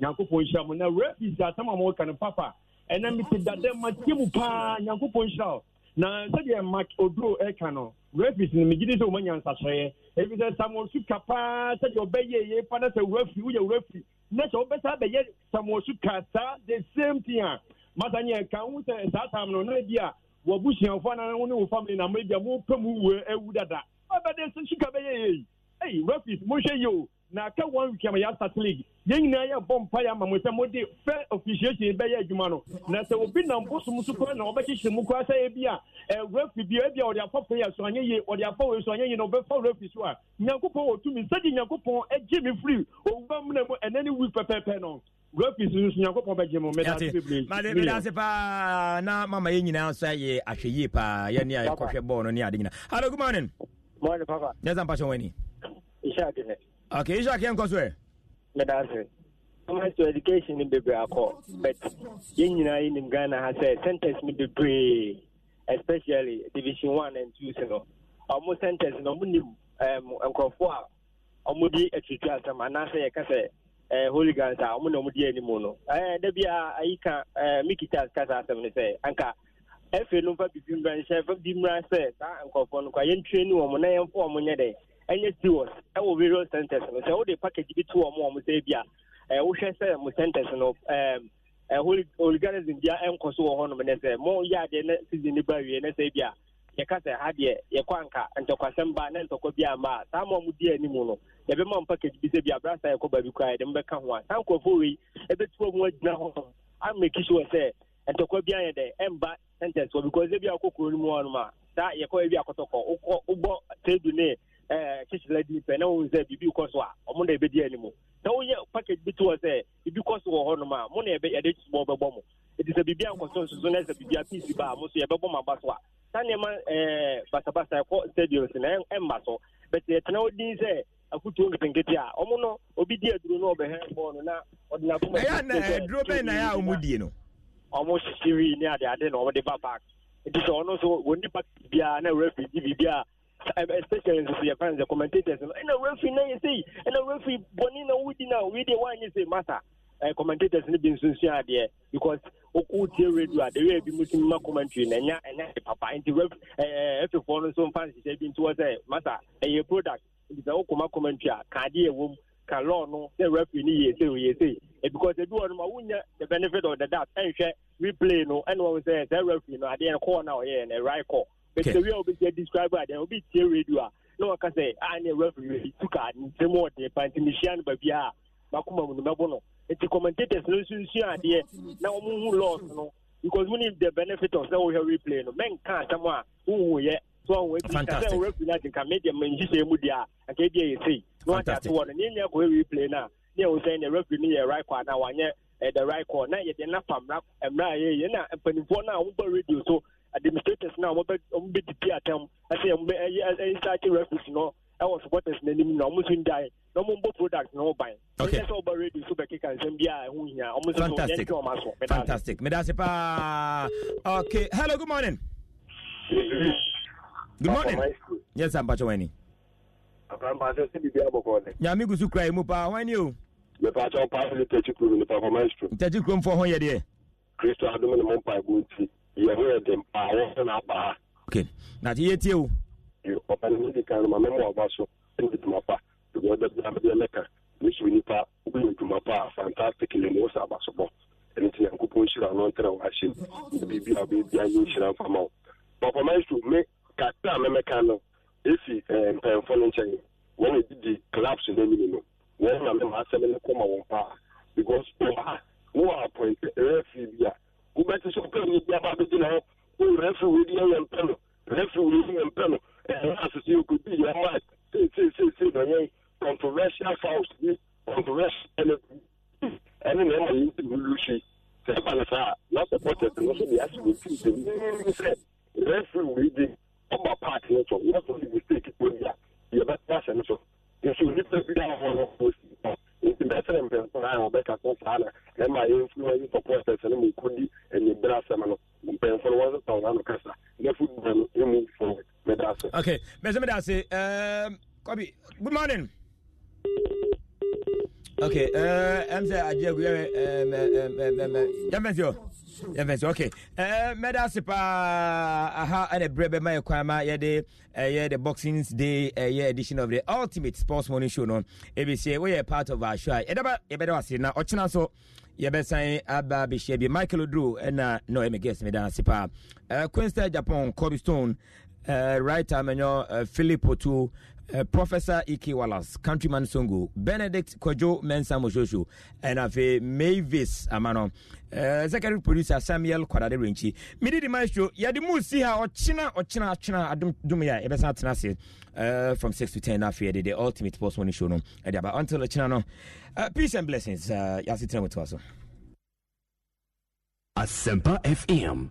nyankopɔn nhyira mu na rapis asɛm a mɔka no papa ɛna mete dadɛ mateɛ mu paa nyankopɔn nhyira o na sɛdeɛ mak oduro ɛka no rapis no megye di sɛ woma nyansakyerɛeɛ ɛfiri sɛ samuel suka paa sɛdeɛ ɔbɛyɛ ye pa na sɛ wurafi woyɛ wurafi na sɛ wobɛsa bɛyɛ samuel suka saa the same thing a masa nyɛ ka wo sɛ saa tam no na bi a wabusuafoɔ na wo ne wo family na mɛbi a mopɛ mu wue awu dada ɔbɛde suka bɛyɛ yei ei rapis monhwɛ yi o na aka one week ama yɛasate league yɛn nyinaa yɛ bɔ mpa yɛ ama mo sɛ mode fɛ officiation bɛyɛ adwuma no na sɛ obi nam bosom so koraa na ɔbɛkyekyere mu koraa sɛ ebi a refi bi ebi a ɔde afa prayer so anyɛ yie ɔde afa wei so anyɛ yie na ɔbɛfa refi so a nyankopɔn wɔ tumi sɛde nyankopɔn agye me firi owura mu na mu ɛnɛ ne week pɛpɛɛpɛ no refi so nso nyankopɔn bɛgye mo mɛdase bebree made mɛdase paa na mama yɛn nyinaa nso ayɛ ahwɛ yie paa yɛne a yɛkɔhwɛ bɔɔl no ne ade nyina hello good morning morning papa nyɛ sampa hyɛ w'ani ihyɛ ade eh. okay ihyɛ akeɛ nkɔ so ɛ meda ase government to education ni bebree akɔ but yɛn nyinaa yi nim ghana ha sɛ bebree especially division one and two sɛ ọmụ ɔmo centers no ɔmo nim ɛm a ɔmo di atutu asɛm anaasɛ ɛɛ eh, holy gans a ɔmo eh, eh, na ɔmo di anim no ɛɛ dabi a ayi ka ɛɛ mikita kasa ni sɛ anka bibi sɛ saa na yɛn wɔn ɛnyɛ serious ɛwɔ various centers no sɛ wode package bi to wɔ mo ɔmo sɛ bi a wohwɛ sɛ mo centers no oliganism bia ɛnkɔ so wɔ hɔnom ne sɛ mo yɛ adeɛ na season no ba wie ne sɛ bi a yɛka sɛ ha deɛ na ntɔkwa bi a saa ma di no yɛbɛma package bi sɛ bi a yɛkɔ baabi yɛde ho saa nkurɔfoɔ wei mu agyina sɛ ntɔkwa bi Eh, kyekyerɛ di pɛ na wɔn sɛ biribi kɔ so a wɔn e e e eh, na ɛbɛdi anim na wɔyɛ package bi to hɔ sɛ biribi kɔ so wɔ hɔnom a mo na yɛbɛ yɛde bɔ bɛbɔ mo eti sɛ biribi ankɔ so nsoso na sɛ biribi apiisi ba a mo so yɛbɛbɔ mo aba a saa nneɛma ɛɛ basabasa ɛkɔ na ɛmma so bɛtɛ yɛtena hɔ din sɛ akutuo nketenkete a wɔn no obi di aduro na ɔbɛhɛ na ɔde na na especially nso yɛ fans commentators no ɛna referee na yɛ sei ɛna referee bɔnni na wudi na wei de wanyɛ sei mata ɛɛ eh, commentators no bi nso nsua adeɛ because wotie radio a de wei bi musu ma commentary na ɛnya ɛnya de papa nti ref ɛɛ eh, ɛfifoɔ no nso fans hyɛ bi nti wɔ sɛ mata ɛyɛ eh, product nti sɛ wokoma commentary a ah, ka adeɛ ka law no sɛ referee no yɛ o yɛ sei because ebi wɔ no ma wunya the benefit of the doubt ɛnhwɛ replay no ɛna wɔn sɛ sɛ referee no adeɛ no kɔɔ na ɔyɛ oh, no right kɔɔ bẹtẹ wíwá obi jẹ describe adé obi tie radio a na wọn kasa a ne referee yi tuka nsẹm ọdẹ panti ne hyia no a bakoma mu no bɛbɔ no nti commentators no nso nsua adeɛ na wɔn hu laws no because we the benefit of sɛ wɔhwɛ replay no mɛ nka asɛm a wohu yɛ so ɔhu eti kasɛ wɔn referee no ati nka media mɛ nhyihyɛ mu deɛ a nka ebi yɛ sei na wɔn ati ato wɔ no ne nyɛ kɔ replay na ne yɛ wosɛn ne referee no yɛ right kɔ anaa wɔanyɛ ɛdɛ right kɔ na yɛde nafa mra mra yɛ yɛ na mpanimfoɔ no a wɔn bɔ radio so administrators na wɔn bɛ didi atam ɛsɛ yɛn bɛ ɛyɛ ɛyɛ saakye referees no ɛwɔ supporters n'anim na wɔn nso n dae na wɔn bɔ product na wɔn ban. ok ɛsɛ ɔba radio so bɛkeka nsɛm bi a ɛho hia wɔn nso yɛn ti wɔn aso. fantastic medase paa ok hello good morning. good morning. yes sir mpatsɛ wani. apampatsɛ sibi bi abɔkɔ dɛ. nyame gusu kura yi mu paa wani o. mepatsɛ ɔpa ɛdi tɛti kurom nipa kɔma ɛsoro. tɛti kurom fɔ hɔn yɛ deɛ. kristu adumu ni mo mpa egu nti yɛho yɛ den paa wɔsɛ no abaa okay nate yɛtie wo ɔpa no medi kan no ma mɛma ɔba so ɛne dwuma pa ɛbɛda bia medeɛ mɛka mehyɛ nipa wobɛyɛ dwuma pa a fantastic ne mu wo sɛ aba so bɔ ɛno nti nyankopɔn hyira no ntrɛ wɔ ahyɛ m biribi a wobɛbia yɛ nhyira mfa ma wo bɔpama so me kakra a mɛmɛka no ɛfi eh, mpɛmfo no nkyɛn wɔn a didi clubs no anim no wɔn na mɛma asɛm no kɔma wɔn paa because wɔn a wɔn apɔinte ɛrɛ fi bi a wobɛte sɛ wopɛ nyɛ bi aba bɛgyina hɔ wo refri wei di ɛyɛ mpɛ no refri wei di yɛ mpɛ no ɛyɛ asese yɛkɔdi yɛ ma seeseeseesei na yɛn controversial fouls bi controversial ɛne ɛne na ɛma yɛnti wulu hwei sɛ ɛba no saa na supporters no so de ase wɔtim sɛ nii sɛ refri wei di ɔba part no so wɔsɔ ne mistake bɔ bi a yɛbɛtena sɛ no so nso nnipa bi a wɔwɔ no wɔsi nti bɛsɛ ne mpɛnsa a wɔbɛka so saa na na ma yɛ influence supporters no mu kɔdi anyibere asɛm no mpɛnfo no wɔn sesa wɔn ano kasa na football no emu forward meda ase. okay mɛsɛ meda ase kɔbi good morning. okay ɛm sɛ agye agu yɛ mɛ mɛ mɛ mɛ yɛ mɛ si o. yɛmfɛ sɛ ok eh, mɛda ase paa aha ɛne berɛ bɛma yɛ kwan ma yɛde ɛyɛ eh, the boxing day ɛyɛ eh, edition of the ultimate sports morning show no ɛbɛsie woyɛ part of our show a yɛdaba yɛbɛda ase na ɔkyena so yɛbɛsan aba bɛhyia bi michael odro ɛna no ɔyɛ me guest mɛda ase paa quinster japan corby stone uh, right time, uh, Philip Otu, uh, Professor E.K. Wallace, Countryman Songo, Benedict Kojo Mensa Moshosho, and Afe Mavis Amano, uh, Secretary Producer Samuel Kwadade Renchi. Midi di maestro, yadimu si ha, ochina, ochina, ochina, adum, dumia, ebesa tenase, uh, from 6 to 10 afi, the, ultimate post morning show no, edia, but until ochina no, uh, peace and blessings, uh, yasi tena mutuaso. Asempa FM.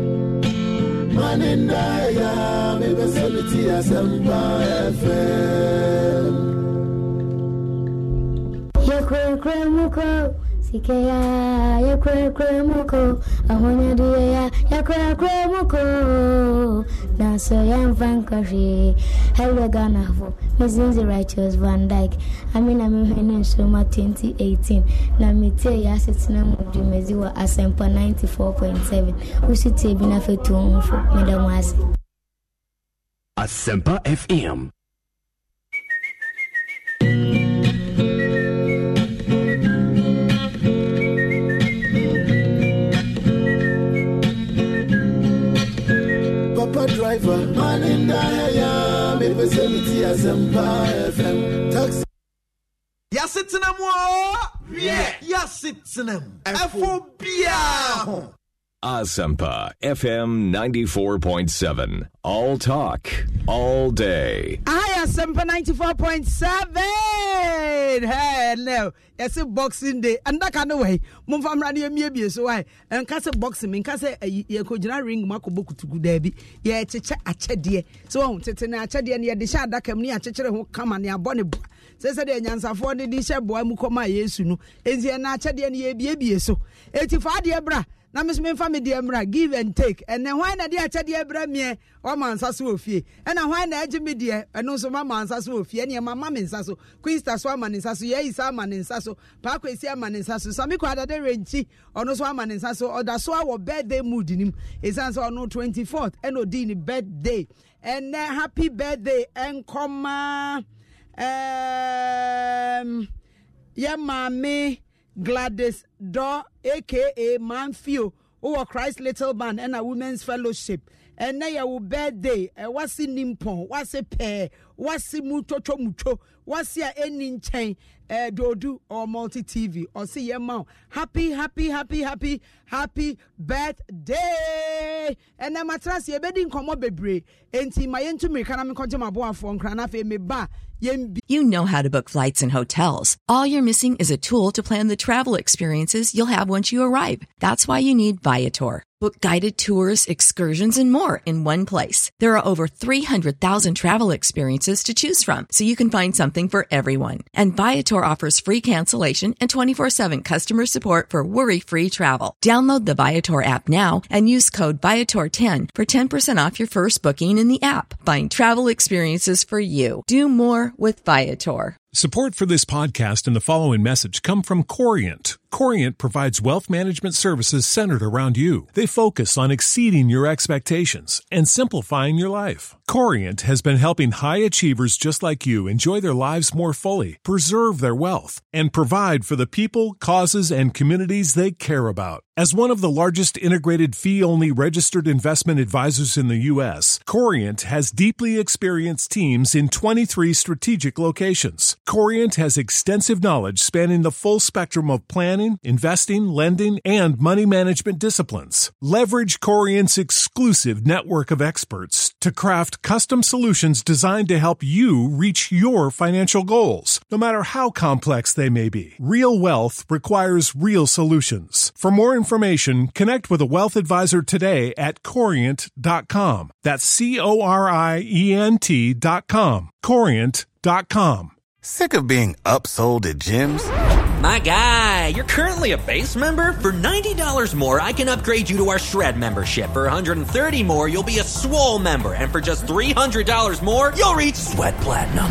nanenda ya bebɛsɛleti asɛmpa fm yɛkurakura mu kɔ sikeya yɛkurakura mu dancer Jan Vancouver, Koshi, Helga Ganafo, Mrs. Righteous Van Dyke. I mean, I'm in Soma 2018. Namite Yasitina Mudumeziwa Asempa 94.7. Usiti Binafe Tumfo, Madam Was. Asempa FM. driver. Man in the me as Empire FM. Taxi. Ya sitting them, yeah. Ya sitting them. FOBia. Asampa FM 94.7. All talk, all day. Hi, Asampa 94.7. Hello. a boxing day. And that kind of way. Mum from Radio Mibi, so I and cast a boxing. In case a cojina ring, Mako kutugudebi. to good baby. Yeah, chicha a chedia. So on Tetina chedia near the shad that came near Chicha who come and near Bonnie. Says the Yansafor, the Disha boy Mukoma Yesunu. Is the Nachadia near Bibi so. Eighty five, dear bra. na me so memfa me deɛ mmra give and take ɛnɛ hwan na de akyɛdeɛ brɛ meɛ ɔma nsa so wɔ fie ɛna hwan na agye me deɛ ɛno nso mama nsa so wɔ fie ɛneɛ mama me nsa so quinsta so ama ne nsa so yɛisa ama ne nsa so paakwasi ama ne nsa so same kɔ adade renkyi ɔno so ama ne nsa so ɔda so awɔ birthday mood nim ɛsiane sɛ ɔno 24th ɛna ɔdii ne birthday ɛnɛ happy birthday ɛnkɔmaa um, yɛ maame Gladys Daw, aka Manfio, who Christ Little Man a Women's Fellowship. And ɛnɛ yɛ wo birthday ɛwase eh, ni What's wase pɛɛ wase mu twotwo mutwo wase a ɛni nkyɛn ɛdodu or multi tv or see your mom. happy happy happy happy happy birthday ɛnɛ matrasi ebedi nkɔmɔ bebree enti ma yɛn tu mirika na mi kɔgye ma bo afɔ nkran na afei mi ba. You know how to book flights and hotels. All you're missing is a tool to plan the travel experiences you'll have once you arrive. That's why you need Viator. Book guided tours, excursions, and more in one place. There are over 300,000 travel experiences to choose from, so you can find something for everyone. And Viator offers free cancellation and 24-7 customer support for worry-free travel. Download the Viator app now and use code Viator10 for 10% off your first booking in the app. Find travel experiences for you. Do more with Viator. Support for this podcast and the following message come from Corient Corient provides wealth management services centered around you. They focus on exceeding your expectations and simplifying your life. Corient has been helping high achievers just like you enjoy their lives more fully, preserve their wealth, and provide for the people, causes, and communities they care about. As one of the largest integrated fee only registered investment advisors in the U.S., Corient has deeply experienced teams in 23 strategic locations. Corient has extensive knowledge spanning the full spectrum of planning planning, investing, lending, and money management disciplines. Leverage Corient's exclusive network of experts to craft custom solutions designed to help you reach your financial goals, no matter how complex they may be. Real wealth requires real solutions. For more information, connect with a wealth advisor today at corient.com. That's C O R I E N T.com. Corient.com. Sick of being upsold at gyms? My guy, you're currently a base member. For $90 more, I can upgrade you to our Shred membership. For $130 more, you'll be a swole member. And for just $300 more, you'll reach Sweat Platinum.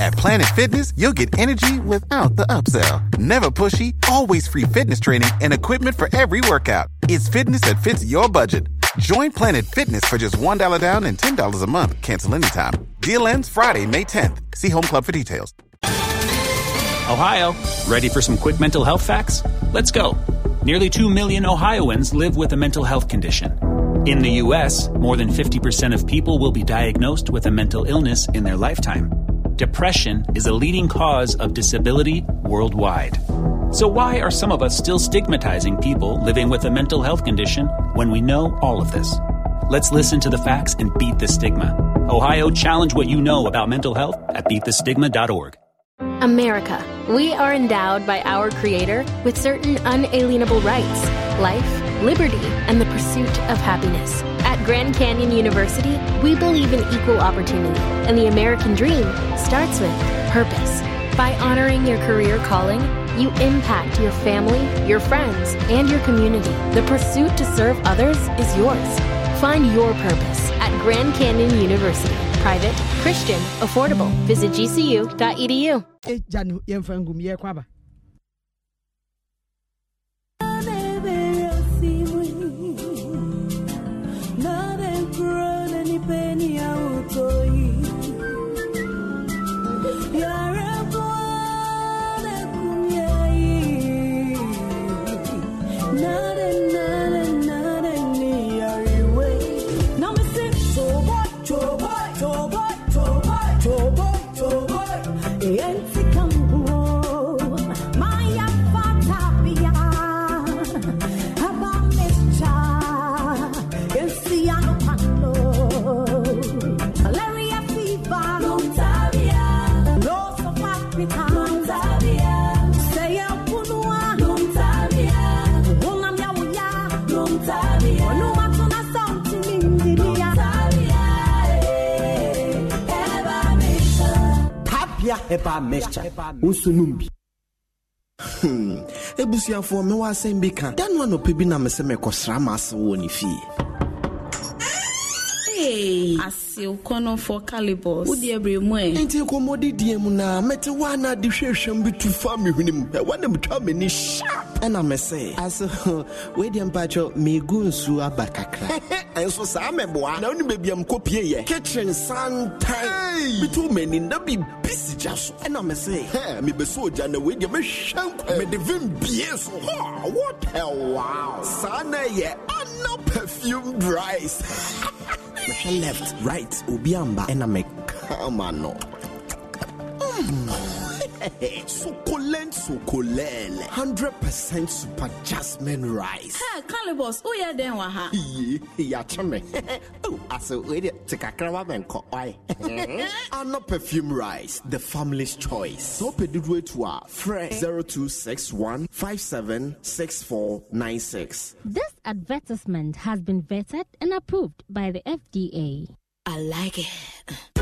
At Planet Fitness, you'll get energy without the upsell. Never pushy, always free fitness training and equipment for every workout. It's fitness that fits your budget. Join Planet Fitness for just $1 down and $10 a month. Cancel anytime. Deal ends Friday, May 10th. See Home Club for details. Ohio, ready for some quick mental health facts? Let's go. Nearly 2 million Ohioans live with a mental health condition. In the U.S., more than 50% of people will be diagnosed with a mental illness in their lifetime. Depression is a leading cause of disability worldwide. So, why are some of us still stigmatizing people living with a mental health condition when we know all of this? Let's listen to the facts and beat the stigma. Ohio, challenge what you know about mental health at beatthestigma.org. America, we are endowed by our Creator with certain unalienable rights life, liberty, and the pursuit of happiness. At Grand Canyon University, we believe in equal opportunity, and the American dream starts with purpose. By honoring your career calling, you impact your family, your friends, and your community. The pursuit to serve others is yours. Find your purpose at Grand Canyon University, private Christian, affordable. Visit gcu.edu. ɛbaa mɛkya nso nom bi hmm. ebusuafoɔ mewɔ asɛm bi ka da no anɔpɛ bi na me sɛ mekɔsra ma ase wɔ ne fie asew kɔnɔfoɔ calibos wodeɛ berɛ mu ɛ e. nti nkɔmmɔdidiɛ mu na mete woa na ade hwɛhwɛm bi tu fa mehwene mu ɛwane metwa m'ani hyap ɛna me e sɛ e aso weideɛ mpakyɛ megu nsuo aba kakra ɛnso saa mɛboa na wone baabiam kɔpieyɛ kitchen santan meto m'ani na bibis ogya so ɛna me se hɛ mebɛsɛ ogya na wei deɛ mɛhwɛ nkwa mede vim bie so hɔ what a wow Sana na ɛyɛ ana perfume rice left right obi amba ɛna mekama no succulent succulent 100% super jasmine rice ha calibus woyɛ dɛn wɔ ha ye yɛakye me ase wede te kakra wa menkɔ ɔe ana perfume rice the family's choice sɛ wopɛ dodoɔ atu a frɛ 0261 this advertisement has been vetted and approved by the fda i like it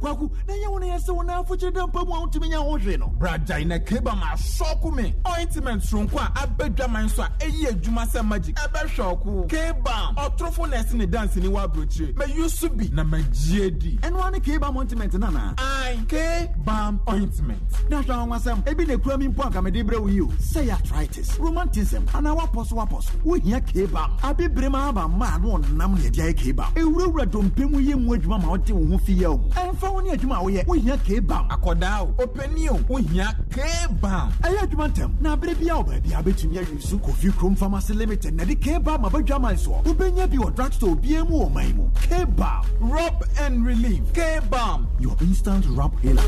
kwaku na ɛnyɛ wo no yɛ sɛ wo no afokyere da mpa mu a wotumi nya ho hwee no bragyae na kaba ma asɔko me ointment soronko a abɛdwaman so a ɛyi adwuma sɛ magic ɛbɛhwɛ ɔko kaba ɔtorofo na ne dance wɔ aburokyire mayu so bi na magyie di ɛnoa ne kaba ointment no anaa ae kaba ointment na hwɛ awonwasɛm ebi na ekura mi mpo akamede brɛ wo yi o sɛ yɛ arthritis romantism anaa wapɔ so wapɔ so wohia kaba abibire ma aba mmaa no ɔnam na ɛde ayɛ kaba ewurawura dompe mu yɛ mu adwuma ma ɔde wo ho fi yɛ o o ɛmfa wo ne adwuma a woyɛ wohia kbam akɔdaa o ɔpani o wohia kbam ɛyɛ adwuma ntam na aberɛ bia wo baabia bɛtumi awe so kofi krom pharmacy limited na de kbam abadwaman soɔ wobɛnya bi wɔ drugstore bia mu wɔ man mu kbam rub and relieve. relief kbam your instant rub healer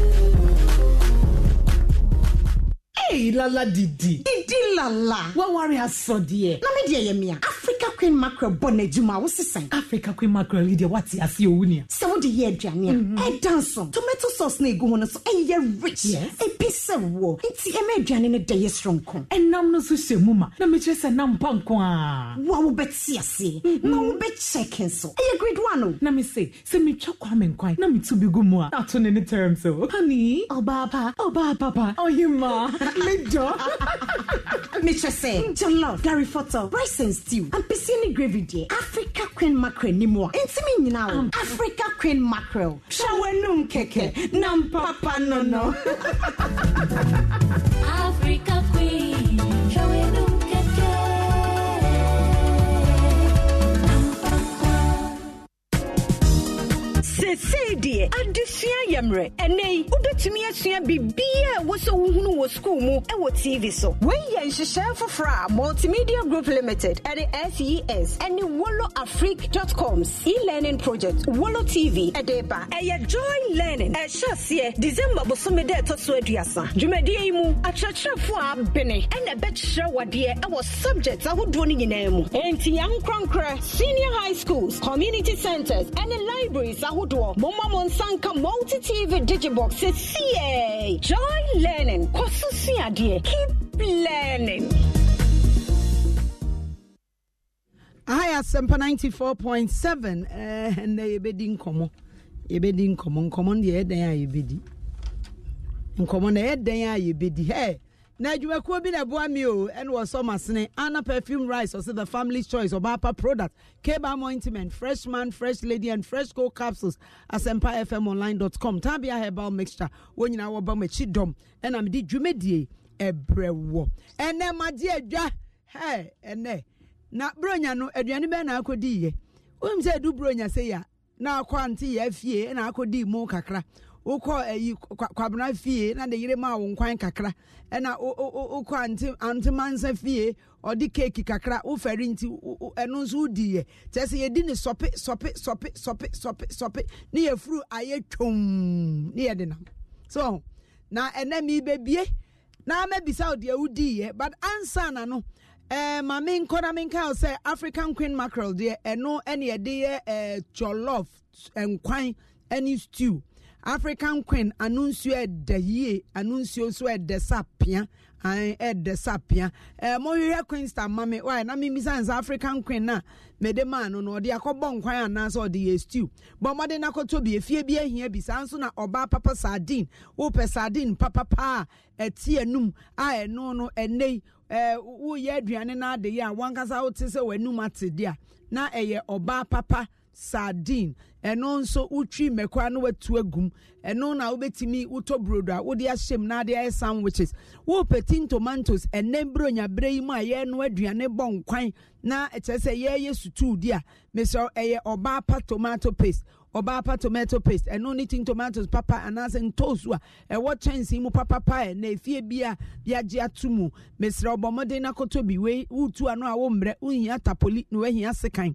Hey, lala didi. Didi lala. Wawari asodie. Na me die yemia. Africa Queen Mackerel bone juma wo sisan. Africa Queen Mackerel leader what ya see owu ne. Se wo de ye aduane a. E dance on. Tomato sauce na egu ho no so e ye rich. E bi se wo. Nti e ma aduane ne de ye stronko. E nam no so hye mu ma. Na me kire se nam pa nko a. Wa wo beti ase. be check so. E ye grade 1 o. Na se me twa kwa me nkwan. Na me tu bi gu mu a. Ato Honey, obaba, obaba papa. Oh Major. Mistress, your love, Gary Foto, rice and stew, and piscine gravy dear. Africa Queen Mackerel ni mo. Enti um. Africa Queen Mackerel. Shawanum keke. Nam papa no no. Africa Queen seesei deɛ adesua yɛ mmerɛ ɛnɛ wobɛtumi asua biribiaa ɛwɔ sɛ wohunu wɔ skuul mu ɛwɔ tv so wei yɛ nhyehyɛe foforɔ a multimedia group limited ɛne ses ɛne wolo afric.coms e-learning project wolo tv ɛde ba ɛyɛ joy learning ɛhyɛ aseɛ december bosome dɛ ɛtɔ so aduasa dwumadie yi mu akyerɛkyerɛfoɔ a bene ɛna ɛbɛkyerɛ wadeɛ ɛwɔ subject ahodoɔ no nyinaa mu enti yɛnkorankora senior high schools community centers ɛne libraries ahodoɔ doɔ momma mo nsa multi tv digibox sɛsiɛ joy learning kɔ so keep learning Aya Sempa 94.7 eh, and they bedi nkomo yɛbɛdi nkɔmɔ nkɔmɔ no deɛ ɛdɛn a yɛbɛdi nkɔmɔ no ɛdɛn a yɛbɛdi hɛ na adwumakuo bi na ɛboa me o ɛne wɔ masene ana perfume rice ɔsɛ the family choice ɔbaapa product cable ointment fresh man fresh lady and fresh co capsules asɛmpa fm online dot com tabia herbal mixture wɔn nyinaa wɔba mo akyi dɔm ɛna mede dwumadie ɛbrɛ wɔ ɛnɛ magye adwa hɛ ɛnɛ na bronya no aduane bɛn na akɔdi yɛ wɔn mu sɛ edu bronya sɛ yɛ na akɔ ante yɛ afie ɛna akɔdi mu kakra wokɔ ayi kwabena fie na de yere maa wo nkwan kakra ɛna wokɔ ante antemansa fie ɔde keeki kakra wofɛre nti ɛno nso wodiiɛ kyɛ sɛ yɛdi ne sɔpe sɔpe sɔpe sɔpe sɔpe sɔpe ne yɛfuru ayɛ twom ne yɛde nam so na ɛnɛ mebɛbie na mɛbisa wo deɛ wodiiɛ but answer na no Eh, ma me nkɔ na me nka sɛ african queen mackerel deɛ ɛno eh, ne yɛde yɛ eh, cholof nkwan eh, stew african queen ano nsuo ɛda yie ano nsuo nso ɛda sapia ɛda eh, sapia ɛɛ eh, mohwehwɛ queen star mami wɔyɛ na mimisa nsa african queen na mede maa no no ɔde akɔbɔ nkwan anaasɛ ɔde yɛ stew bɔn ɔmɔde n'akɔtɔ bi efie bi ehia bi saa nso na ɔbaa papa sardine wopɛ sardine papapa a ɛti enum a ɛno no ɛnɛ yi ɛɛ eh, woyɛ aduane n'ade yi a wankasa wote sɛ w'anum ate dea na ɛyɛ ɔbaa papa sardine ɛno nso wotwi mmɛkora no watu agum ɛno na wobɛtumi wotɔ burodo a wode ahyɛ na ade ayɛ sandwiches wopɛtin tomatoes ɛnɛ mbere onyaberɛ yi mu a yɛno aduane bɔ nkwan na ɛkyerɛ sɛ yɛyɛ sutuu di a mesɛ ɛyɛ ɔbaa pa tomato paste ɔbaa pa tomato paste ɛno ne tin tomatoes papa anaasɛ ntoosu a ɛwɔ kyɛnsee mu papapa ɛ na efie bi a yagye ato mu mesrɛ ɔbɔ mmɔden no akɔtɔ bi wei wotu ano a wommrɛ wohia tapoli na woahia sekan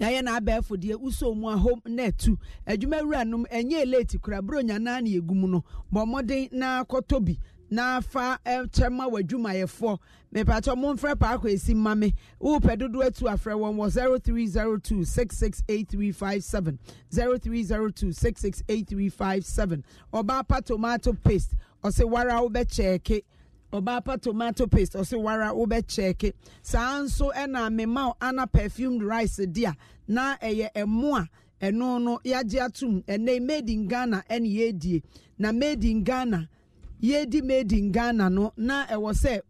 yɛayɛ na abɛɛfo deɛ wosɔ mu ahom na atu adwuma wura nom ɛnyɛ eleti kora buro nyanaa na yɛgu mu no bɔ mmɔden na akɔtɔ bi na afa ɛkyɛ ma w'adwumayɛfoɔ mepatɔ momfrɛ paako esi ma me wopɛ dodo atu afrɛ wɔn wɔ zero three zero two six six eight three five seven zero three zero two six six eight three five seven ɔbaa pa tomato paste ɔsɛ wara wobɛkyɛɛke ɔbaa pa tomato paste ɔsɛ wara wobɛkyɛɛke saa nso ɛna mema ana perfumed rice di a na ɛyɛ ɛmo a ɛno no yɛagye atom ɛnɛ made in ghana ɛne yɛdie na made in ghana di made in ghana no na ɛwɔ sɛ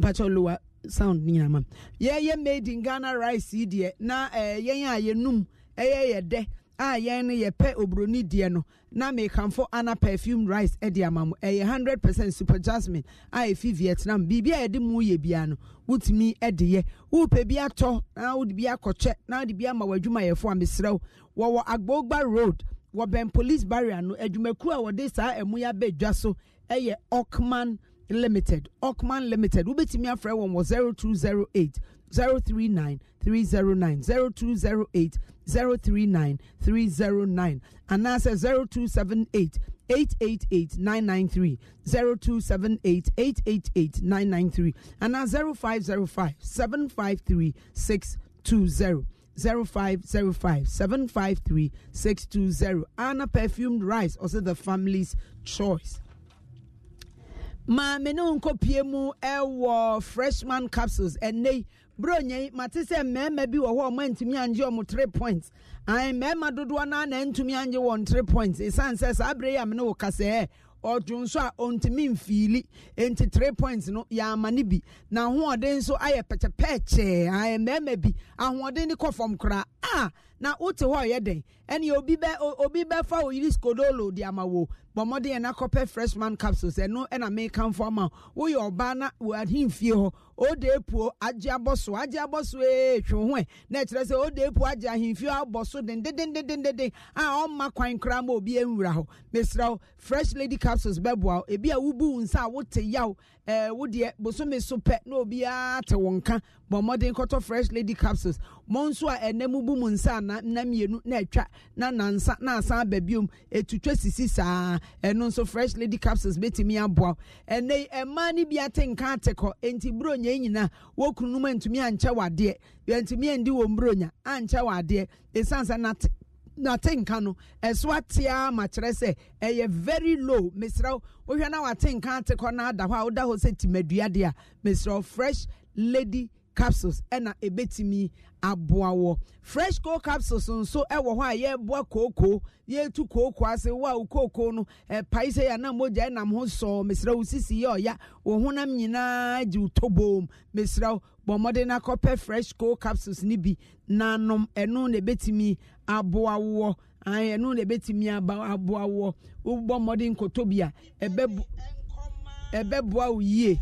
mpakyɛ lowa sound ne nyinama yɛyɛ made in ghana rice yi deɛ na ɛɛ eh, yɛn a yɛnum ɛyɛ yɛ dɛ a yɛn no yɛpɛ oburoni deɛ no na mekanfo ana perfume rice de ama mo ɛyɛ hundred percent super jasmine a efi vietnam biribi a yɛde mu yɛ bia no wotumi de yɛ wopɛ bi atɔ na wode bi akɔkyɛ na wode bi ama w'adwumayɛfo a mesrɛ wo wɔwɔ agbogba road wɔbɛn police barrier no adwumakuo a wɔde saa ɛmu yɛ abɛ dwa so ɛyɛ okman limited okman limited wobɛtumi afrɛ wɔn wɔ zero two zero eight zero three nine three zero nine zero two zero eight. 039309 anaasɛ 0278 888993 0278888993 anaa 0505 753 620 0505 753 620 Anna Perfumed Rice, also the family's choice. Ma mene nkɔ pie mu ɛwɔ eh, freshman capsules ɛnɛ eh, bronya yi mate sɛ mmarima bi wɔ hɔ a ɔma ntumi angye ɔmo three points ayi mmarima dodoɔ naa na ntumi angye wɔn three points esan sɛ saa abere yi a mene wɔ kasɛɛ ɔdun eh. so a ɔntumi nfiili nti three points no yɛama ne bi na ahoɔden nso ayɛ pɛkyɛpɛɛkyɛɛ ayi mmarima bi ahoɔden ne kɔ fam koraa a. Ah, na wote hɔ ɔyɛ den ɛne obi bɛ obi bɛfa oyiri skodolo de ama wo bɔ mmɔden yɛn akɔpɛ freshman capsules ɛno ɛna mekanfo ama woyɛ ɔbaa na wɔ ahemfie hɔ ode epuo agye abɔ agye abɔ ee twe ho ɛ na ɛkyerɛ sɛ ode epuo agye ahemfie abɔ so dendendendendenden a ɔmma kwan koraa ma obi nwura hɔ mesra fresh lady capsules bɛboa ebi a nsa a yaw Eh, wo deɛ bosome so pɛ na obiara te wo nka bɔ mmɔden kɔtɔ fresh lady capsules mo nso a ɛnɛ mu bu mu nsa na nna mmienu na atwa na nansa na asan aba biom etutwa sisi saa ɛno nso fresh lady capsules betumi aboa ɛnɛ mmaa no bi ate nka ate kɔ nti bronya nyinaa wɔkunu mu ntumi ankyɛ wadeɛ ntumi andi wɔn bronya ankyɛ wadeɛ esansa nate n'atenka no ɛso atea ma kyerɛ eh, sɛ ɛyɛ very low mesrɛ wohwɛ na watenka ate kɔ na ada hɔ a woda hɔ sɛ timadua deɛ a mesrɛ fresh lady capsules ɛna ebetumi aboa wɔ fresh coal capsules nso ɛwɔ hɔ a yɛreboa kooko yɛretu kooko ase wo a wo kooko no ɛpae sɛ yɛn a mogya ɛnam ho sɔɔ mesrɛ wo sisi yɛ ɔya wo honam nyinaa gye wo toboom mesrɛ wo bɔ mmɔden na kɔpɛ fresh coal capsules ne bi nanom ɛno na ebetumi aboawoɔ ɛno na ɛbɛtumi aba aboawoɔ wobɔ mmɔden nkɔtɔ bi a ɛbɛboa wo yie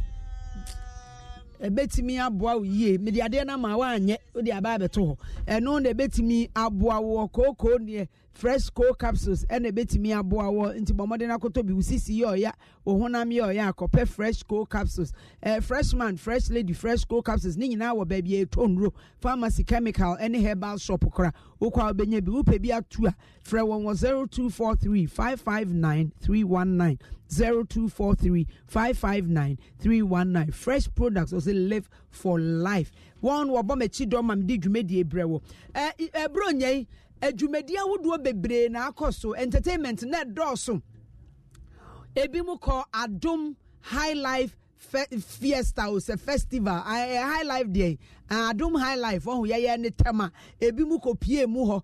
ɛbɛtumi aboa wo yie mede adeɛ eh, no ma woanyɛ wode aba abɛto hɔ ɛno na kookoo neɛ fresh cold capsules ɛna ebetumi aboa wɔ nti bɔn mɔden akoto bi osisi yɛ ɔya ohunam yɛ ɔya akɔpɛ fresh cold capsules ɛɛ fresh man fresh lady fresh cold capsules ne nyinaa wɔ baabi eto nro pharmacy chemical ɛne herbal shop kora okɔ a obɛnya bi wopɛ bi atu a frɛ wɔn wɔ zero two four three five five nine three one nine zero two four three five five nine three one nine fresh products ɔsɛ live for life wɔn wɔbɔ mɛkyi dɔm a mi di dwumadie brɛ wɔ ɛɛ ɛburo nyɛ yi adwumadi ahodoɔ bebree na akɔ so entertainment na ɛdɔɔso ebi mu kɔ adum high life fiesta o sɛ festival ɛɛ high life deɛ adom high life ɔho yɛyɛ ne tɛm ebi mu kɔpie mu hɔ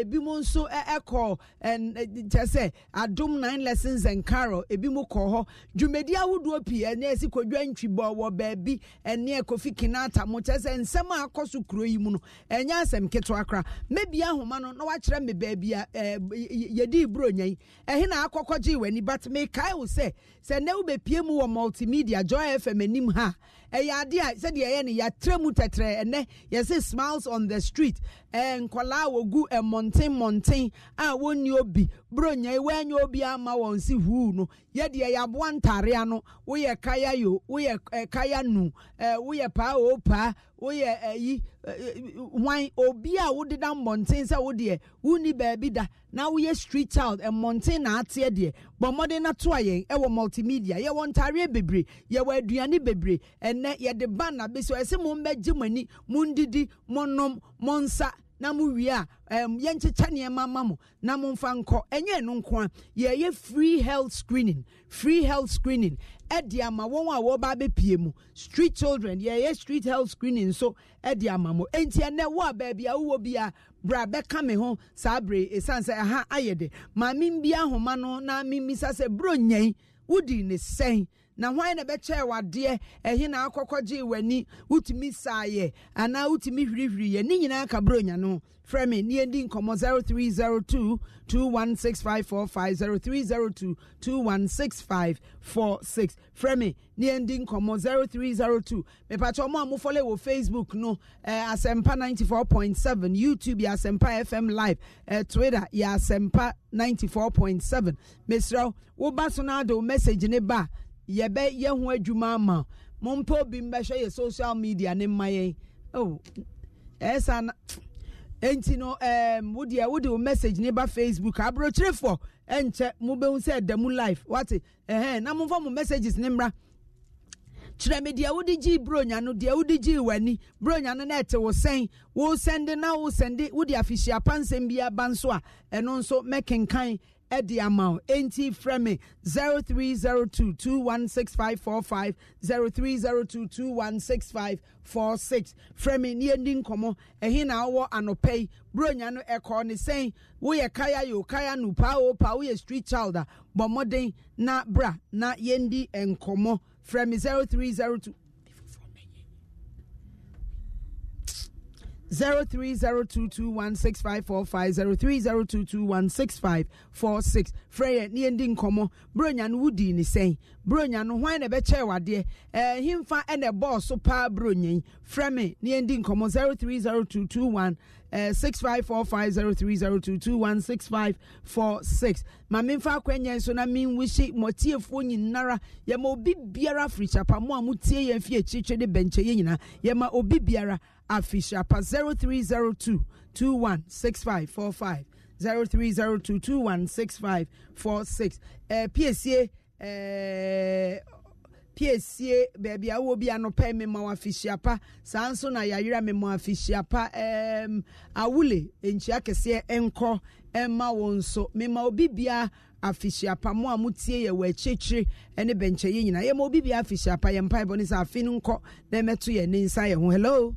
ebi mu nso ɛkɔ kyɛ sɛ adom nine lessons and carol ebi mu kɔ hɔ dwumadi ahodoɔ pii ɛne ɛsi kodwa ntwibɔ wɔ baabi ɛne kofi kinata mo kyɛ sɛ nsɛm a akɔ so kuro yi mu no ɛnyɛ asɛm ketewa kora mebi ahoma no na wakyerɛ me baabi a ɛɛ yɛdi iburo nya yi ɛhe na akɔkɔ gye w'ani but mekae wo sɛ sɛ ne wo bepie mu wɔ multimedia joy fm anim ha ɛyɛ adeɛ a sɛdeɛ ɛyɛ no yɛatrɛ mu tɛtɛ then ɛnɛ yɛsɛ smiles on the street ɛɛ nkɔlaa wɔgu ɛmɔnten mɔnten a wɔnni obi bro nya iwe anya obi ama wɔn si huu no yɛ deɛ yɛaboa ntarea no woyɛ kaya yo woyɛ eh, kaya nu eh, woyɛ paa o paa woyɛ ayi eh, hwan eh, obi a wodeda mmɔnten sɛ wodeɛ wonni beebi da na woyɛ street child eh, mmɔnten na ate deɛ bɔ mmɔden na to a yɛn ɛwɔ multimedia yɛwɔ ntareɛ bebree yɛwɔ aduane bebree ɛnɛ yɛde ban na bɛsi ɛsɛ mo mbɛgye mo ani mo ndidi mo nom mo nsa na mo wie a um, yɛnkyekyɛ nneɛma ma mo na momfa nkɔ ɛnyɛ ɛno nko a yɛyɛ free health screening free health screening ɛde ama wɔn a wɔba abɛpie mu street children yɛyɛ street health screening nso ɛde ama mo enti ɛnɛ wo a baabi a wowɔ bi a bra bɛka me ho saa bere ɛsiane sɛ ɛha ayɛ de maame bi ahoma no na mimisa sɛ bro nyɛn wodi ne sɛn na hwan na bɛkyɛɛ wadeɛ ɛhe na akɔkɔ gyee w'ani wotumi saayɛ anaa wotumi hwirihwiriyɛ ne nyinaa ka bronya no frɛ me ne yɛdi nkɔmmɔ 0302 216545 0302 216546 frɛ me ne yɛndi nkɔmmɔ 0302 mepakyɛ ɔmo a mofɔle wɔ facebook no eh, asɛmpa 94.7 youtube yɛ asɛmpa fm live eh, twitter yɛ asɛmpa 94.7 mesrɛ woba so no ade wo message ne ba yɛbɛ yɛ ho adwuma ama mo obi mbɛhwɛ yɛ social media ne mma yɛn oh ɛsa na nti no ɛɛm wodeɛ wode wo message ne ba facebook aburokyerefoɔ ɛnkyɛ mo bɛhu sɛ ɛda mu live wate ɛhɛn na mo nfa mo messages ne mmra kyerɛ me deɛ wode gyii bronya no deɛ wode gyii w'ani bronya no na ɛte wo sɛn wosɛnde na wosɛnde wode afihyia pansɛm bi aba nso a ɛno nso mɛkenkan ɛde amau, wo enti frɛ me 0302216545 0302216546 frɛ me ne yɛndi nkɔmmɔ ɛhe na wowɔ anɔpɛ yi buronya no ɛkɔɔ ne kaya yo kaya no pa o paa woyɛ street childa a bɔ na bra na yendi enkomo frɛ me 0302 zero three zero two two one six five four five zero three zero two two one six five four six frɛyɛ ne yɛn di nkɔmɔ wudi ni sɛn bronyan no hwan na ɛbɛkyɛ wadeɛ ɛɛ eh, himfa ɛna ɛbɔɔ so paa bronya yi frɛ me ne yɛn di nkɔmɔ zero three zero two two one eh, six five four five zero three zero two two one six five four six maame nfa akwanya nso na mi nwusi mɔtiefoɔ nyinara yɛma obi biara firi kyapa mo amutie mo tie yɛn fi akyirikyiri de bɛnkyɛ yɛ obi biara afi sharpa 0302 216545 0302 216546 ɛɛ piesie ɛɛ piesie baabi a wo bi anɔpɛ mmemma afihyia pa saa nso na yɛayera mmemma afihyia pa ɛɛm awule nkyia kɛseɛ nkɔ ɛma wɔn nso mmemma obi bia afihyia pa a mo tie yɛ wɔ akyirikyiri ɛne bɛnkyɛ yɛ nyinaa yɛma obi bia afihyia pa yɛn mpa ɛbɔ ne sɛ afi no nkɔ na ɛmɛto yɛn ne nsa yɛn ho hello.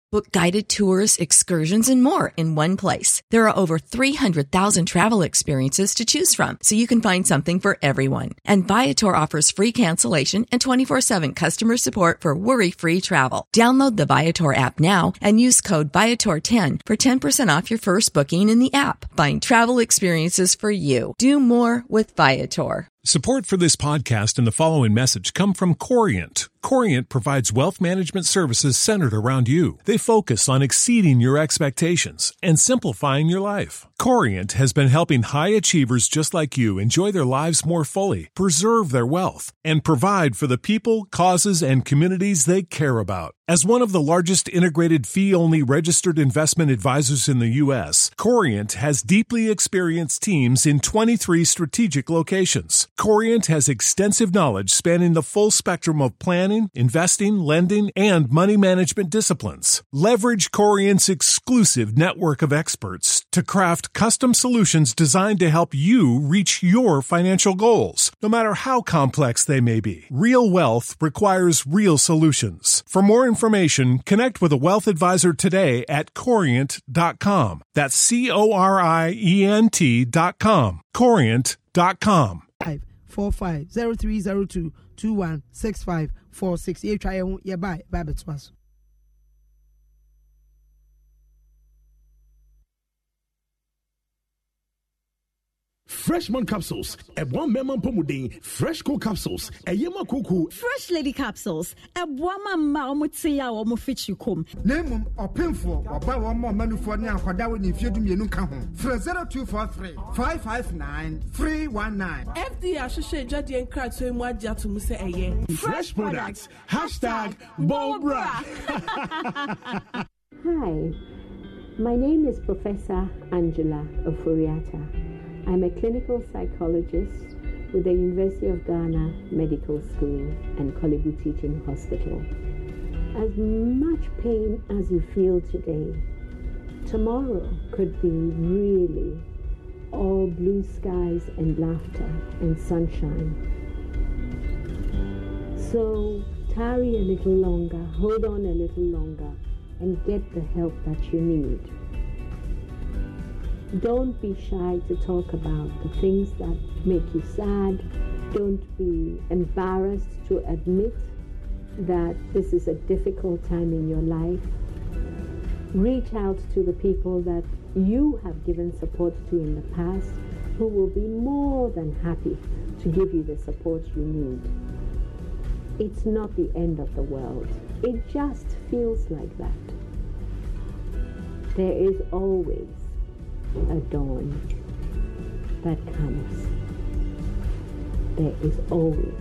Book guided tours, excursions, and more in one place. There are over 300,000 travel experiences to choose from, so you can find something for everyone. And Viator offers free cancellation and 24-7 customer support for worry-free travel. Download the Viator app now and use code Viator10 for 10% off your first booking in the app. Find travel experiences for you. Do more with Viator. Support for this podcast and the following message come from Corient Corient provides wealth management services centered around you. They focus on exceeding your expectations and simplifying your life. Corient has been helping high achievers just like you enjoy their lives more fully, preserve their wealth, and provide for the people, causes, and communities they care about. As one of the largest integrated fee only registered investment advisors in the U.S., Corient has deeply experienced teams in 23 strategic locations. Corient has extensive knowledge spanning the full spectrum of planning planning, investing, lending, and money management disciplines. Leverage Corient's exclusive network of experts to craft custom solutions designed to help you reach your financial goals, no matter how complex they may be. Real wealth requires real solutions. For more information, connect with a wealth advisor today at corient.com. That's C O R I E N T.com. Corient.com. 545 0302 2165 four six yɛtwa yɛn ho Bye. Bye. Bye. Bye. freshman capsules ɛboa mmarima mpɔmuden fresh co capsules A ma koko fresh lady capsules ɛboa ma mma wɔn te a wɔn fikyi kom. na emu ɔpinfoɔ ɔba wɔn mma ɔmanufoɔ one akɔda wɔ ne mfie dumienu ka ho fira zero two four three five five nine three one nine. fda ahyehyɛ adwadeɛ nkrataa mu agye ato mu sɛ ɛyɛ. fresh products hashtag bobra. hi my name is professor angela oforiata. I'm a clinical psychologist with the University of Ghana Medical School and Kolibu Teaching Hospital. As much pain as you feel today, tomorrow could be really all blue skies and laughter and sunshine. So tarry a little longer, hold on a little longer, and get the help that you need. Don't be shy to talk about the things that make you sad. Don't be embarrassed to admit that this is a difficult time in your life. Reach out to the people that you have given support to in the past who will be more than happy to give you the support you need. It's not the end of the world. It just feels like that. There is always a dawn that comes. There is always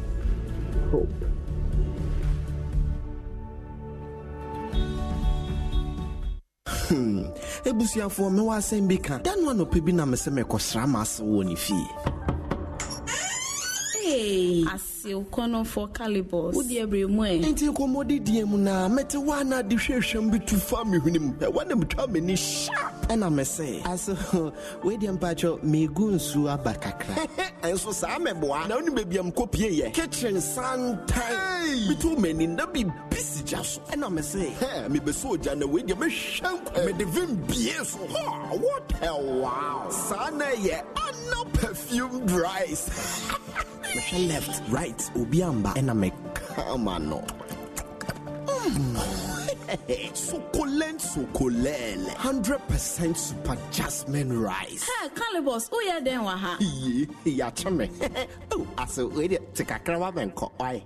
hope. Hmm. ebusuafoɔ mewɔ asɛm bi ka da no anɔpɛ bi na me sɛ mekɔsra ma ase wɔ ne fie si wokɔnɔfoɔ calibos wodeɛ berɛ mu ɛ enti nkɔmmɔdidiɛ mu naa mete woana de hwɛhwɛm bi tu fa mehwene kitchen santan metu m'ani so ɛna mese mebɛsɛ ogya na weideɛ vim bie so what a wow saa na ɛyɛ ana perfume dries left right white ubiamba and I'm a camano. Mm. Succulent, succulent, hundred percent super jasmine rice. Ha, Calibos, oh yeah, then waha. Yeah, chummy. Oh, I saw it. Take a crab and cook. I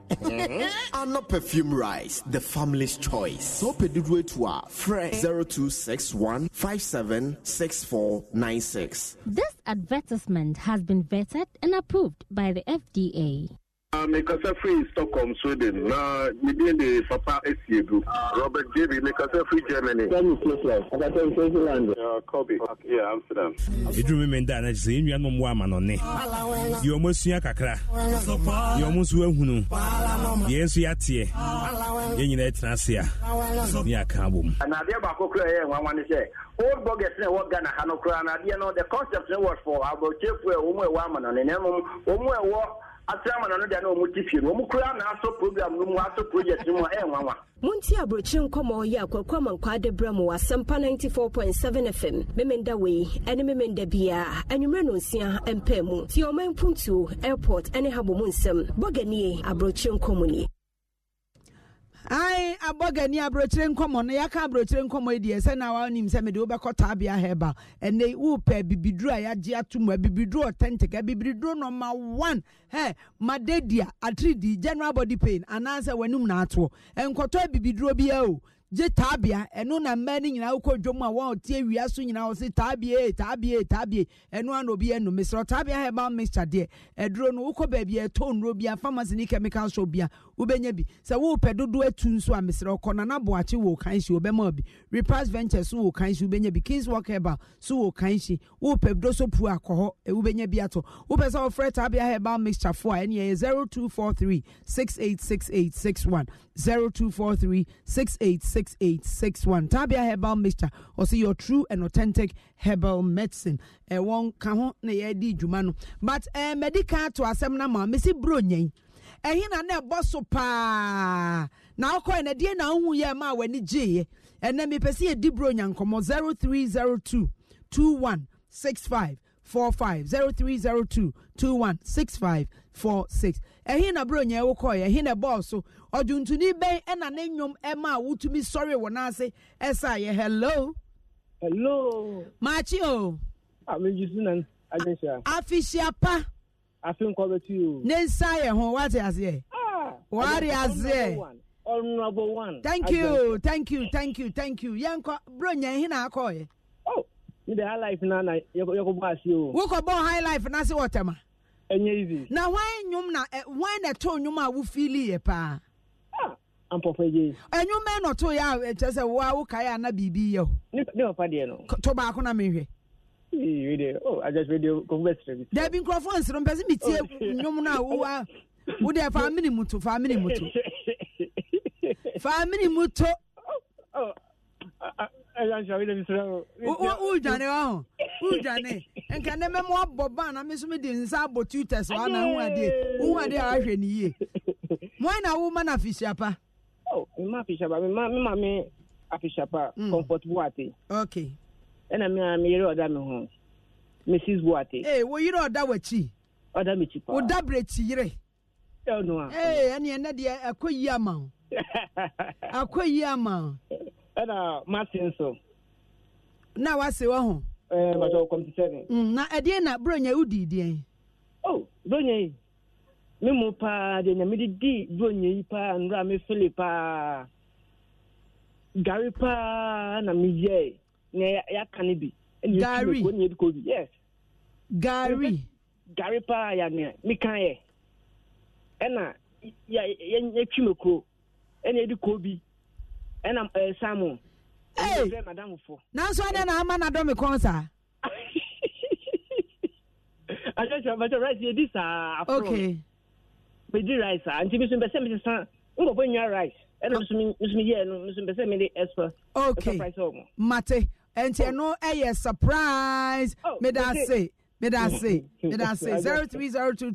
perfume rice, the family's choice. So pedidwe to our friend eh? 0261 576496. This advertisement has been vetted and approved by the FDA. Ah, mekasa firi stockholm sweden na medin de papa asi egu robert jb mekasa firi germany Amsterdam. ɛduru me menda no sɛ yɛnnua nom wɔ amanɔne yɛ ɔm asua kakra yɛ ɔm nso ahunu yɛn nso yɛateɛ yɛn nyinaa tena ase a ne aka abɔ mu anadeɛ baako kora ɛyɛ nwanwa ne sɛ old boggers na ɛwɔ ghana ha no koraa anadeɛ no the concept no was for abɔtiefoɔ e, a wɔmu ɛwɔ amanɔne na mmom wɔmu ɛwɔ asirama na no deɛ na wɔn ti fie no wɔn kura na aso program no mu aso project no mu a ɛyɛ nwanwa. Munti aburokyi nkɔmɔ yi akɔkɔ ama nkɔ adebra mu asɛmpa ninety four point seven fm memenda wei ɛne memenda biara anwummerɛ no nsia mpɛ mu tie ɔman puntuo airport ɛne habɔ mu nsɛm bɔganie aburokyi nkɔmɔ nie ae abogani aburokyire nkɔmɔ no yɛaka aburokyire nkɔmɔ yi deɛ sɛ na wonim sɛ mede wobɛkɔ taabea heba ɛnɛ wopɛ bibiduro a yɛagye ato mu abibiduro e authentic abibiduro e nɔma one he madedia atridi general body pain anaasɛ w'anom naatoɔ ɛnkɔtɔ e abibiduro biaa o gye taabea ɛno na mmaa no nyinaa wokɔ dwom a wɔn ɔte awia so nyinaa wɔsi taabea taabea taabea ɛno ana obi ɛnum mesrɛ taabea herbal mixture deɛ ɛduro no wokɔ baabi ɛtɔ nnuro bia pharmacy ne chemical shop bia wobɛnya bi sɛ wopɛ dodoɔ atu nso a mesrɛ ɔkɔ nana boakye wɔ kan hyi wobɛma bi repass venture so wɔ kan hyi wobɛnya bi kings walk herbal so wɔ kan hyi wopɛ doso pu akɔ hɔ e, wobɛnya bi atɔ wopɛ sɛ wɔfrɛ taabea herbal mixture foɔ a ɛne ɛyɛ 0243 686861 0243 68 6861 tabia herbal mixture ɔsɛ your true and authentic herbal medicine ɛwɔ eh, nka ho na yɛdi dwuma no but ɛɛ eh, medical to asɛm na ma mesi buro nyɛn ɛhin eh, na na ɛbɔ so paa na akɔ yɛ na deɛ na ahu yɛ ma wɔ ani gye yɛ ɛnna mi pɛ si yɛ di buro nya nkɔmɔ 0302 2165 45 0302 2165 46 ɛhe na bro nyɛ wo kɔɛ na bɔɔl so bɛn ɛna ne nnwom ɛma a wotumi sɔre wɔ n'ase ɛsa yɛ hello. hello. maakye o. ameji sinan agyesa. afihyiapa. afi nkɔ bɛ ti o. ne nsa yɛ ho wate aseɛ. Ah! wari aseɛ. honourable one. thank you thank you thank you thank you yɛn kɔ bro nyɛ na oh ne de high life na na bɔ ase o. wokɔ bɔ high life na se wɔ tɛma. ɛnyɛ easy. na wɔn nnwom na eh, wɔn na ɛtɔ nnwom a wofili yɛ paa. ampɔfra yie. ɛnwom ɛna ɔtɔ yɛ a kyerɛ sɛ wo a wokae a na biribi yɛ o. ne papa deɛ no. to baako na mehwɛ. Oh, dabi nkurɔfoɔ nsoro mpɛ sɛ metie oh, nnwom no a wowa wode fa mene mu to fa mene mu to fa mene mu to oh, wodwane wa ho wodwane nka ne mɛmo abɔ ban na me so mede nsa abɔ tuters wa na ho adeɛ wohu adeɛ a wahwɛ ne yie moa na woma no afihyiapa oh, mema afihyiapa mema me afihyiapa mm. comfort boate ok ɛna mea meyere ɔda me ho mrs boate ee eh, woyere ɔda w'akyi ɔda me kyi paa woda berɛ kyi yere ɛno a ee eh, ɛneɛ nɛ deɛ akɔ yie ama wo akɔ yie ama wo ɛna martin so na wase wɔ ho ɛɛ bàtà kɔmpi sɛni. na ɛdeɛ na bronya wodi deɛ. o oh, bronya yi mi mu paa deɛ nyame de di bronya yi paa nwura mi fili paa gari paa na mi yɛ na aka ne bi. gari gari gari paa ya nea mi kan yɛ ɛna yɛ yɛ twi mi kuro ɛna yɛ di kobi. ɛna eh, ɛɛ ee nanso ɛdɛ na ama na dɔmi kɔn sa. akyɛkyɛ abakyɛ rice yɛ saa afro. okay. di rice a nti mi sun mi ti san nkɔfɔ nya rice ɛna mi sun mi yɛ no mi sun bɛ sɛ mi di extra. okay mate nti oh. ɛno ɛyɛ surprise. oh meda ase. meda ase mm, mm, mm. meda ase zero three zero sɛ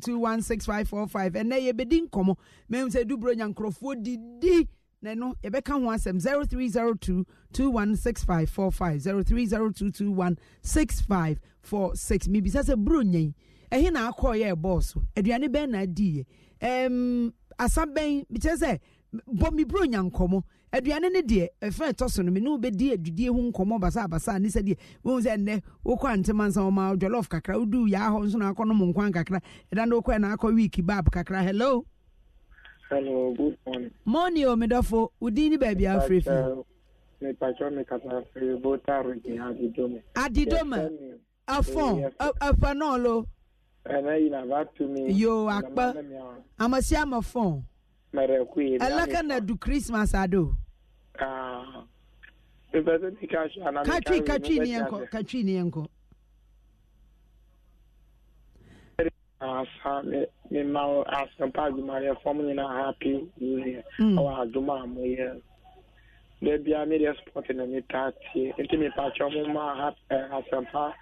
duburo nyankorɔfoɔ didi. na ɛno yɛbɛka ho asɛm 0302 216545 0302 216546 mebisa sɛ buro nyɛn ɛhe na akɔɔ yɛ ɛbɔɔ so aduane bɛn na adiiɛ um, asa bɛn mekyerɛ sɛ bɔ me buro nya nkɔmmɔ aduane no deɛ ɛfrɛ ɛtɔ so no me ne wobɛdi adwudie ho nkɔmmɔ basabasa ne sɛ deɛ wohu sɛ nnɛ wokɔ antema nsa wɔma jɔlɔf kakra woduu yaa hɔ nso na akɔ nom nkwan kakra ɛda no wokɔɛ na akɔ week bab kakra hello Hello, good morning. Morning, Omidofo. Oh, Udini baby Afrifi. Mepatro uh, me kasa firi bota rigi adidome. Adidome. Afon. Afanolo. Ana ina vatumi. Yo akpa. Amasi amafon. Merekui. Elaka na du Christmas ado. Ah. Mepatro me kasa ana. Katwi katwi ni enko. Katwi ni enko. Asa me hmm. ma asempa adwumayɛ fam nyinaa happy union ɛwɔ adwuma a moyɛ daabia medeɛ sport na metaa tie nti mepakyɛ mo ma asempa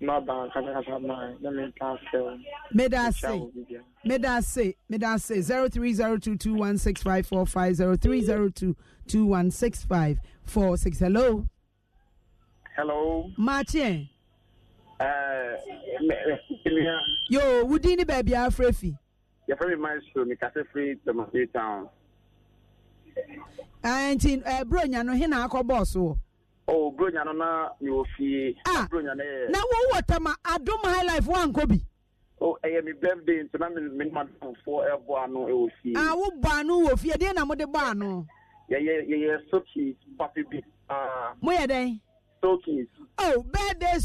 no aba nkasakasa maa na metaa sɛw meda se meda se meda se 0302216545 0302216546 hello hello maakyeɛ yo wudi ni baabi afra fi. yɛfrɛ me maestro mekasɛ firi tomate town nti bronya no hena akɔ bɔɔso wɔ oh bronya no na mewɔ fie ah, bronya no yɛ na wowɔ High Life highlife woankɔ bi oh birthday na menemadamfoɔ ɛbɔ ano ɛwɔ fie a ah, wobɔ ano wɔ fie deɛ na mode bɔ ano yɛyɛ yɛyɛ sokins pape bi ah. moyɛ dɛn sokins oh birthday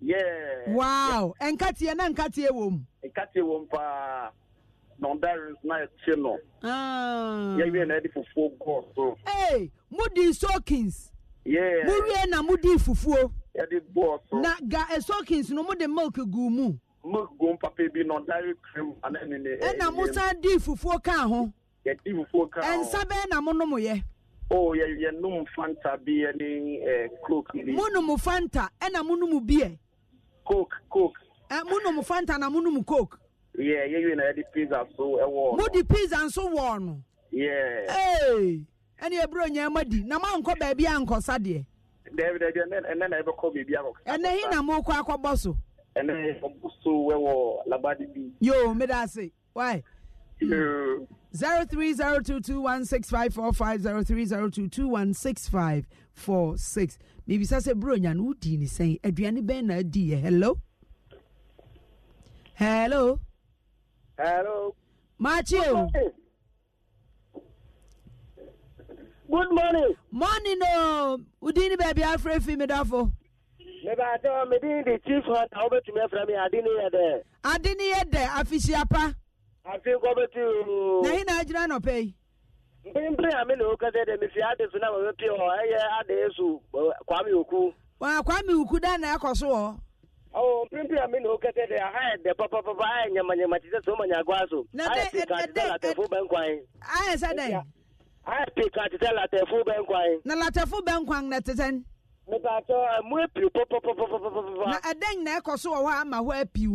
Yeah. Wow. Yeah. Enkatie na enkatie wom. Enkatie wom pa. Nondarins na eche no. Ah. Yeah, we na di fufuo go so. Hey, mudi soakings. Yeah. Muri na mudi fufuo. Yeah, di bo so. Na ga e eh, soakings no di milk gu mu. Milk gu papa bi nondari cream ana ne ne. E na musa di fufuo ka ho. Yeah, di fufuo ka. Ensa be na mo no mo ye. Oh, yeah, yeah, fanta bi any eh coke. Mo numu fanta, e na mo no mu bi e. coke coke eh, monom fanta na monom coke yeah yɛwie na yɛde pizza so ɛwɔ eh, mode pizza nso wɔ no yeah hey. ɛne ɛberɛ nyaama di na mankɔ baabi ankɔsa deɛ ɛnɛ na ɛbɛkɔ baabi akɔkɔ ɛnɛ hi na mokɔ akɔbɔ so ɛnɛ ɔbɔ so wo labadi bi yo meda ase wai yo Zero three zero two two one six five four five zero three zero two two one six five four six. mebisa sɛ buronya no wodii ne sɛn aduane bɛn na adiiɛ hello hello hello machio good morning morning o wodin ne baabi afrɛ fi medafo mebaatɛ ɔ medin de chief hunter wobɛtumi afrɛ me ade ne yɛ dɛ ade ne yɛ dɛ afihyiapa afei kɔbɛtu na he na agyina nɔpɛ yi mpempere mi na okasa dɛ mefi ade na mama pie ɛyɛ ade esu kwame oku. kwame oku da na akɔ so hɔ. ɔ mpempere a na okasa dɛ eh, aha yɛ papapapa ayɛ nyamanyama sɛ so. na de ɛdɛ ɛdɛ latɛfo bɛ ayɛ sɛ ayɛ pika sɛ latɛfo na latɛfo nkwan eh, na mu epiw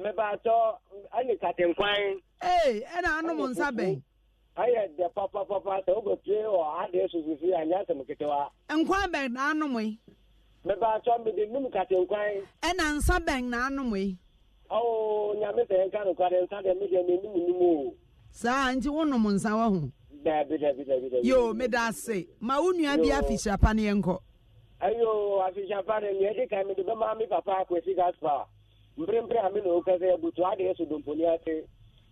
mmebaatɔ ɛne katenkwan. ee ɛna anum nsa bɛn. ayɛ dɛ papapapa sɛ wobɛpie wɔ adeɛ susisi anyɛ asɛm ketewa. nkwan bɛn na anum yi. mmebaatɔ mede num katenkwan. ɛna nsa bɛn na anum yi. ɔwɔ nyame sɛ nka nokware nsa deɛ medeɛ menum o. saa nti wonom nsa wɔ ho. dabi meda ma wo bi afihyapa ne yɛnkɔ. ayo afihyapa ne nea ɛdi kan mede bɛma mmerɛmmerɛ a me na woka sɛ abutu adeɛ so domponi ase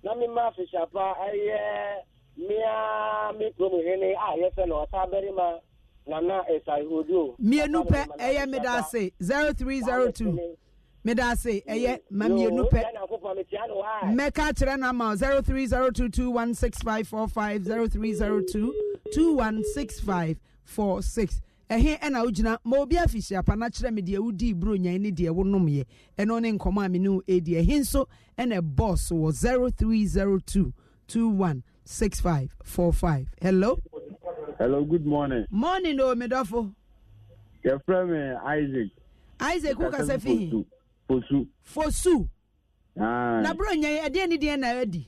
na mema fisyapa ɛyɛ mmea me kurom hene a yɛsɛ no ɔsa bɛrima nana ɛsahodo mmienu pɛ ɛyɛ meda ase 0302 meda ase ɛyɛ ma mmienu pɛ mɛka kyerɛ one six five four six ɛhe ɛna wogyina ma obi afihyiapa no akyerɛ me deɛ wodii buro nyan ne deɛ wonomyɛ ɛno ne nkɔmmɔ a me ne wo ɛdi ɛhe nso ɛna bɔs wɔ 0302 216545 hello hello good morning morning o oh, medɔfo yɛfrɛ me isaac isaac wokasa fihi fosu fosu na buro nyan ɛdeɛ ne deɛ na adi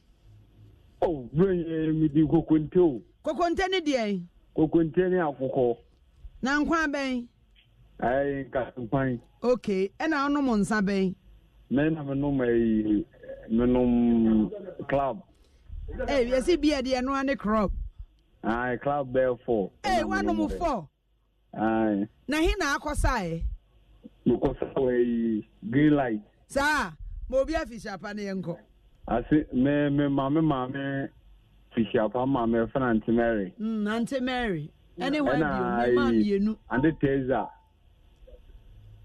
oh buro nyan medi kokonte o kokonte ne deɛ kokonte ne akokɔ na nkwa bɛn. ɛɛ nka nkwan. ok ɛna ɔnom nsa bɛn. mɛ na menom ɛyi menom club. ee yasi bia deɛ ɛnoa ne club ayi club bɛɛ fɔ. ee wanom fɔ. ayi. na hin na akɔsa yɛ. mekɔsa wɔ ɛyi green light. saa ma obi afisiapa ne yɛ nkɔ. ase mɛ mɛ maame maame fisiapa maame fɛn na nti mary. Mm, nante mary. ɛne mmienu ande teza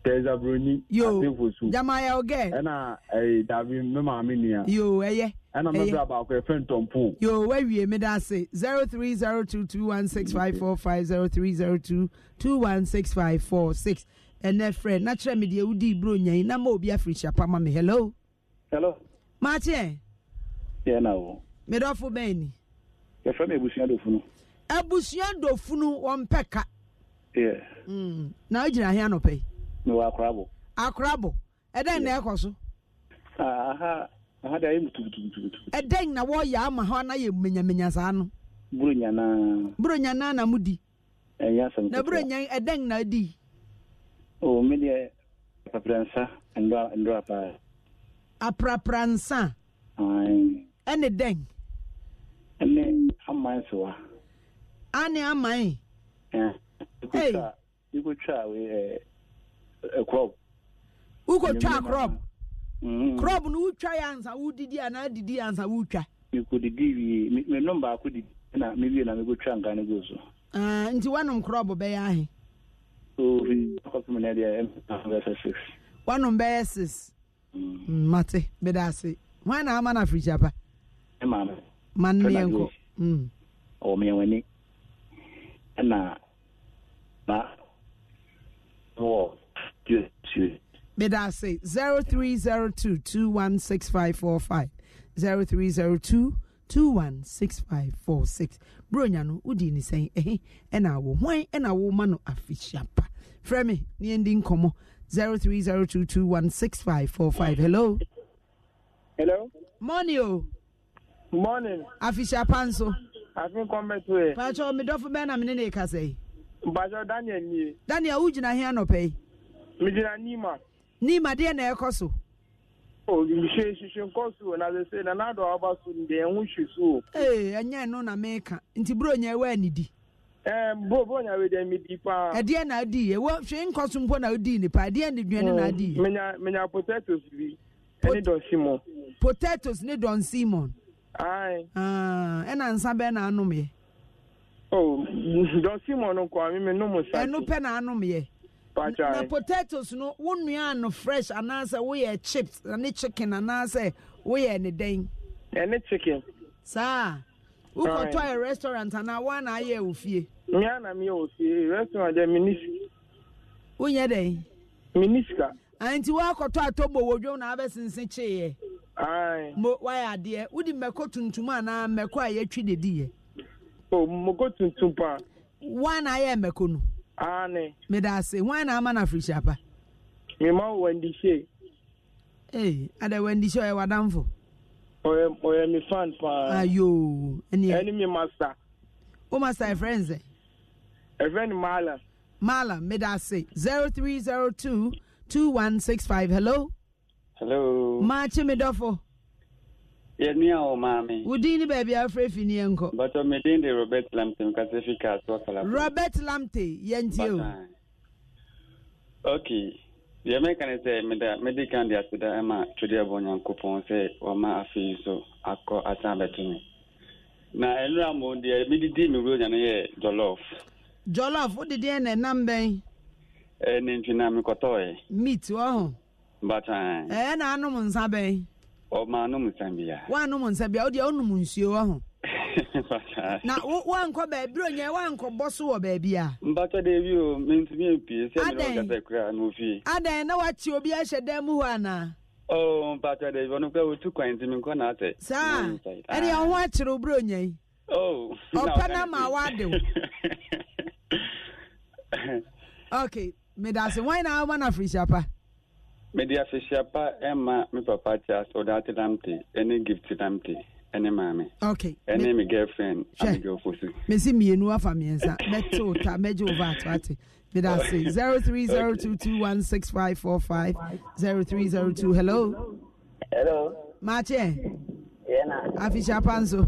teza broni atefo so jamayɛ ogɛ ɛna ɛyɛ dabi me maame nua yo ɛyɛ ɛna mɛbrɛ baako ɛfɛ ntɔmpo yo wawie meda ase 0302216545 0302216546 ɛnɛ frɛ na kyerɛ me deɛ wodii bro nyai na ma obi afirihyia pa ma me hello hello maakyeɛ Yeah, na wo medɔfo bɛn ni yɛfrɛ me abusua dofo no abusua dɔfunu wọn pɛ ka. Hmm. na ogyina ahịa nọpɛ yi. n'ụwa akorabọ. akorabọ ɛdɛn na ɛkɔ so. Ah, aha aha dị anyị mutubutubutu. ɛdɛn na wɔyɛ ama ha na yɛ menyamenya saa no. buru nyanaa. buru nyanaa na mu di. ɛnyɛ eh, asɛm na buru nyan ɛdɛn na di. o mi deɛ apapransa ndora ndora paa. aprapransa. ɛne dɛn. ɛne amansiwa. ane aman wokɔtwa eh, eh, eh, crop crop no mm. wotwa yɛ ansa wodidi anaa didi ansa wotwa mekɔdidi wie menom baako didi na mewie na mekɔtwa nka no go so nti woanom crop bɛyɛ ahe kɔpem no deɛ bɛsɛ six woanom bɛyɛ six mate bɛda ase hwan na ama no afirikyapa ma nneɛ nkɔ ɔwɔ meɛw'ani ɛna na wɔ tuotuo. Beda ase zero three zero two two one six five four five zero three zero two two one six five four six. Bro, no wodi ne sɛn ɛhe eh, eh, ɛna awo hwan ɛna awo ma no afihyia pa. Frɛ me ne yɛn zero three zero two two one six five four five. Hello. Hello. Morning oh. Morning. Afihyia pa afi kɔmbɛto yɛ. pàtó mi dɔfo bɛn na mi ne ne kasa yi. mpàtó daniel nie. daniel o gyina hɛn nɔpɛ yi. mi gyina nima. nima deɛ na ɛkɔ so. o nhyɛ nhyehyɛ nkɔ so na sese na n'adɔ aba so deɛ ɛho hwi so. ee ɛnyɛ no na mi ka nti buro nya ɛwɔ ɛnidi. ɛɛ bo bo nya wei deɛ mi di paa. ɛdeɛ na adi yɛ Ewa hwɛ nkɔ so mpo na odi nipa ɛdeɛ ni duane na adi yɛ. Mm, menya menya potatoes bi ɛne dɔn simon. potatoes ne dɔn simon. Aye. Ah, ɛna nsa bɛɛ na anum ya. Oh, Don Simon nkɔ ami mi numu sa. Ɛnu pɛ na anum yɛ. Pacha. Na potatoes no, wo nua ano fresh anaasɛ woyɛ chips ne chicken anaasɛ woyɛ ne den. Ɛne chicken. Saa. Wokɔtɔ yɛ restaurant anaa wɔn na ayɛ wɔ fie. Mmea na mmea wɔ fie, restaurant yɛ minisi. Wonyɛ den. Minisika. nti wakɔtɔ atɔbɔ wɔ dwom na abɛsense kyeeɛ mo wayɛ adeɛ wode mmɛkɔ tuntum anaa mmɛkɔ a yɛtwi de diiɛ mmɔkɔ tuntum paa wan na ayɛ mmɛkɔ no ane meda ase wan na ama na afirihyia pa mema wo wandihyee ee ada wandihyee ɔyɛ wadamfo ɔyɛ ɔyɛ me fan paa ayo ah, ɛne ɛne me master wo master ɛfrɛ n sɛ ɛfrɛ ni maala maala meda ase 0302 2165 hello hello maakye me dɔfo yɛnua wɔ maame wo din ne baabi afrɛ fi ne yɛnkɔ bɛtɔ um, meden de robert lamte mekasɛ fi kaasoakala robert lamte yɛntie o ok deɛ mɛka ne sɛ meda mede kan de aseda ɛma e twede abɔ nyankopɔn sɛ wɔma afei so akɔ asan bɛto me na ɛnora mo deɛ mededi me wuro nya no yɛ jɔlɔf jɔlɔf wodede ɛna ɛnam bɛn n'eji na mmekọta ọyị. mit ọhụ. mbata. ee eh, na anụm nsa bee. ọ ma anụm nsa bịa. wa anụm nsa bịa o di onum nsuo ọhụ. mbata. na wa nkọ beebi onye wa nkọ bọ so wọ baabi a. mbata dị ebi o ntumi mpie sị na ọ gasa ekura n'ofi. adan na wachi obi ahyɛ dan mu hɔ ana. oo mbata dị ebi ọ otu kwan ntumi nkọ na asị. saa ɛdi ɔho akyere obere onye yi. oo. ọpẹ na ma wa adịw. okay. medase wan na ama na afiri siapa mede afirihyapa ɛma me papa charles ɔdaate lamte ɛne gift lamte ɛne maame okay ɛne me girlfriend amegyɛwfo so mesi mmienu afa mmiɛnsa mɛte wo ta mɛgye wo va ato ate mede ase 0302216545 0302 hello hello maakyɛ afirihyapa nso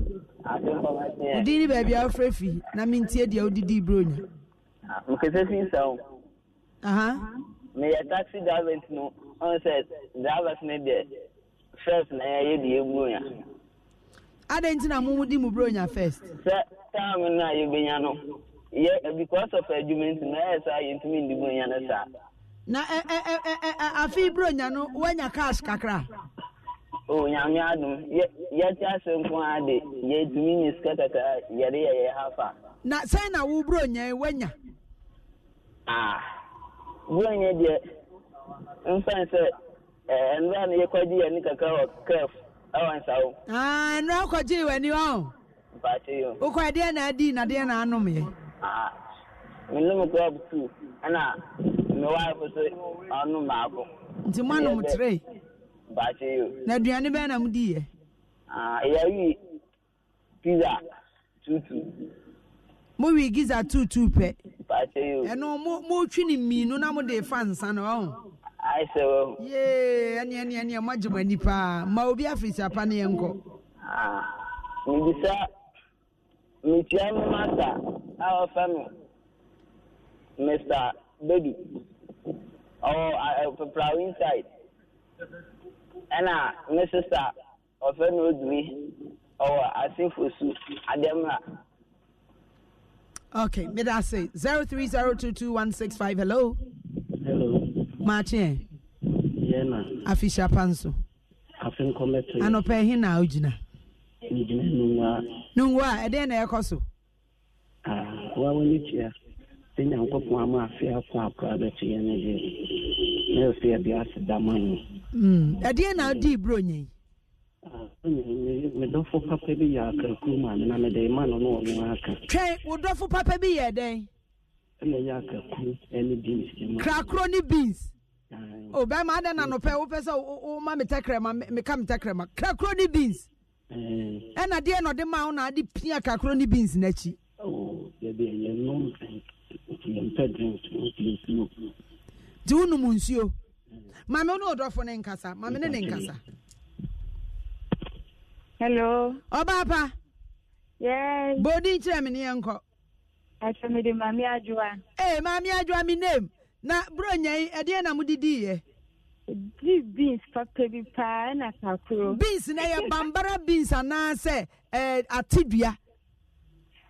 wodin ne baabi a wofrɛ fi na mentie deɛ wodidi buronya ah, mkɛsɛ fi nsa o na yɛ taxi drivers no ɔn sɛ drivers ne deɛ first na yɛyɛ de yɛburo nya adɛn nti na mo di mu buro nya first sɛ time no a yɛbɛnya no yɛ because of adwuma nti na ɛyɛ saa yɛntumi ndi buro nya no saa na ɛ ɛ ɛ ɛ ɛ afi buro nya no wanya cash kakra o nyame adum yɛ yɛte ase nko ara de yɛtumi nye sika kakra yɛde yɛ yɛ hafa na sɛn na wo buro nya wanya ah bɔn yɛ deɛ nsan sɛ ɛɛ nnura no yɛkɔgye yɛ ne kakra wɔ kɛf ɛwɔ nsawo. aa nnura kɔgye wɔ ani hɔ. mpaakye yi o. Ah, wokɔ adeɛ na adi na adeɛ na anom yɛ. aa ah, menom grub two ɛna me wife so ɔnom maako. nti mo anom tire. mpaakye yi o. na aduane bɛn na mo di yɛ. aa ah, eyayi pizza tutu mo wi giza tutu pɛ ɛno mo mo twi ne mmienu na mo de fa nsa na ɔn. yee ɛni ɛni ɛni ɛmo agye mo ani paa ma obi afirisa pa ne yɛn kɔ. Ah, mbisa mitia mi mata, a wɔfɛ mi mr baby, ɔwɔ peperawo inside ɛna mi sista ɔfɛ mi odumi ɔwɔ asinfosu ademra. Okay, mid I say zero three zero two two one six five. Hello. Hello. Martin. Yeah, na. Afisha panso. Afin kometo. Ano pe na ujina. Ujina nungwa. Nungwa, ede na yako Ah, wa wani chia. Sinya nko po ama afia kwa akwa betu yene di. Ne ofia bi asida hmm, Ede na di bro nyi. medɔfo papa bi yɛ akakuruma nena mede ma no na ɔno aka twɛn wo dɔfo papa bi yɛ dɛn ɛna ɛyɛ akakuru ne beans krakoro oh, ne beans o bɛrima adɛn na nɔpɛ wopɛ sɛ woma me tɛkrɛma meka me tɛkrɛma krakoro ne beans ɛna deɛ na ɔde ma wo na ade pia kakoro ne beans n'akyi nti wonom nsuo mame wo ne wo ne nkasa mame ne ne nkasa hello ọbaapa yes bodi nkyerɛ me ne yɛ nkɔ ɛkyɛ mede maame adwoa ee eh, maame adwoa me name na bro nyɛn ɛdeɛ na modidiiɛ di beans papa bi paa ɛna kakoro beans na yɛ bambara beans anaasɛ ɛɛ eh, atidua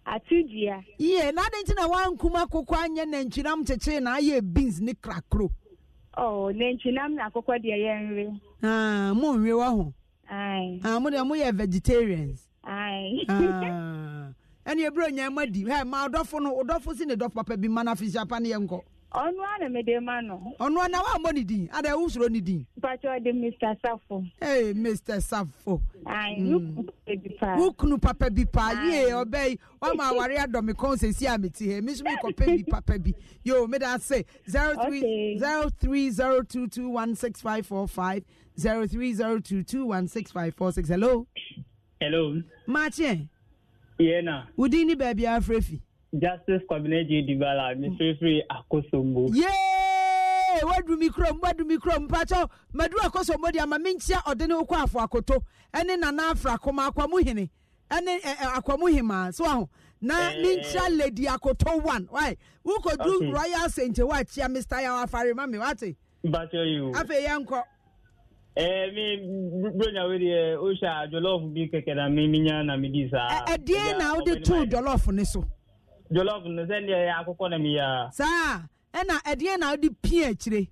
atidua yie na adi nti na wankum akoko anyɛ nantwinam kyekyere na ayɛ beans ne krakoro ɔɔ oh, nantwinam na akoko deɛ yɛn nri. aa ah, mo nri wɔ ho. Aye. Ah, mo de mo yɛ vegetarians. Aye. Ah. Ɛni eburo nyɛ mo di. Hɛ ma ɔdɔfo no ɔdɔfo si ne dɔ papa bi ma na fi si apa ne yɛ nkɔ. Ɔnu ana mi de ma no. Ɔnu ana wa mo ni di. Ada ewu soro ni di. Pàtó de Mr. Safo. hey, Mr. Safo. Ayi nukunu mm. papa bi pa. Nukunu papa bi pa. Ye ɔbɛ yi wama awari adɔmi kɔn sɛ si ami ti hɛ. Mi sumi kɔpɛ bi papa bi. Yo mi da se zero three zero three zero two two one six five four five. zero three zero two two one six five four six. Hello. Hello. Machi. Yeah na. Udini baby Afrefi. Justice Kwabena J Dibala Mifefi mm. Akosombo. Yay! Wadu mikrom, wadu mikrom, pacho. Madu akosombo di ama minchia odene okwa afo akoto. Ene nana afra koma akwamuhene. Ene eh, eh, akwamuhima. So aho. na ninja eh. lady akoto one why who could do royal saint wa chia mr yawa farima mi wate. bàtẹ afẹ yẹn Eh, mi bronya wei deɛ ohyɛ jollof bi keke na mi eh, eh, na mi saa. ɛdeɛ na wode too jollof ne so. jollof no sɛdeɛ yɛ na oh, mi yɛ. saa ɛna ɛdeɛ na wode pii akyire.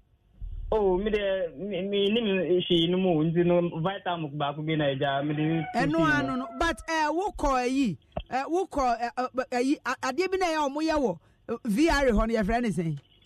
o mi deɛ mi ni mi hwi no mu nti e, no vitamin ah, baako bi na ɛgya mi de. ɛno ano no but ɛ wokɔ ɛyi ɛ wokɔ ɛ bi na vr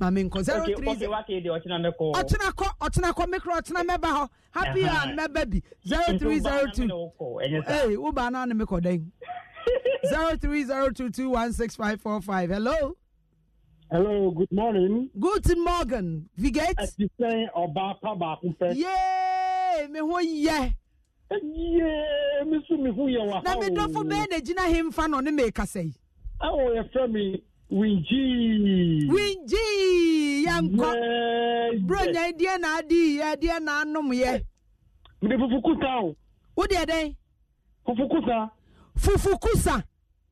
maame nkɔ zero three zero ɔtena kɔ ɔtena kɔ mikro ɔtena mɛba hɔ happy a mɛba bi zero three zero two ee wo baa mi kɔ dɛn zero three zero two two one six five four five hello. hello good morning. good morning vigate. ẹsì sẹ́yìn ọba apá baako fẹ́. yéé mi ho yẹ. yéé mi sún mi ho yẹ wà. na mi dọ́fọ̀ bẹ́ẹ̀ na gyina hin fa na ọ̀ ne mi kasa yi. ẹ winji. winji yankɔ bronya deɛ na adi yɛ deɛ na anum yɛ. mede fufukusa o. wo deɛ dɛ. fufukusa. fufukusa.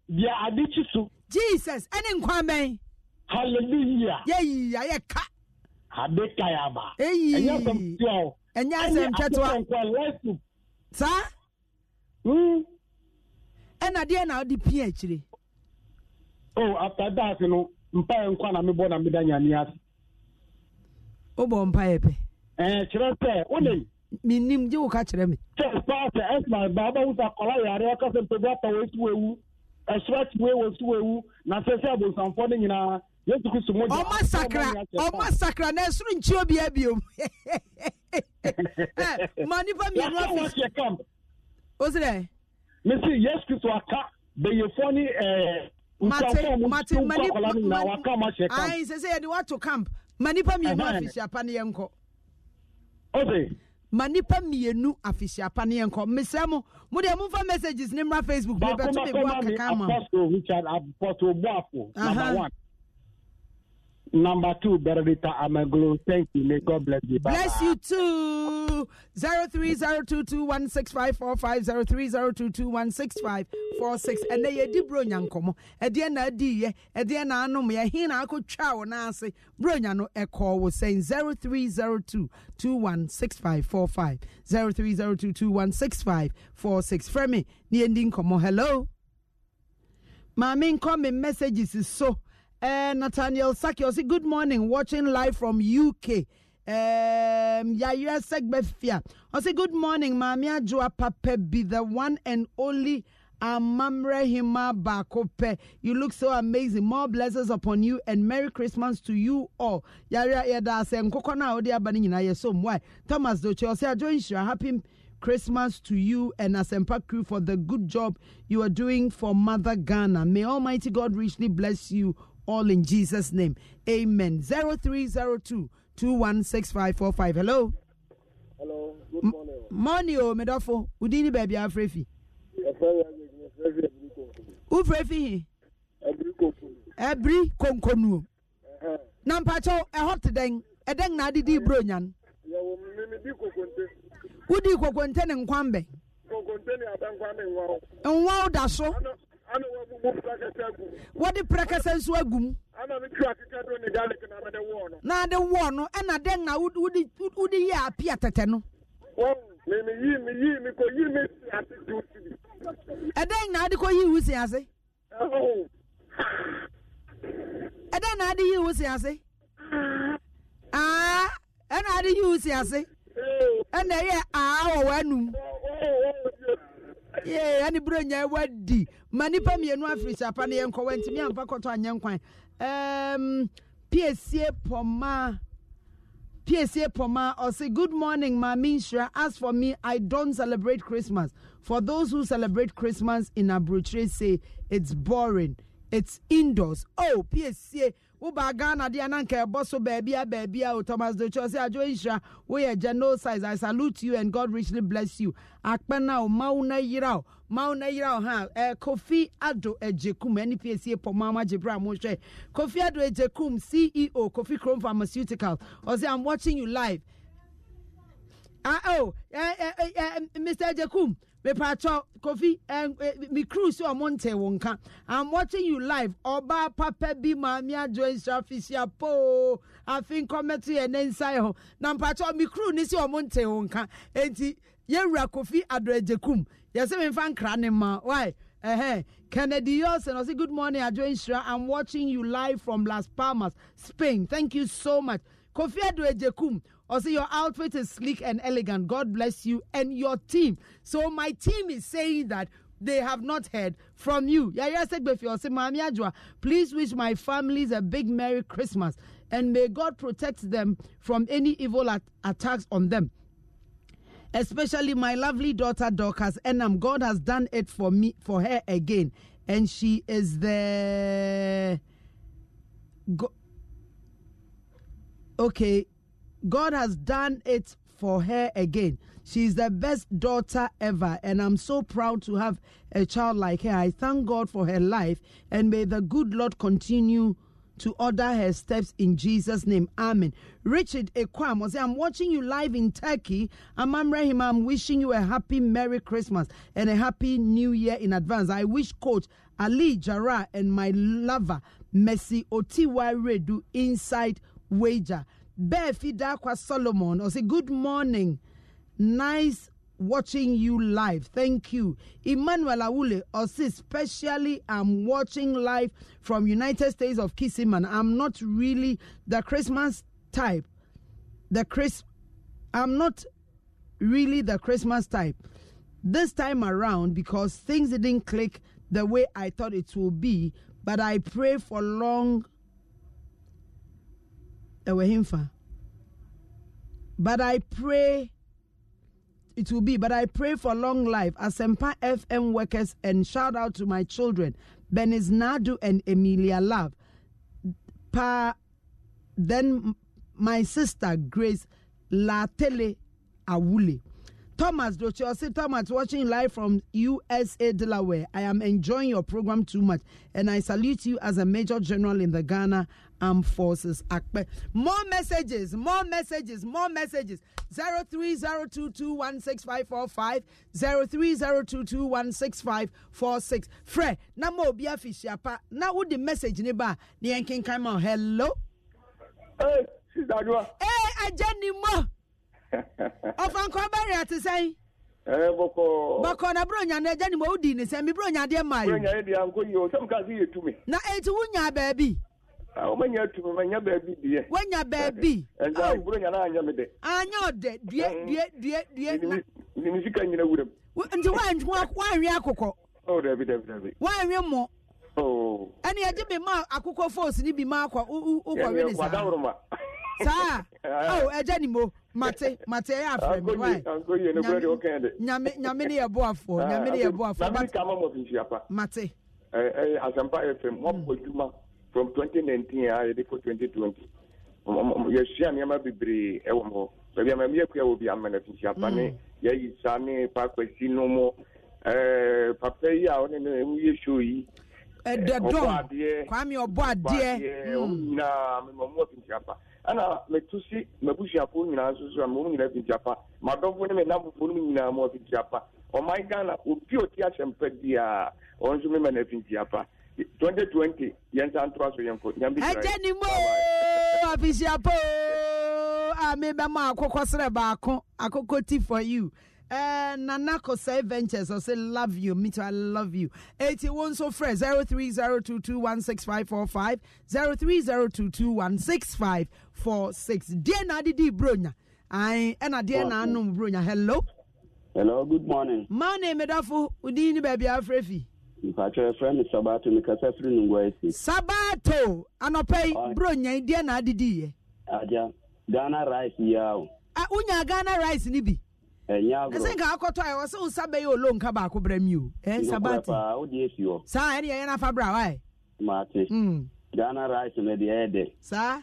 deɛ adi kyi so. jesus ɛne nkwan bɛn. hallelujah. yɛyi ayɛ ka. ade ka yɛ aba. eyi ɛnyɛ asɛm tiwa o. ɛnyɛ asɛm tiwa. ɛnyɛ asɛm tiwa. saa. ɛna deɛ na di pin akyire. oh after that no mpaeɛ nkwa na mebɔ na meda nyame ase wobɔ mpaeɛ pɛ eh, kyerɛ sɛ wonem menim gye wo ka kyerɛ me sɛ paa sɛ ɛsma baaba wo sɛ akɔla yare ɔka sɛ mpabi apa wɔsi wɔawu ɛsorati wei wɔsi wɔawu na sɛ sɛ abonsamfoɔ no nyinaa yesu kristo mu ɔma sakra ɔma sakra na ɛsoro nkyio bia biom eh, ma nipa mmienu afi wo sɛ dɛ mesi yesu kristo aka bɛyefoɔ mate mate mani ayi sɛ sɛ yɛde wato camp ma nipa mmienu afisiapa ne yɛn kɔ. ɔbɛ. ma nipa mmienu afisiapa ne yɛn kɔ mesrɛ mo mo deɛ momfa messages ne mmra facebook bi bɛto me boa kaka ma. baako richard apɔso buafo number one. Number two, Benedicta Amaglu. Thank you. May God bless you. Bye-bye. Bless you too. 0302216545 0302216546 and they di bro nyankomo ɛdeɛ na ye. yɛ ɛdeɛ na anom yɛ hin na akotwa wo na ase bro nya no ɛkɔɔ wo sɛn 0302216545 0302216546 frɛ me ne yɛndi hello maame nkɔ me messages so uh, Nathaniel say good morning. Watching live from UK. Um, Yaya Segbefia. I say, good morning, Mamia Joa Pape, be the one and only Amamre Hima Bakope. You look so amazing. More blessings upon you and Merry Christmas to you all. Yaya Yada Sen Kokona Odia Banina Yesom. Why? Thomas Doche, I say, I join you. Happy Christmas to you and Asempa crew for the good job you are doing for Mother Ghana. May Almighty God richly bless you all in Jesus' name. Amen. 0302 216545. Hello. Hello. Good morning. M- morning, oh, Medofo. Udini baby, Afrefi. am Frefi. Who Frefi? Ebri Konkonu. Nampacho, a hot deng, a deng na di bronyan. Wudi kokonte ne nkwambe. Kokonte ne abankwambe nwa. Nwa da Wow daso. ana wɔbu mu prakasa agu mu. wɔde prakasa nso agu mu. ana mi tura akeka do ne garlic na mɛde wɔɔ no. na de wɔɔ no ɛna de na wudi wudi yɛ api atɛtɛ no. wɔn mi mi yi mi yi mi ko yi mi si ase tu si. ɛdɛn na adi ko yi iwu si ase. ɛdɛn na adi yi iwu si ase. aa ɛna adi yi iwu si ase. ɛna ɛyɛ aa wɔ wɔ anum. yeah, any brain I would di. Mani pa mi enu afri sapa ni enko wenti mi ampa koto anye nkwan. Um, PSA Poma. PSA Poma or say good morning, Mami Shra. As for me, I don't celebrate Christmas. For those who celebrate Christmas in Abutre say it's boring. It's indoors. Oh, PSA woba ghana deɛ na nka ɛbɔ so baabia baabia o thomas docho sɛ adwo nhyira woyɛ genocide i salute you and god richly bless you akpɛna o oh, ma wo na yera o ma wo na yera o ha ɛ kofi ado agyekum npc pɔmɔ amagye bra mo hwɛ kofi ado Ejekum ceo kofi Chrome pharmaceutical ɔsɛ oh, i'm watching you live ah oh eh, eh, eh, eh mr Ejekum mepatɔ kofi me crew sɛ ɔmo ntɛ wo nka i'm watching you live ɔbaa papa bi maame adwo nsrafisia poo afei nkɔmɛto yɛ ne nsae hɔ na mpatɔ me crew ne sɛ ɔmo ntɛ wo nka enti yɛwura kofi adɔagyekum yɛsɛ memfa nkra ne ma why Uh-huh. Kennedy Yosen, I say good morning, Adjo Inshra. I'm watching you live from Las Palmas, Spain. Thank you so much. Kofi Adwejekum, also, your outfit is sleek and elegant. God bless you and your team. So, my team is saying that they have not heard from you. Please wish my families a big Merry Christmas and may God protect them from any evil at- attacks on them. Especially my lovely daughter Dorcas Enam. God has done it for me for her again. And she is the Go- okay God has done it for her again. She's the best daughter ever, and I'm so proud to have a child like her. I thank God for her life, and may the good Lord continue to order her steps in Jesus' name. Amen. Richard Ekwam I'm watching you live in Turkey. Amam Rahim, I'm wishing you a happy Merry Christmas and a happy New Year in advance. I wish Coach Ali Jara and my lover, Messi Otiwa Redu, inside wager. Befi Dakwa Solomon, or say, Good morning. Nice watching you live. Thank you. Emmanuel Awule, or say, Specially, I'm watching live from United States of Kissiman. I'm not really the Christmas type. The Chris, I'm not really the Christmas type this time around because things didn't click the way I thought it would be. But I pray for long ɛwɔ hemfa but i pray it will be but i pray for long life asempa fm workers and shout out to my children benis nadu and emilia love pa then my sister grace latele awule Thomas see Thomas, watching live from USA, Delaware. I am enjoying your program too much, and I salute you as a Major General in the Ghana Armed Forces. More messages, more messages, more messages. 03022165545, 03022165546. Fre, na mo bi afishiapa, na wo the message ni ba, ni enkin kama, hello? Hey, Sister Hey, Ajani mo. ɔfankɔ bɛrɛ te sɛn. ɛɛ bọkọ. Bọkọ na buro nya n'ɛjɛ ni mo di ni sɛn mi buro nya deɛ maa yi. buro nya deɛ anko yi o sɛmu ka se yɛ tumi. na etu wo nya baabi. awo ah, ma nya tumi ma nya baabi deɛ. wo nya baabi. ɛnza buro nya naa nya mi dɛ. anya ɔdɛ due due due due. nimisi ka nyina wuram. nti wa nwi akokɔ. o oh, dabi dabi dabi. wa nwi mɔ. ɛni ɛdi bi ma akokɔ fos ni bi ma akɔ ukɔ wele saa. saa ɛjɛ ni mo. mate mate ẹ afẹ mi wáyé nyame nyame ni yẹ bọ afọ ah, nyame ni yẹ bọ afọ mate kama eh, eh, asampa fm wọn bọ from 2019 nineteen a ah, yẹ de fo twenty twenty nneɛma bebree ɛwɔ hɔ baabi ama mi yɛ wɔ bi ama na fi nsiapa ne mm. yɛ yi ne paapa no mo ɛɛ eh, papa yi a ɔne ne mu yɛ show yi. ɛdɛdɔn kwame ɔbɔ adeɛ ɔbɔ adeɛ mm. ɔmu nyinaa mɛ mɔ mu wɔ fi ɛna metu si m'abusuafoɔ nyinaa nso a mɔmu nyinaa fiti apa m'adɔfoɔ ne m'anamfofoɔ no nyinaa mɔ fiti apa ɔman ghana obi a ɔte ahyɛmpa biara ɔno nso mema na fiti apa twenty twenty yɛn nsa ntoa so yɛn ko nyame bi ɛgye ni mo afisiapa a mi bɛ mɔ akokɔ srɛ baako akokɔ ti for you. Uh, Nanako Say Ventures, I say love you. Me too, I love you. 81 so fresh 0302216545 0302216546. Dear Nadidi Brunya, I and a dear Nanum Brunya. Hello. Hello, good morning. My name is Dafu Udini Baby Afrefi. a friend. is sabato mekasa firi no ngua sabato Anopei bro nya deɛ na adediiɛ eh? Aja. ghana rice yao. o eh, unya ghana rice no bi ɛsɛ nka akɔtɔ a ɛwɔ sɛ wo sa bɛyɛ olo nka baako brɛ mi o ɛ sabate saa ɛne yɛyɛ no afa bra wae mate hmm. ghana rice mede ɛyɛ dɛ saa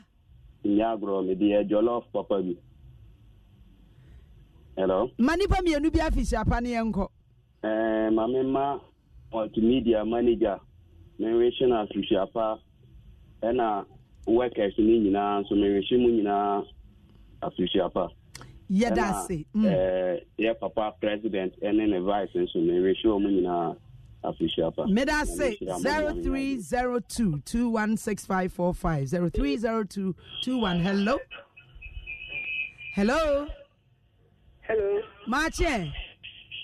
nyɛ agorɔ mede yɛ jollof papa bi hello ma nipa mmienu bi afi afihyiapa ne yɛnkɔ eh, ma mema multimedia manager menwehye no afihyiapa ɛna workers ne nyinaa nso menwehye mu nyinaa afihyiapa yɛda ase yɛ papa president ɛne ne vice nso no ɛwɛhyɛ ɔ mu nyinaa afihyia pa meda se 0302 216545 hello hello hello maakyɛ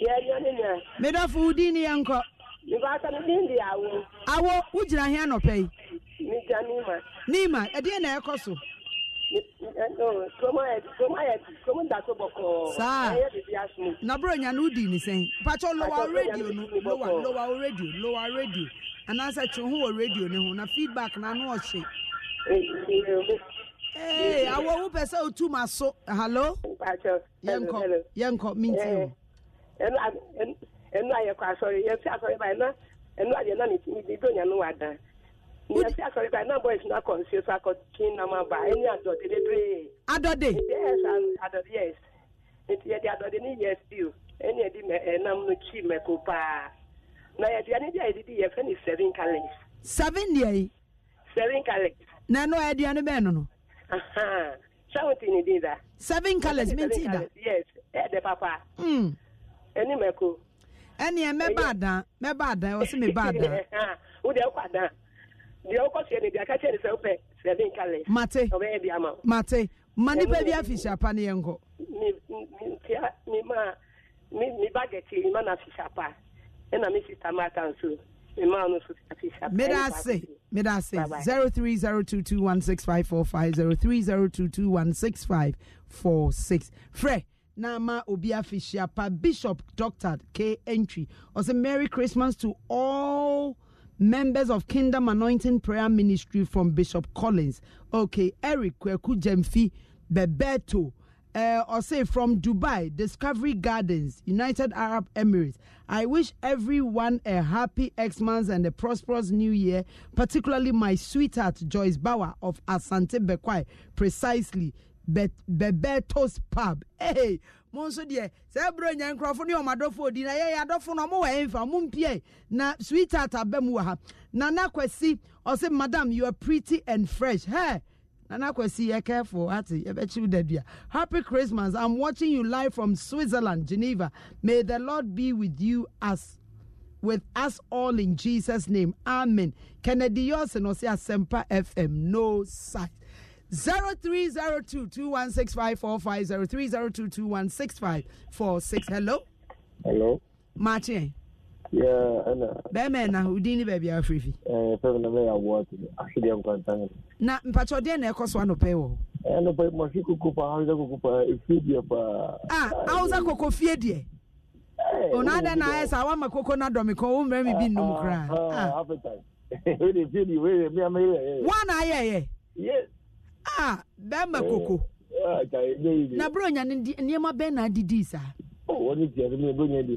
yɛnyɔnenya medɔfo wo din ne yɛnkɔ mebaasa me din de awo awo wogyina hea nɔpɛ yi megyina nima nima eh, ɛdeɛ na ɛkɔ eh, so saa na bro nya no di ne sɛn patɔ lowa radio no lowa lowa radio lowa radio anaasɛ twe ho wɔ radio ne ho na feedback na ano ɔhye. ee awɔ wo pɛ sɛ otu ma so hallo. yɛnkɔ yɛnkɔ minti nti o. ɛnu ayɛ kɔ asɔre yɛn fi asɔre ba yɛn na ɛnu ayɛ na ne do nya no wa nyasi akɔriba na boys na kɔnsi so akɔkin na ma ba ɛni adɔde bebree. adɔde. yes adɔde yes nti yɛde adɔde ni yɛ stew ɛni yɛde mɛ ɛnam no kyi mɛko paa na yɛduane bi a yɛdidi yɛfɛ ni seven calories. seven deɛ yi. seven calories. na ɛnu ɛduane bɛɛ nono. seventeen ni di da. seven calories hmm. mi ti da. yes ɛdɛ papa. ɛni mɛko. ɛni yɛ mɛba adan mɛba adan ɔsi mi ba adan. o de ɛkɔ adan. deɛ wokɔsoɛ no deɛ ka kyɛ ne sɛ wopɛ sɛde nka lɛ mate ɔbɛyɛ de ama mate ma nipa bi afihyapa ne yɛnkɔ ntia mema me bagɛte mema no afihyapa ɛna me sista maata nso mema no 0302216545 bishop dr k entry ɔsɛ merry christmas to all members of Kingdom Anointing Prayer Ministry from Bishop Collins. Okay, Eric Kweku Jemfi Bebeto. Uh, or say from Dubai, Discovery Gardens, United Arab Emirates. I wish everyone a happy X-Month and a prosperous new year, particularly my sweetheart Joyce Bauer of Asante Bekwai, precisely Be- Bebetos Pub. Hey, mo nso deɛ sɛ ɛbrɛ nya nkurɔfo ne ɔmo odi na yɛyɛ adɔfo no ɔmo wɔ ɛnfa ɔmo mpie na sweetheart abɛ mu wɔ ha nana kwasi ɔsɛ madam you are pretty and fresh hey. Nana Kwesi, you're careful. Ati, you Happy Christmas. I'm watching you live from Switzerland, Geneva. May the Lord be with you as with us all in Jesus' name. Amen. Kennedy Yosin, Sempa FM, no sight. 0302 Hello. Hello. Martin. Yeah, ana. Bẹ́ẹ̀mẹ̀ na udini baby bẹ̀ẹ̀bi Eh, Ẹ fẹ́mi na bẹ́ẹ̀ awọ ati akidi nkwantan. Na mpatsi ọdẹ na ẹkọ so anọpẹ eh, wọ. Anọpẹ mọsi koko pa hausa koko pa efie eh, diẹ pa. Ah, hausa koko fie Eh. Onada oh, na ayẹ sá wàmà koko na dọ̀mí kan ó mẹ́rin mi bi nnum kura. Wọ́n na ayẹ ah, ah, ah, eh. yẹ. Yes. a bɛrima eh, koko eh, na bro nya na adidi saa maame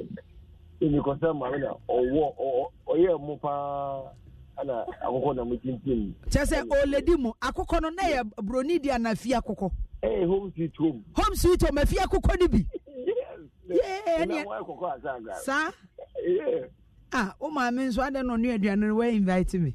na ɔwɔ paa na motintim kyɛ sɛ ɔlɛdi mu akɔkɔ no na yɛ broni di anafi eh, home sweet home home sweet home fi bi a maame nso aduane me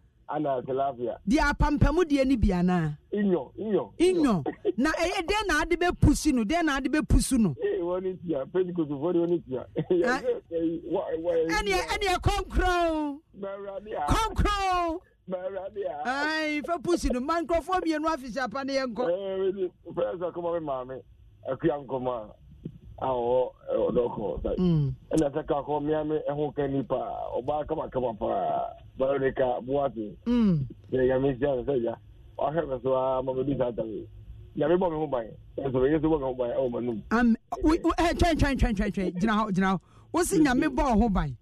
ana tilapia. di apampamu deɛ ni biana. ana. inyo inyo. inyo na e den na adi bɛ pusi no den na adi bɛ pusi no. ee eh, wɔn ni tia pentecost fɔ de wɔn ni tia. ɛni ɛni ɛ kɔnkɔn. mɛwurade a. kɔnkɔn. mɛwurade a. ayi fɛ pusi no ma mienu afisi apa ne yɛ nkɔ. ɛɛ fɛn sɛ kɔmɔ mi maa mi akuya nkɔmɔ awɔ ɔdɔkɔ ɛna sɛ ka kɔ miami ɛho kɛ nipa ɔba kamakama pa barika buwate yɛ nyame sia sɛ sɛ ya ɔhwɛ me so a ma mɛdi saa tame nyame bɔ me ho ban ɛsoro yesu bɔ me ho ban ɛwɔ m'anom twɛntwɛntwɛntwɛntwɛn gyina hɔ gyina hɔ wosi nyame bɔ ho ban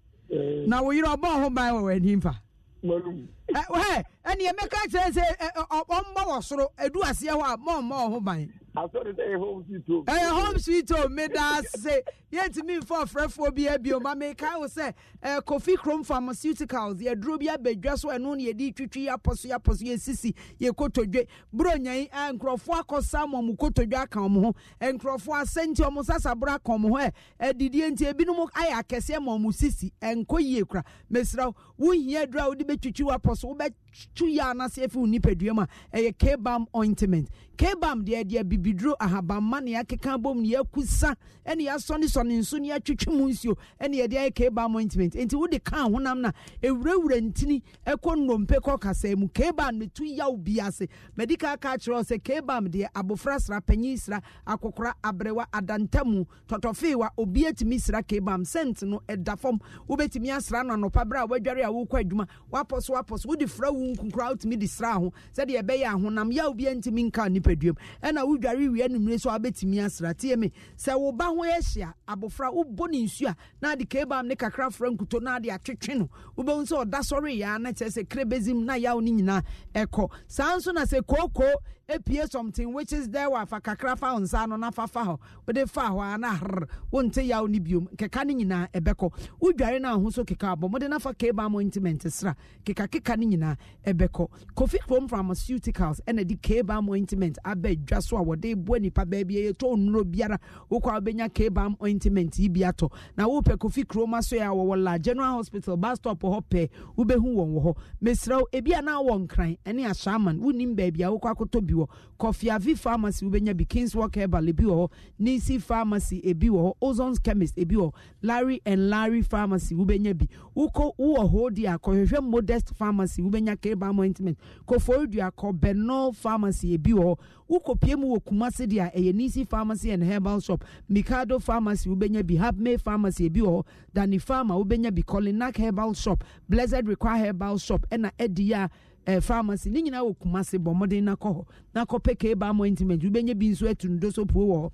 na wo yerɛ ɔbɔ ho ban wɔ w'ani mfa ɛneɛ mɛka kyerɛ sɛ ɔmmɔ wɔ soro ɛdu aseɛ hɔ a mɔmmɔ ho ban asɔre dɛ yɛ home sweet home. ɛyɛ home sweet home mi da ase yɛntumi nfa ɔfrɛfoɔ bi abio e ma mi ka wo sɛ ɛɛ eh, kofi krom pharmaceuticals yɛduro bi abɛdwa so ɛno na yɛde twitwi apɔso apɔso yɛsisi yɛ kotodwe buronya yi ɛɛ eh, nkurɔfoɔ akɔ sam ɔmo kotodwe aka ɔmo ho eh, nkurɔfoɔ asɛnti ɔmo sasabra aka ɔmo ho ɛ ɛdidie nti ebinom ayɛ akɛseɛ ma ɔmo sisi ɛnkɔ yie kura mesra wo hia duro a wode bɛtwitwi wapɔso wobɛ tu yɛ anase efi nipadua mu a ɛyɛ kebam ointment kebam deɛ deɛ bibiduro ahabamma ne yɛakeka bom ne yɛakusa ɛne yɛasɔnesɔne nso ne yɛatwitwi mu nsuo ɛne e yɛde ayɛ kebam ointment enti wode kaa honam no a ɛwurawura ntini ɛkɔ nnompe kɔ kasaa mu kebam ne tu yaw bi ase madi kaa kaa kebam deɛ abofra sra panyin sra akokora aberewa adantamu tɔtɔfeewa obi atumi sra kebam sent no ɛda fam wobɛtumi asra no anɔpa berɛ a woadware a wokɔ adwuma woapɔ so wode fra wo nkonkora wotumi de sra ho sɛdeɛ ɛbɛyɛ ahonam yaw bia ntumi nka nipaduam ɛna wodware wie anumire so wabɛtumi asra tie me sɛ wo ba ho ahyia abɔfra wobɔ ne nsu a na ade kabam ne kakra fra nkuto na ade atwetwe no wobɛhu sɛ ɔda sɔre yɛa na kyerɛ sɛ krebɛzim na yaw no nyinaa ɛkɔ saa nso na sɛ kookoo epie something which is there wafa kakra fa nsa no na fa hɔ wode fa hɔ a na hr wonte yaw ne biom keka no nyinaa ɛbɛkɔ e wodware no ahosuo keka abɔ mode na fa mo mointment sra kekakeka no nyinaa ɛbɛkɔ e kofi from pharmaceuticals ɛna e de kaba mointment aba adwa so a wɔde boa nipa baabi ɛyɛtɔ nnuro biara wokɔ a wobɛnya kaba ointment yi bi atɔ na wopɛ kofi kuroma so a wɔwɔ la general hospital bus stop hɔ pɛ wobɛhu wɔn wɔ hɔ mesrɛ ebi a na wɔ nkran ɛne ashaman wonim baabi a wokɔ akɔtɔ bi wɔ kofi avi pharmacy wobɛnya bi Kings Walk herbal ebi wɔ hɔ nisi pharmacy ebi wɔ hɔ ozons chemist ebi wɔ larry and larry pharmacy wobɛnya bi wokɔ wowɔ hɔ di akɔhwehwɛ modest pharmacy wobɛnya kebam ointment kofori dua kɔ benol pharmacy ebi wɔ hɔ wokɔpie mu wɔ kumase deɛ a ɛyɛ nisi pharmacy and herbal shop mikado pharmacy wobɛnya bi habmay pharmacy ebi wɔ hɔ dani pharma wobɛnya bi kolinak herbal shop blessed require herbal shop ɛna ɛdi yɛ eh, pharmacy ne nyinaa wɔ kumase bɔ mmɔden nakɔ hɔ nakɔpɛ kee baa mo ointment wobɛnya bi nso atu no puo wɔ hɔ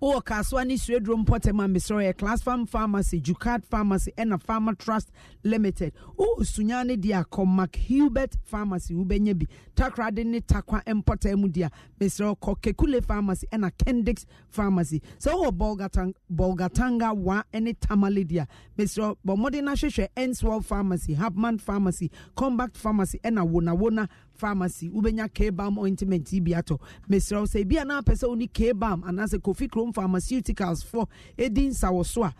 wowɔ kasoa ne suaduro mpɔtam a mesrɛ yɛ class farm pharmacy jucard pharmacy ɛna farmer trust limited wowɔ sunya no deɛ a kɔmak hubert pharmacy wobɛnya bi takrade ne takwa mpɔtam mu deɛ a mesrɛ kɔ kekule pharmacy ɛna kendix pharmacy sɛ wowɔ bolgatanga wa ne tamale deɛ a mesrɛ bɔ mmɔden no ahwehwɛ enswell pharmacy habman pharmacy combact pharmacy ɛna wonawona pharmacy Ubenya kebam ointment yi bi atɔ mesrɛ wo sɛ ebia na apɛ sɛ wo ne anaasɛ kofi krom pharmaceuticals for ɛdi nsawo so a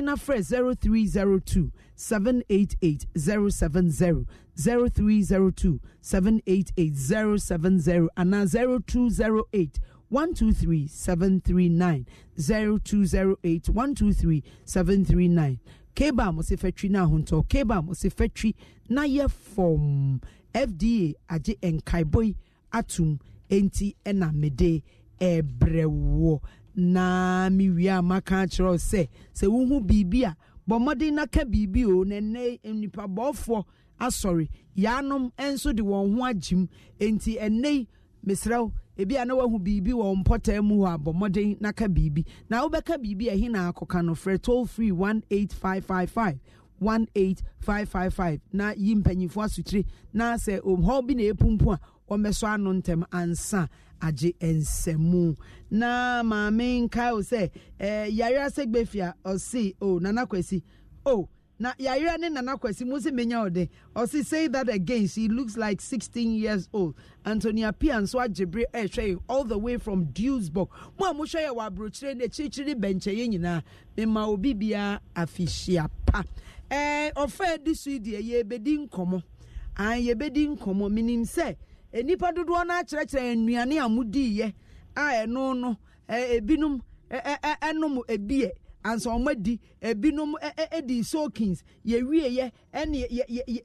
na frɛ 0302 788 070 0302 788 anaa 0208 123739 0208 123739 kebam ɔsɛ fatwi no ahontɔ ɔsɛ fatwi na yɛ fɔm fda agye nkaebɔ yi atum nti na mede ɛbrɛ wɔ na mewie a maka akyerɛ sɛ sɛ wohu biribi a bɔ mmɔden na ka biribi o na ɛnɛ nnipa bɔɔfoɔ asɔre yaanom nso de wɔn ho agyim nti ɛnɛ yi mesrɛ ebi a na wahu biribi wɔ mpɔtaa mu hɔ a bɔ mmɔden na ka biribi na wobɛka biribi a ɛhe na akɔka no frɛ toll free five 18555 na yi mpanyinfoɔ asotire na sɛ hɔ bi na epumpu a wɔmmɛsɔ ano ntɛm ansa agye nsɛmu na maame nkae o sɛ ɛɛ eh, yare asegbefia ɔsi o nana kwesi o na yare ne nana kwesi mo si menya ɔde ɔsi say that again she looks like sixteen years old antonia pia nso agyebere ɛɛhwɛ yi all the way from duisburg mo a mo hwɛ yɛ wɔ aburokyire ne akyirikyiri bɛnkyɛn yɛ nyinaa mema obi bia afihyia pa. ee eh, ọfa edi so deɛ eh, yɛbɛdi nkɔmɔ an yɛbɛdi nkɔmɔ minim sɛ eh, nipa dodoɔ no akyerɛkyerɛ nnuane a modiiɛ a ɛno no ebinom ɛnom ebie ansa wɔn adi ebinom edi soakins yɛwieɛ ɛne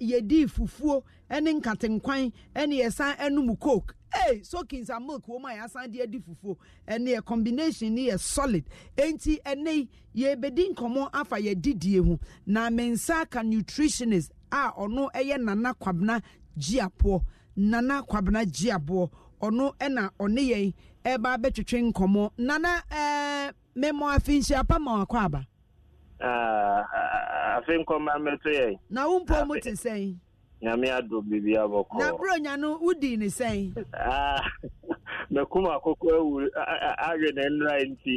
yɛdi fufuo ɛne nkatenkwan ɛne yɛsan ɛnom coke hey sokins and milk woman oh a yɛasan de adi fufuo and yɛ combination ne yɛ solid enti ɛne yɛbɛdi nkɔmɔ afa yɛ didie ho na ah, me nsa nutritionist a ɔno Eye nana kwabena gyiapoɔ nana kwabena gyiapoɔ ɔno ɛna ɔne yɛn ɛba abɛtwitwe nkomo. nana ɛɛ mmɛmɔ afinhyia pama wakɔ aba. afei nkɔmɔ amɛto yɛn. na wo Na umpo te sɛn. nyame ado biribi abɔkɔ na bro nyano wodi ne sɛn makum akɔkɔ awe ne nnra nti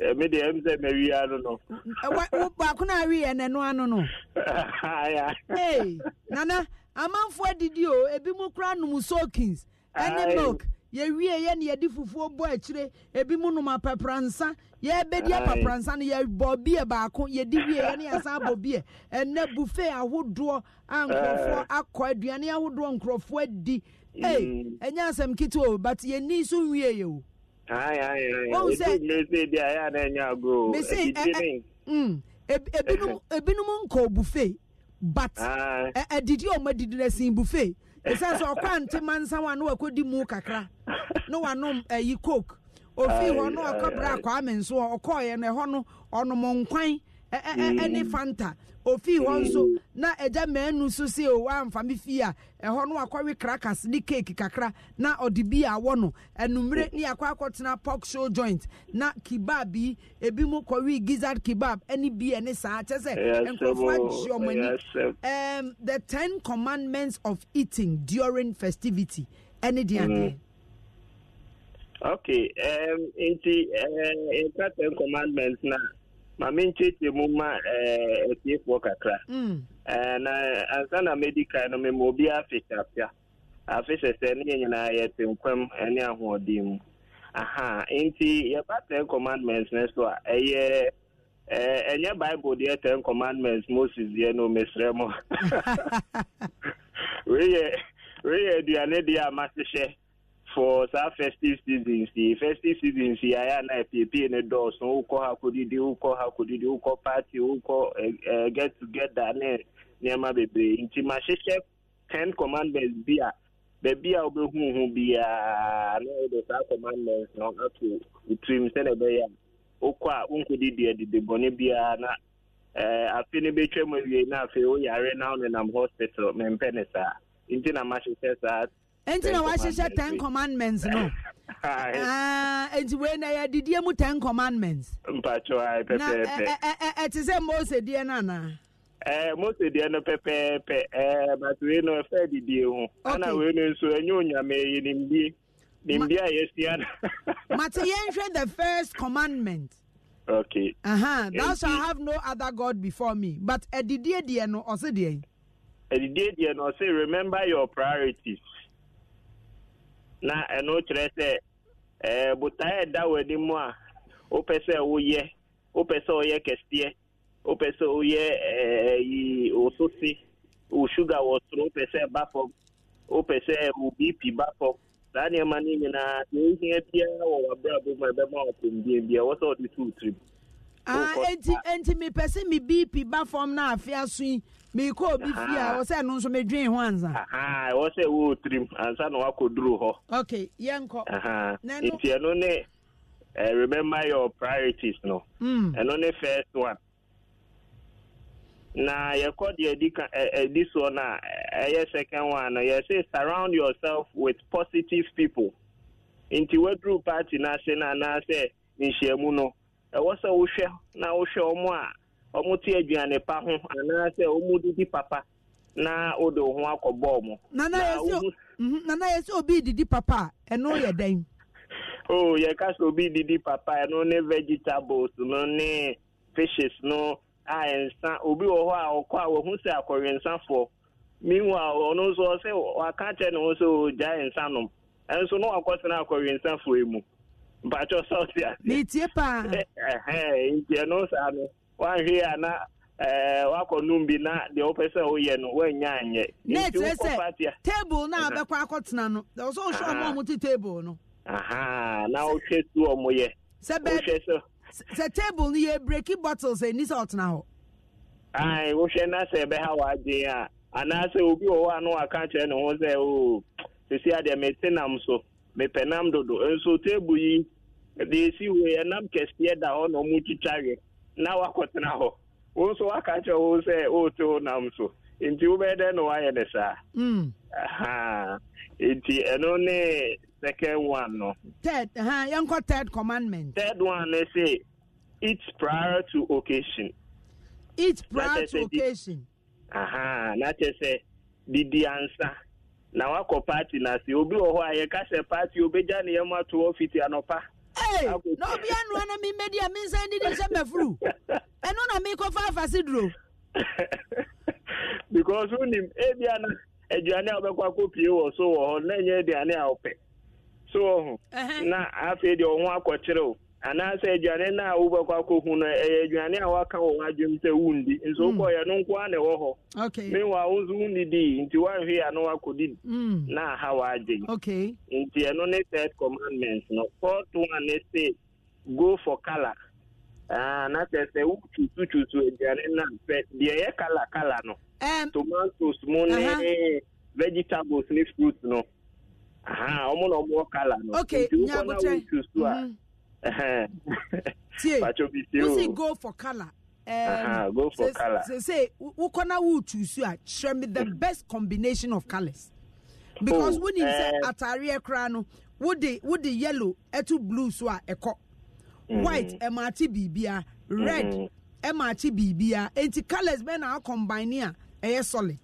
eh, mede ɛm sɛ mawia no no eh, no aweɛ n'ano ano no nana amanfoɔ adidi o ebi mu kora nom soakins ɛne milk yɛwie yɛ ne yɛde fufuo bɔ akyire ebi mu nom apapransa yɛbɛdi apapransa no yɛbɔ bie baako yɛdi wie yɛ ne yɛsan bɔ bie ɛnɛ buffet ahodoɔ a nkurɔfoɔ akɔ aduane ahodoɔ nkurɔfoɔ adi mm. ee ɛnyɛ asɛm ketewa o but yɛni nso wie yɛ o. ayi ayi ayi ebi mmesi bi a yɛ anan nyɛ agorɔ ebi ti mi. Mm. ebinom ebinom nkɔ buffet but ɛdidi a wɔn adidi na sin buffet ɛsɛ sɛ ɔkɔ antema nsa wa na wakɔdi mu kakra na wanom ayi eh, coke ofii hɔ na ɔkɔ bra akɔ nso ɔkɔɔyɛ no ɛhɔ no ɔnom eh, eh, mm. ɛne fanta ofii hɔ nso na ɛgya mɛnu so se o oh, amfa me fie a ɛhɔ no akɔwe crackers ne cake kakra na ɔde bi awɔ no ɛnumere ne akɔ akɔtena pork show joint na kebab yi ebi mu kɔwe gizzard kebab ɛne bi ɛne saa kyɛ sɛ nkurɔfoɔ agye ɔmo ani ɛɛm the ten commandments of eating during festivity ɛne deɛ mm-hmm. adeɛ. okay um, nti uh, nka ten commandments na ma menkyekyɛ mu ma eh, atiefoɔ kakra mm. eh, na ansa na mɛdi kan no mema obiaa afehyɛafea afehyɛ sɛ ne yɛ nyinaa nkwam eh, ne ahoɔden mu aha nti yɛba ten commandments ne so a ɛyɛ ɛnyɛ bible deɛ ten commandments moses deɛ no mesrɛ mu wei yɛ aduane deɛ a mahyehyɛ for saa festive season si festive season si aya na apiepie ne dɔɔso wokɔ ha kɔdidi wokɔ ha kɔdidi wokɔ party wokɔ uh, eh, eh, get together ne nneɛma bebree nti mahyehyɛ ten commandments bi a baabi a wobɛhu ho biara na wode saa commandments no ato wotirim sɛne ɛbɛyɛ a wokɔ a wonkɔdidi adidi bɔne biara na eh, afe no bɛtwa mu awie na afei woyare na wonenam hospital mempɛ ne saa nti na mahyehyɛ saa nti na wahyehyɛ ten commandments no ah, nti wei na yɛadidiɛ mu ten commandments mpatwa pɛpɛɛpɛ ɛte sɛ mose deɛ no anaa mose deɛ no pɛpɛɛpɛ but wei no ɛfɛ adidie ho ana wei no nso ɛnyɛ onyame yɛ nimdie nimdie a yɛsia no mate yɛnhwɛ the first commandment okay uh-huh. thou shalt have no other god before me but adidie deɛ no ɔse deɛ adidie deɛ no ɔse remember your priorities na ɛno kyerɛ sɛ ɛɛ eh, botae ɛda w'ani mu a wopɛ sɛ woyɛ wopɛ sɛ ɔyɛ kɛseɛ wopɛ sɛ woyɛ ɛɛ eh, yi woso wo sugar wɔ soro wopɛ sɛ ɛba fam wopɛ sɛ wo bp ba fam saa nneɛma no nyinaa deɛ ohia biara wɔ w'abrabɔ mu a ɛbɛma wo apɔmbien bia ɛwɔ sɛ wɔde to wo tirim. Ah, enti enti mepɛ sɛ mi bp ba fam na afea so yi mekɔ obi fie a wɔ ah. sɛ no nso medwen ho ansa wɔ ah, ah, sɛ wo tirim ansa na wakɔduru hɔ ok yɛnkɔ nti ɛno ne uh, remember your priorities no hmm. ɛno mm. ne first one na yɛkɔ deɛ ɛdi ka ɛdi soɔ no a ɛyɛ second one no yɛsɛ surround yourself with positive people nti waduru party no ase no anaasɛ nhyiamu no ɛwɔ sɛ wohwɛ na wohwɛ ɔmo a ọmụte aduane pa ho anaasɛ ɔmudidi papa na ụdị wo akọ akɔ bɔɔl yɛ mhm, papa a oh, sɛ obi didi papa ɛno ne vegetables no ne fishes no a nsa obi wɔ hɔ a ɔkɔ a wɔhu sɛ ɔno nso waka ne ho sɛ nsa nom na yi mu paa saa no Eh, wahwe e a na wakɔnom bi na deɛ wopɛ sɛ woyɛ no woanya anyɛ na ɛkyerɛ sɛ table na a bɛkɔ akɔtena no ɛwɔ sɛ wohwɛ ɔmo a table no aha na wohwɛ si ɔmo yɛ sɛ bɛ sɛ table no yɛ breki bottles ɛni sɛ ɔtena hɔ ae wohwɛ na sɛ ɛbɛha w'adwen a anaasɛ obi wɔ hɔ a no waka kyerɛ ne ho sɛ o sesi adeɛ mete nam so mepɛ nam dodo nso e table yi deɛ ɛsi wei ɛnam e kɛseɛ da hɔ na ɔmo twitwa na wakɔtena hɔ wo nso waka kyerɛ wo sɛ woto nam so nti wobɛyɛ na woayɛ ne saa mm. nti ɛno ne second one no third uh, yɛnkɔ third commandment third one ne se eat prior to occasion eat prior to occasion aha na kyerɛ sɛ didi ansa na wakɔ party na se obi wɔ hɔ a yɛka sɛ party obɛgya ne yɛm ato hɔ fiti anɔpa ee na obi anua na mi mmedi a mi nsa ndidi nhyɛ mɛfuru ɛnu na mi kɔ fa afasi duro. because ebi eh, ana aduane a ɔbɛkɔ akɔ wɔ so wɔ hɔ na enye aduane a ɔpɛ so wɔ na afei deɛ anaasɛ aduane no a wobɛkɔ akɔhu no e, ɛyɛ e, aduane a waka wɔ w'adwom sɛ wondi nso wokɔyɛ no nko a na ɛwɔ hɔ mewa wo nso wonnidii nti woanhwe a no wakɔdi na aha waagye nti ɛno ne third commandment no fourth one ne se go for color. na sɛ sɛ wokyusukyusu aduane no ampɛ deɛ ɛyɛ color color no tomatoes mu ne vegetables ne fruit no aha ɔmo na ɔmowɔ color no nti wokɔ na wokyusu a mm-hmm tie wosi go for colour. Um, uh-huh, go for say, color. Say, say wokɔ na wotusu a kyerɛ me the best combination of colors because oh, wonim sɛ uh, eh. ataareɛ koraa no wode wode yellow ɛto blue so a ɛkɔ mm-hmm. white ɛma ate biribia red ɛma mm. biribia enti colors bɛn na akɔmbine a ɛyɛ solid.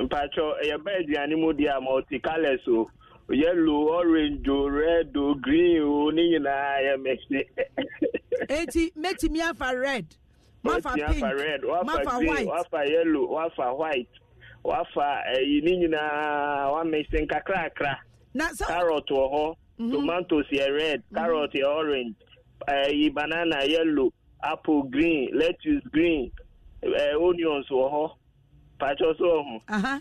mpatwɔ ɛyɛ bɛɛ aduane mu deɛ a multi ɔte o. yellow orange red green o ni nyinaa yɛ mɛsi. eti ya afa red ma fa pink red, fa white wafa yellow wafa white wafa white eh, ne nyinaa wamɛsi nkakrakra carrot wɔ hɔ mhm. tomatoes yɛ red mhm. carrot yɛ orange ɛyi eh, banana yellow apple green lettuce green eh, onions wɔ hɔ patro so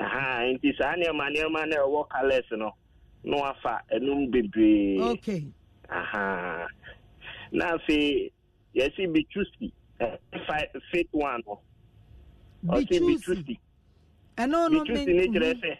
ha nti saa nneɛma nneɛma na ɛwɔ colours no na wafa ɛnum bebree okay aha na afei yɛsi bitusi fit one no ɔsi bitusi ɛno no bitusi ne kyerɛ sɛ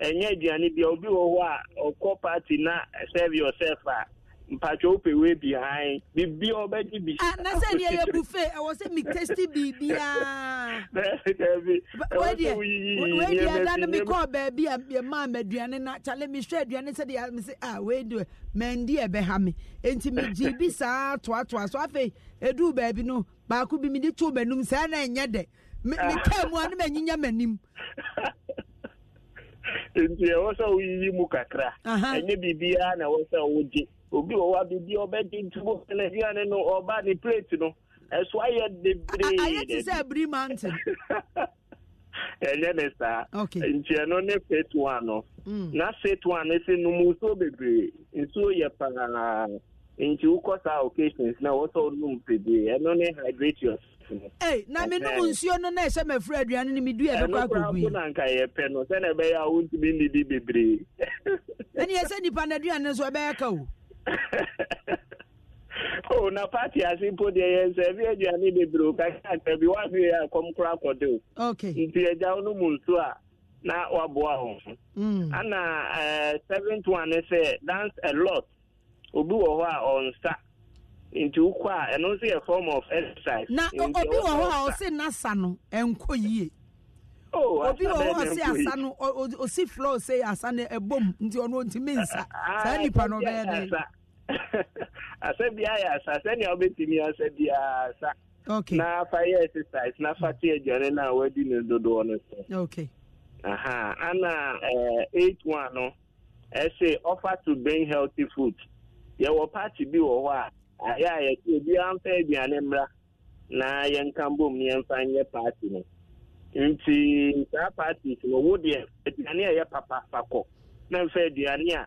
ɛnyɛ aduane bia obi wɔ hɔ a ɔkɔ party na serve yourself a mpatwa wopɛ wei behind biribi a wɔbɛgye bi ah, na sɛ deɛ yɛ bufe ɛwɔ sɛ metesti biribiaawedeɛ da no mekɔɔ baabi a yɛmaa maduane na kyale mehwɛ aduane sɛdeɛ mese a ah, weideɛ mandi ɛbɛha me enti megye bi saa toatoa so afei Edu, baabi no baako bi mede too m'anim saa na ɛnyɛ dɛ mekaa ah. mu a no manyinya m'anim nti ɛwɔ sɛ woyiyi mu kakra ɛnyɛ biribiaa na ɛwɔ sɛ wogye obi wɔ hɔ a biribi ɔbɛ di ntubu ɛnɛdiya ne no ɔba ne plate no ɛso ayɛ bebree. ayɛ ti sɛ ebiri mountain. ɛnyɛ ne saa. okay ntiɛ no ne plate one no. Hmm. na plate one ne se num nsuo bebree nsuo yɛ paa nti wokɔ saa occasions na wɔsɔ onum bebree ɛno ne hydrate yourself. Hey, na me num nsuo no na ɛhyɛ mɛfra aduane eh, no medu ɛbɛkɔ akɔgui ɛno na nka yɛpɛ no sɛne ɛbɛyɛ a wontumi nnidi bebree ɛne yɛ sɛ nnipa aduane no ɛbɛyɛ ka o oh, na pati ase mpo deɛ yɛ nsɛ ebi aduane bebree kaka akara bi wafe yɛ akɔm kora akɔde o nti agya no mu nso a ah, na wa a ho hmm. ana uh, eh, seventh one ne dance a lot obi wɔ hɔ a ɔnsa nti wokɔ a ɛno nso yɛ form of exercise na obi wɔ hɔ a ɔse nasa no ɛnkɔ yie oh, obi wɔ hɔ ɔse asa no ɔsi floor ɔse asa no e ɛbom nti ɔno ntumi nsa ah, saa ah, nipa no ɔbɛyɛ dɛ asɛ biara yɛ asa sɛnea wobɛtumi asɛ biara asa okay. na fa yɛ exercise na fa te aduane no a wadi ne dodoɔ no okay. aha ana eh, eight one no ɛsɛ offer to bring healthy food yɛwɔ party bi wɔ hɔ a ayɛ a yɛte obiara mfa aduane mmra na yɛnka mbom yɛmfa nyɛ party no nti saa parties no wo deɛ aduane a ɛyɛ papa fa kɔ na mfa aduane a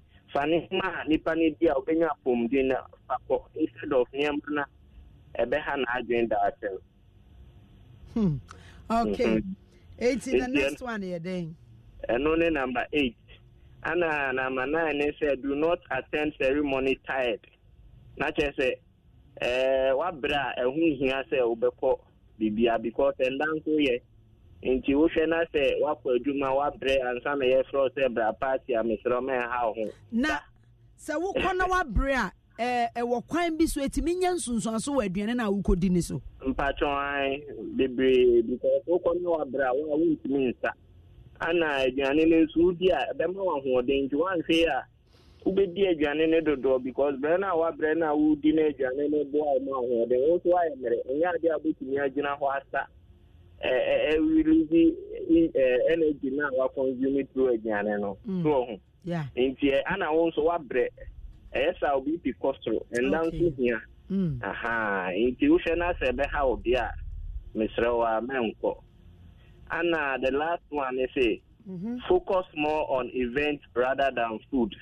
fanihima a nnipa no bi a wobɛnya apɔmuden na papo instead of nneɛma na ɛbɛha n'adwene daakye no hmm. okay mhm. eighty the next one here then ɛno ne number eight ana number nine ne sɛ do not attend ceremony tired na kyerɛ sɛ ɛɛ wabere a ɛho hia sɛ wobɛkɔ bibia because ɛnda nso yɛ. nti wohwɛ na sɛ woakɔ adwuma woabrɛ ansa na yɛfrɛ sɛ bra party a meserɛ mɛnha wo ho na sɛ wokɔ na woabrɛ a ɛwɔ kwan bi so ɛtumi nyɛ nsonsoaso wɔ aduane no a wokɔdi so bebree because wokɔ na woabrɛ a wo a wontumi nsa ana aduane no nso wodi a ɛbɛma wahoɔden nti woanhwee a wobɛdi aduane no dodoɔ because a a wodi no aduane no boa ahoɔden wo woayɛ mmerɛ ɛnyɛ a wobɛtumi agyina hɔ ɛwilizi energy na wa consume through aduane no through ho nti ana wo nso wabrɛ ɛyɛ sɛ obi pi kɔsoro ɛnda nso hịa nti wohwɛ na-asa ebe ha obi a mesịrị mesrɛ wo a na the last one ne focus more on event rather than food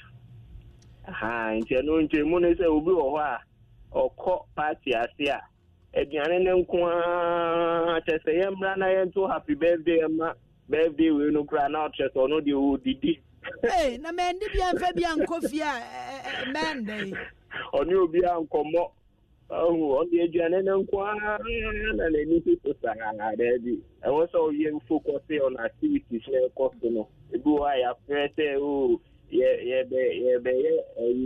nti ɛno nkyɛmu ne sɛ obi wɔ hɔ a ɔkɔ party ase a aduane ne nko a kyɛ sɛ yɛmmra na yɛnto happy birthday ma birthday wei no na ɔkyerɛ sɛ ɔno deɛ na mɛndi bia mfa bia nkɔ a ɔne ɔde aduane ne nko na n'ani so so saa daabi ɛwɔ sɛ ɔyɛ fokɔse ɔn activities na ɛkɔ so no ebi wɔ a yɛafrɛ sɛ o oh, yɛbɛyɛ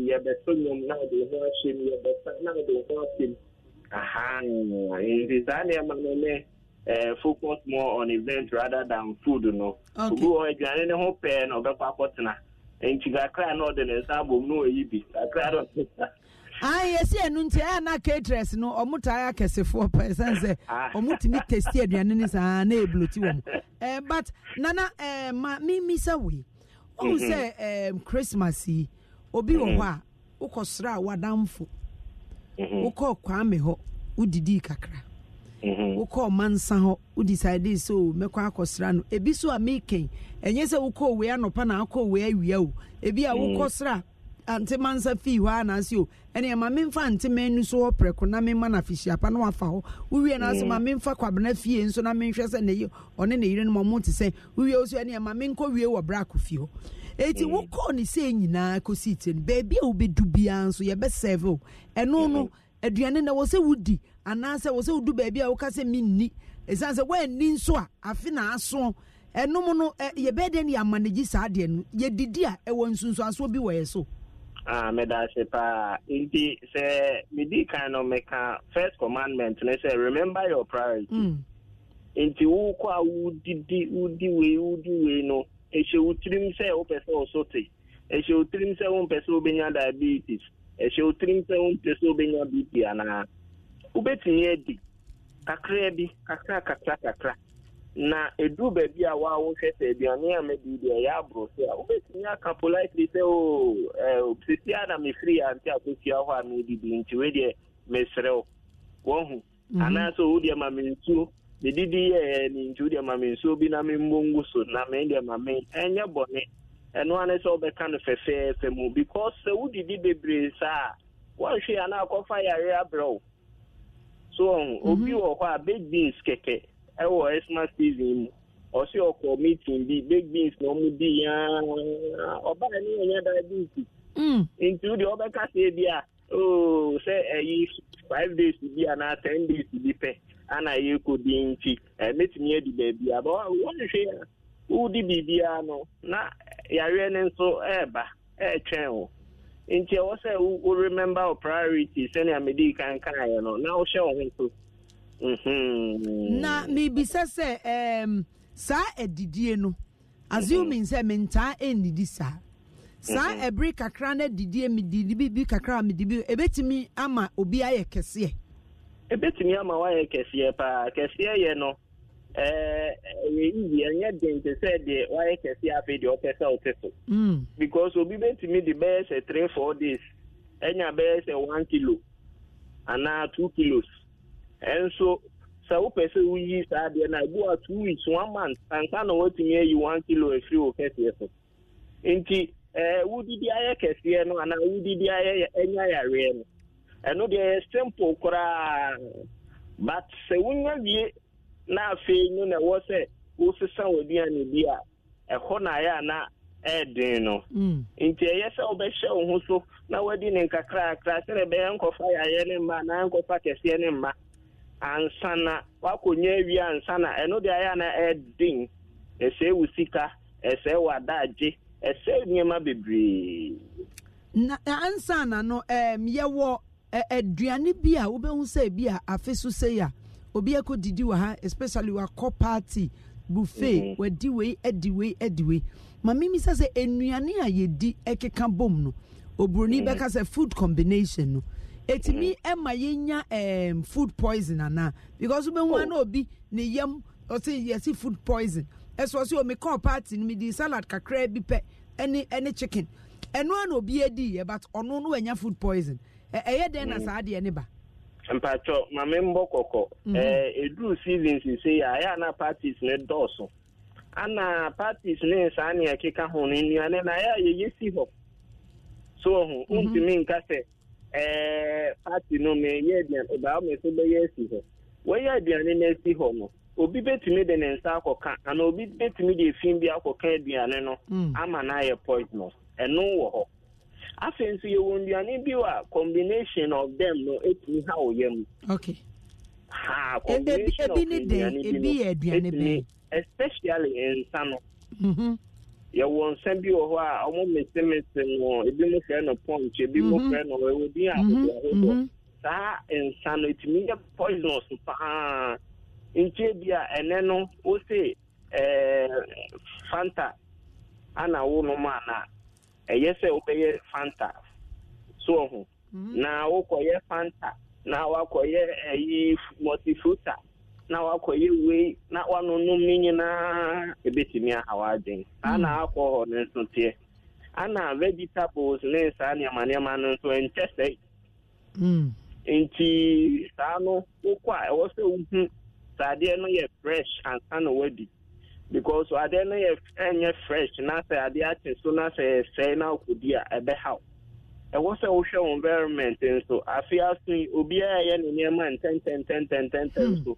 yɛbɛso nnwom na ɔde ho yɛbɛsa na ɔde ho Aha, eh, in Tanzania magnene eh, eh more on event rather than food no. Ogu ọ aduane ne ho pɛɛ na ɔbɛkɔ akɔtena. Nti kakra na ɔde ah. eh, ne nsa Anyị na oyi bi. Kakra na ɔde Ah, yes, yeah, no, yeah, na caterers no, able but Nana, eh, ma, say, mm-hmm. Christmas, obi wa, mm-hmm. Mm-hmm. wokɔɔ kwame hɔ wodidii kakra mm-hmm. wokɔɔ nsa hɔ wodecide sɛ o oh, mɛkɔ akɔsra no ebi so a mekɛn ɛnyɛ sɛ wokɔɔ wei anɔpa na akɔɔ wei awia o ebi a mm. wokɔ sra ante mansa fii hɔ anaase o oh, ɛne ma memfa ante man no so hɔ prɛko na memma no afihyiapa na wafa hɔ wowie no ase mm. ma memfa kwabena fie nso na menhwɛ sɛ ne ɔne ne yere no ma ɔmo te sɛ wowie wo so ɛne ɛma menkɔ wie wɔ bra akɔ fie hɔ eti mm. wokɔ ne se nyinaa kɔsi tire no beebi a wobɛdu biara nso yɛbɛsɛve o ɛno no aduane na wɔ sɛ wodi anaasɛ wɔ sɛ wodu baabi a woka sɛ menni ɛsiane sɛ woanni nso a afe na asoɔ ɛnom no yɛbɛyɛ dɛ ne yɛama no gyi saa deɛ no yɛdidi a ɛwɔ nsunsuasoɔ bi wɔ so Ah, medase paa nti sɛ medi kan no meka first commandment ne sɛ remember your priority mm. nti wokɔ a wodidi wodi wei wodi wei no ɛhyɛ wo tirim sɛ wopɛ sɛ ɔso te ɛhyɛ wo tirim sɛ wompɛ sɛ wobɛnya diabetes ɛhyɛ wo tirim sɛ wompɛ sɛ wobɛnya bp anaa wobɛtumi adi kakra bi kakra kakra kakra na edu baabi a wawohwɛ sɛ aduane a mɛdi deɛ ɛyɛ aboro so a wobɛtumi aka politely sɛ o sesi a na mefiri ante akɔsua hɔ a medidi nti wei deɛ meserɛ wo wɔhu mhm. anaasɛ wo deɛ ma mensuo medidi yɛ eh, ne nti wodeɛ ma me nsuo bi na memmɔ ngu so na mendeɛ ma me ɛnyɛ bɔne ɛno ane sɛ wobɛka no fɛfɛɛfɛ mu because sɛ eh, wodidi bebree saa woanhwɛ ana akɔfa yare abrɛ mm, mhm. wo so obi wɔ hɔ a big beans kɛkɛ ɛwɔ xmas season mu ɔsi ɔkɔ meeting bi big beans na ɔmo di yaa ɔbaa ni yɛn nyɛ diabetes. ntu o de mm. ɔbɛka se bi a ooo oh, sɛ ɛyi eh, five days bi anaa ten days bi pɛ. anaghị ekwu dị nchi emetumi ebi beebi aba wɔnhwɛ ya wodi biribiara no na yareɛ no nso ɛreba ɛretwɛn wo nti ɛwɔ sɛ wo remember wo priority sɛnea mede kan kaeɛ no na wohyɛ wo ho so mhm. na mebisa sɛ saa saa adidie no assuming mhm. sɛ mentaa ɛnnidi saa saa mhm. ebiri kakra na adidie medidi bibi kakra medidi ɛbɛtumi ama obi ayɛ kɛseɛ ebetumi ama wayɛ kɛseɛ paa kɛseɛ yɛ no ɛɛ yiyi ɛnyɛ den te sɛ deɛ wayɛ kɛseɛ afei deɛ ɔpɛ sɛ ɔte so. Mm. because obi betumi de bɛyɛ sɛ three four days ɛnya bɛyɛ sɛ one kilo anaa two kilos ɛnso sɛ wopɛ sɛ woyi saa deɛ na ebi wa two weeks one month anka na watumi ayi one kilo efiri wo kɛseɛ so nti ɛɛ wudidi ayɛ kɛseɛ no anaa wudidi ayɛ ɛnya yareɛ no. ɛno deɛ yɛ simple koraa but sɛ wonya wie na afei no na ɛwɔ sɛ wosesa w'aduane bi a ɛhɔ na ayɛ ana ɛɛden no mm. nti ɛyɛ sɛ wobɛhyɛ wo ho so na wadi ne nkakrakra sɛdeɛ ɛbɛyɛ nkɔfa yɛayɛ ne mma anaa nkɔfa kɛseɛ ne mma ansa na wakɔnya awie ansa na ɛno deɛ ayɛ ana ɛɛden ɛsɛe wo sika ɛsɛe adagye ɛsɛe nneɛma bebree na ansa na no um, yɛwɔ aduane bi a wobɛhu sɛ bi a afe so sei a obi akɔ didi wɔ ha especially wakɔ party buffet mhm. wadi wei adi wei adi wei maame mi sɛ sɛ nnuane a yɛdi keka bom no oburoni mhm. bɛka sɛ food combination no etimi mhm. ɛma yɛnya food poison ana because wobɛhu ana oh. obi ne yam ɔsi yɛsi food poison ɛsɛ ɔsi omi oh, kɔɔ party no mi di salad kakra bi pɛ ɛne ɛne chicken ɛnua na obi edi yɛ but ɔno no wɛnya food poison. ɛyɛ dɛn na mm. saa deɛ ne ba mpatwɔ mame mbɔ kɔkɔ mhm. ɛduru season sise a ɛyɛ ana parties ne dɔɔso ana parties ne saa nea ɛkeka ho no nnuane na ɛyɛ a yɛyɛ si hɔ so ho wontumi mhm. nka sɛ party no meyɛ aduane ɔbaa me so bɛyɛ asi hɔ wɔyɛ aduane no asi hɔ no obi bɛtumi de ne nsa akɔka anaa obi bɛtumi de efi bi akɔka aduane no mm. ama na ayɛ poisonous ɛno wɔ hɔ afei nso yɛwɔ nnuane bi a combination of them no ɛtumi ha wo yam okay ha combination of nnuane bi no ɛtumi especially nsa no mhm. yɛwɔ nsa bi wɔ hɔ a ɔmo mesemese no ebi mo fɛ no punch ebi mo mhm. fɛ no ɛwɔ bi ahodoɔ ahodoɔ saa nsa no ɛtumi yɛ poisonous paa nkyɛn bi a ɛnɛ no wose ɛɛ fanta ana wo nom ana ɛyɛ sɛ wobɛyɛ fanta so ɔho mhm. na wokɔyɛ fanta na wakɔyɛ ɛyi eh, multifruta na wakɔyɛ wei na wanonom ne nyinaa ɛbɛtumi aha w'adwen saa na mhm. akwọ ne nso teɛ ana vegetables ne saa nneɛma nneɛma no nso ɛnkyɛ sɛe mm. nti saa no a ɛwɔ sɛ wohu saadeɛ no yɛ fresh ansa na wadi because adeɛ no yɛ ɛnyɛ fresh na sɛ adeɛ akye so na sɛ ɛsɛe na akɔdi a ɛbɛhaw ɛwɔ sɛ wohwɛ wo environment nso afe aso yi obiara yɛ ne nneɛma ntɛntɛntɛntɛntɛntɛn hmm. so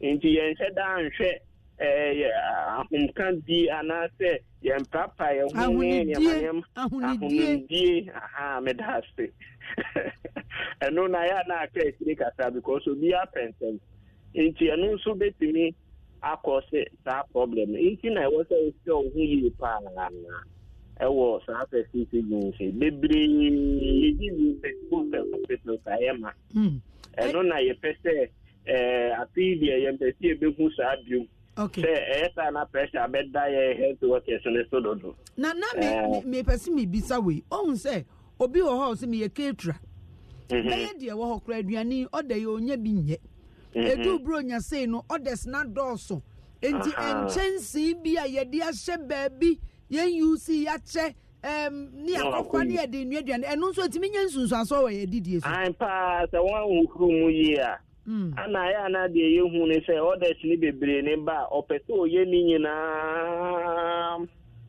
nti yɛnhyɛ daa nhwɛ ɛyɛ ahomka di anaasɛ yɛmprapa yɛ ho ne nneɛmanneɛma ahonidie aha meda ase ɛno na yɛ a na aka akyire kasa because obiara pɛ nsɛm nti ɛno nso bɛtumi akɔse saa problem nti na yiri hmm. e na ɛwɔ saa fɛsi nse bebree fɛsibu fɛsibu yɛ ma ɛno na yɛpɛ sɛ ɛɛ afei deɛ yɛn saa biom sɛ ɛyɛ saa na pressure abɛda yɛ health workers ne so dodo. na na eh. mi mi mhm. pɛsi mi bisa wei ohun sɛ obi wɔ hɔ mi yɛ bɛyɛ deɛ wɔ hɔ kura aduane ɔda yɛ onye bi nyɛ. edu mm-hmm. buro nyase no ɔdɛs na dɔɔso nti nkyɛnsee bi a yɛde ahyɛ ye yɛn uc yɛakyɛ ɛm ne akɔfa ne yɛde nnuaduane ɛno nso etimi nye aso wɔ yɛ didie so. an paa sɛ wɔn ahuru mu yie a. Mm. ana ayɛ ana deɛ yɛhu ne sɛ ɔdɛs ne bebree ne ba a ɔpɛ sɛ ɔyɛ ne nyinaa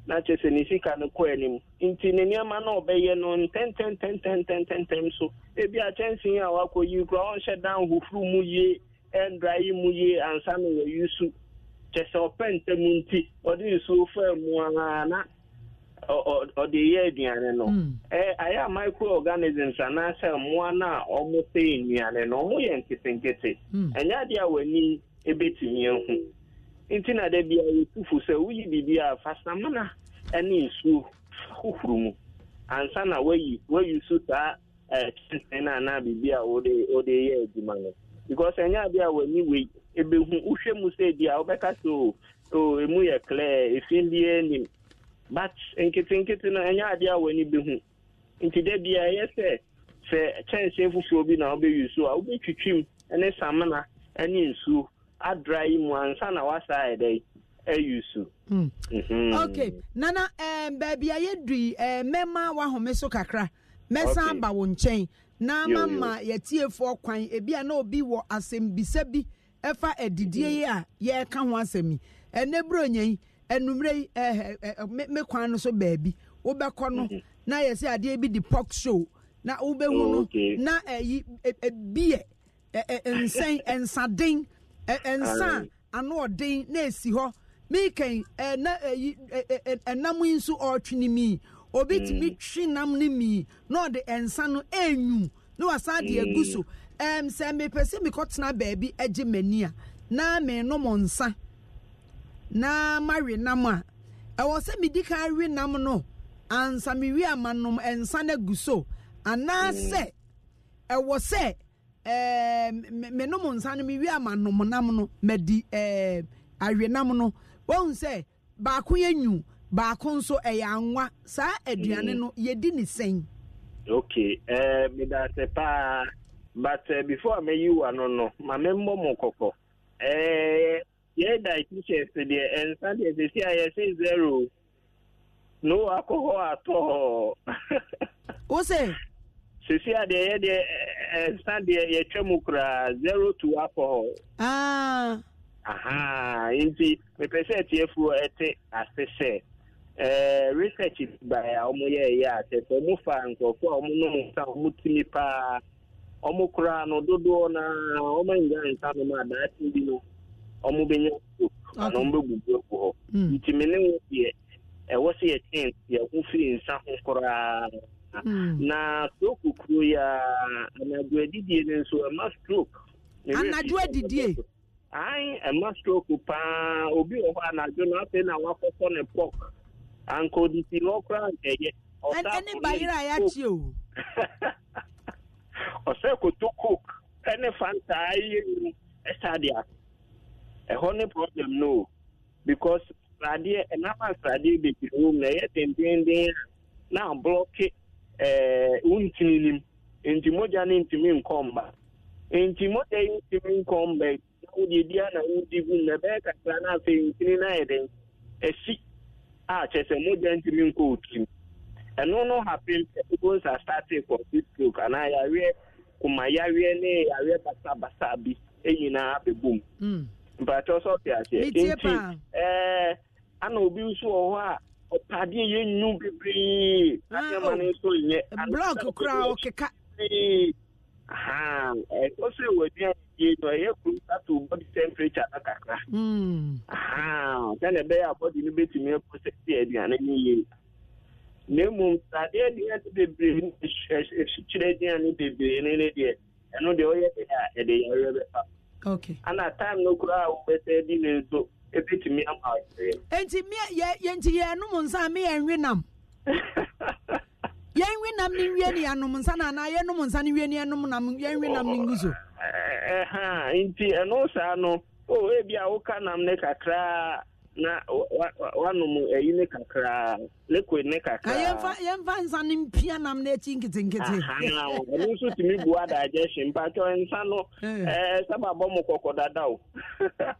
na kyerɛ sɛ ne sika no kɔ anim nti ne nneɛma na ɔbɛyɛ no ntɛntɛntɛntɛntɛntɛm so ebi akyɛnsee a wakɔ yi koraa ɔnhyɛ dan hohoro mu yie ɛndra yi mu yie ansa na wɔyi su kyɛ sɛ ɔpɛ ntɛm nti ɔde nsuo faa mu ara na ɔde yɛ aduane no ɛɛ hmm. ayɛ microorganisms anaasɛ mmoa na a ɔmo sɛ nnuane no ɔmo yɛ nketenkete ɛnyɛ adeɛ a w'ani ebetumi ehu nti na dɛ bia yɛtufu sɛ woyi biribi a fasamana ɛne nsuo hohoro mu ansa na wayi wayi so saa ɛɛ kyɛnsee no anaa biribi a wɔde wɔde yɛ adwuma no. because ɛnyɛ adi a w'ani wei ebehu wohwɛ mu sɛ ebi a wobɛka so o emu yɛ clear efin bi anim but nketenkete no ɛnyɛ adi a w'ani behu nti dɛ bi a ɛyɛ sɛ sɛ kyɛnsee bi na wobɛyi so a twitwi mu ne samina ne nsu adra yi mu ansa na wasa ɛdɛ yi so. ok nana um, eh, baabi a yɛdui uh, eh, mmarima wahome kakra. mɛsan aba wo nkyɛn na ama ma yɛtiefoɔ kwan ebi a na obi wɔ asɛmbisa bi ɛfa adidie mm-hmm. yi a yɛreka ho asɛm yi ɛnɛ buro nyɛ yi ɛnumere yi ɛɛ ɛ me kwan no so baabi wobɛkɔ no mm-hmm. na yɛsɛ adeɛ bi di pɔk show na wobɛhu no na ɛyi ebiɛ e, ɛɛ nsɛn nsaden ɛɛ nsa ano ɔden na esi hɔ miikɛn ɛɛ na ɛyi ɛɛ ɛnam yi nso ɔɔtwi ne mii. obetumi mm. twi nam no mii na ɔde nsa no ɛnwum na wasan de mm. agu so ɛm sɛ mepɛ sɛ mekɔtena baabi agye m'ani a na menom nsa na mawe nam a ɛwɔ sɛ medi kan awi nam no ansa mewe ama nom nsa na-egu so anaasɛ mm. ɛwɔ sɛ ɛɛ menom nsa no mewe ama nom nam no madi ɛɛ awe nam no wɔn sɛ baako yɛ nyu. baako nso ɛyɛ anwa saa aduane no mm. yɛdi ne sɛn. okay ɛɛ eh, meda ase paa but uh, before a meyi wa no no ma me mbɔ mo kɔkɔ ɛɛ eh, yɛ dietitians deɛ ɛnsa deɛ sisi a yɛsi zero na o akɔhɔ atɔ hɔ. o sisi a deɛ yɛ deɛ ɛnsa deɛ yɛtwa mu koraa zero to alcohol. aa. Ah. aha nti mepɛ sɛ ɛteɛ fuo ɛte ase sɛ. Eh, research by ọmụ hmm. eh, ya ase atete ọmụ fa nkurọfọ ọmụ nọ nsa ọmụ timi paa ọmụ kụrụ anụ dodoọ na ọmụ nga nsa nọ ma daati bi no ọmụ benye ọkụ na ọmụ begbugbu egwu hɔ ntumi ne nwo deɛ ɛwɔ sɛ yɛkyɛn yɛ ho firi nsa ho koraa hmm. na stroke kuro ya anadwo adidie no nso ama eh, stroke anadwo adidie ayi ɛma stroke paa obi wɔ hɔ anadwo na afei na wakɔkɔ ne pɔk ankọdisi n'ọkụra nke ya. ẹni banyere a ya chi o. ọsẹ koto coke ẹni fanta ayé mu e ẹsẹ adị a e problem no because sradeɛ ɛnama sradeɛ bebree wɔ mu na ɛyɛ dendenden na ablɔke ɛɛ wuntini nim nti mogya ne ntumi nkɔ mba nti mogya yi ntumi nkɔ mba na wodi gu mu na ɛbɛyɛ kakra na afei ntini na ayɛ den esi. a kyerɛ sɛ mogya ntumi nkɔ okim ɛno no hapen peoples are starting for this stroke anaa yareɛ kuma yareɛ ne yareɛ basabasa bi nyinaa bɛbom hmm. mpatɛ sɛ ɔte aseɛ nti eh, ana obi nso wɔ hɔ a ɔpadeɛ yɛnwu bebree nneɛma no nso nyɛ blɔk koraa ɔkeka ha ɛkɔsɛ wɔ aduane no ɛyɛ kuru ato body temperature no kakra ha sɛne ɛbɛyɛ a body no bɛtumi aprosɛsi aduane no yie na mmom sade aduane bebree no ɛhyekyere aduane bebree no ne a enti yɛn nwi nam ne nwie eh, ne yɛanom nsa na ana anaa yɛnom nsa ne wie ne yɛnom nam yɛn nwi nam ne ngu so ah, ha, nti ɛno saa no o ebi a woka nam ne kakraa na wanom ayi ne kakraa liquid ne kakraa yɛmfa yɛmfa nsa ne mpia nam no akyi nketenkete ɛno nso tumi bua da agyɛ hye mpatwɔ nsa no ɛɛ sábà bɔ mo kɔkɔ dada o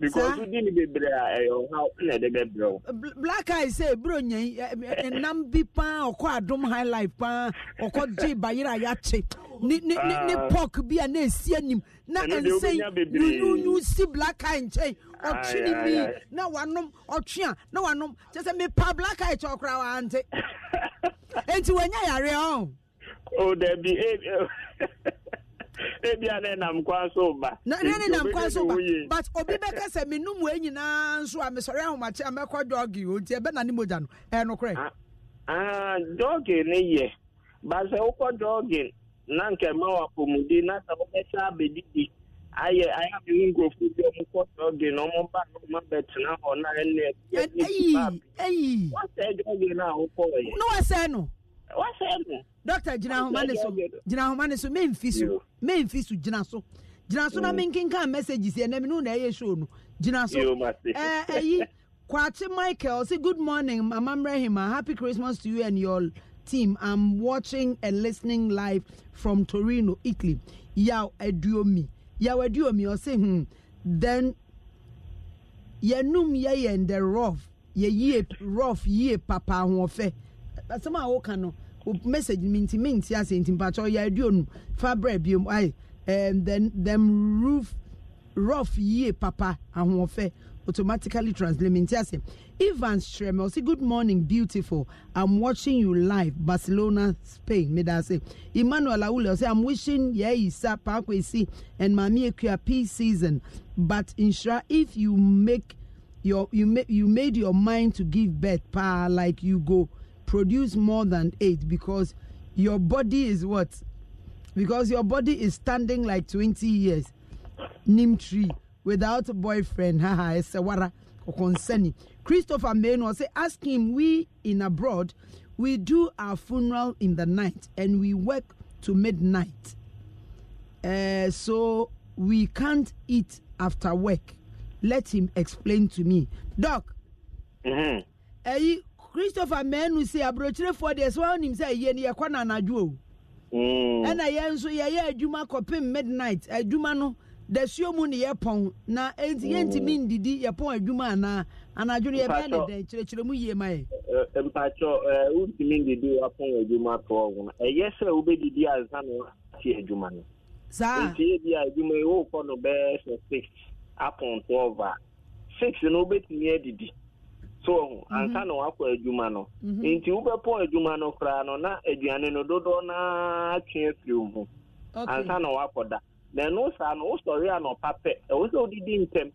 because wodi ni bebree a ɛyɛ ɔhaw na ɛde bɛbrɛ wo black eye sɛ eburo nyɛ ɛnam eh, eh, eh, bi paa ɔkɔ adom high life paa ɔkɔ gye bayerɛ a yɛakye ne ne ne ne ah. pork bi a na esi anim na nsɛn nyunyunyu si black eye nkyɛn ɔtwe ne bi na wanom ɔtwe a na wanom kyɛ sɛ mepa black eye kyɛ ɔkora wa ante enti wɔnyɛ yare ɔn. o dabi e. ebia ne ba ba but obi nyinaa a ahomakye a mɛkɔ o ne mogya no ni ah, ah, yɛ wokɔ na nka ma wapɔmudi na sɛ wobɛsɛ abɛdidi ayɛ ayɛ amene nkurɔfoɔ bi ɔmo kɔ dɔge na ɔmo ba no ma bɛtena hɔ na ɛnɛ ɛyi ɛyi wɔsɛ dɔge no a na wɔsɛ no dɔkta gyina ahoma ne so gyina ahoma ne so memfi so memfi so gyina so gyina so na mm. menkenka messages ɛnam no na ɛyɛ show no gyina so eh, ɛyi kwate michael say good morning mama mrehima uh, happy christmas to you and your team i'm watching and listening live from torino italy yaw aduomi yaw aduomi ɔse hmm then yɛnum yɛyɛ the rough yɛyie rough yie papa ahoɔfɛ asɛm a woka no message minti minti ase nti mpatsɛ ɔyɛ aduonu fa brɛ biom ayi ɛɛm them them roof rough yie papa ahoɔfɛ automatically translate minti ase Ivan Streme say good morning beautiful I'm watching you live Barcelona Spain say Emmanuel Awule say I'm wishing yeyisa we see and maami ekuya peace season but nsira if you make your you make you made your mind to give birth pa like you go produce more than eight because your body is what? Because your body is standing like 20 years. Nim tree without a boyfriend. Haha, it's a wara concerning. Christopher Maynor say, ask him, we in abroad, we do our funeral in the night and we work to midnight. Uh, so we can't eat after work. Let him explain to me. Doc, mm-hmm. Eh, christopher mmienu si aburokyerefoɔ deɛ sɛ wɔn nim sɛ yie no yɛkɔ na anadwo o ɛna yɛn nso yɛyɛ adwuma kɔpem midnight adwuma no dasuo mu ne yɛpɔn na enti yɛntumi hmm. ndidi yɛpɔn adwuma anaa anadwo no yɛbɛyɛ ne dɛn kyerɛkyerɛ mu yie ma yɛ. mpatsɔ ɛɛ wontumi ndidi wapɔn adwuma tɔ ɔho ɛyɛ sɛ wobɛdidi ansa na wɔate adwuma no. saa nti ebi a adwuma yi wɔrekɔ no bɛɛ sɛ six apɔn twelve a six no wobɛtumi adidi. so ho ansa mhm. na wakɔ adwuma no mhm. nti wobɛpɔ adwuma no koraa no na aduane no dodoɔ naa twe afiri wo ho ansa na wakɔ da na ɛno saa no wosɔre anɔpa pɛ ɛwo sɛ wodidi ntɛm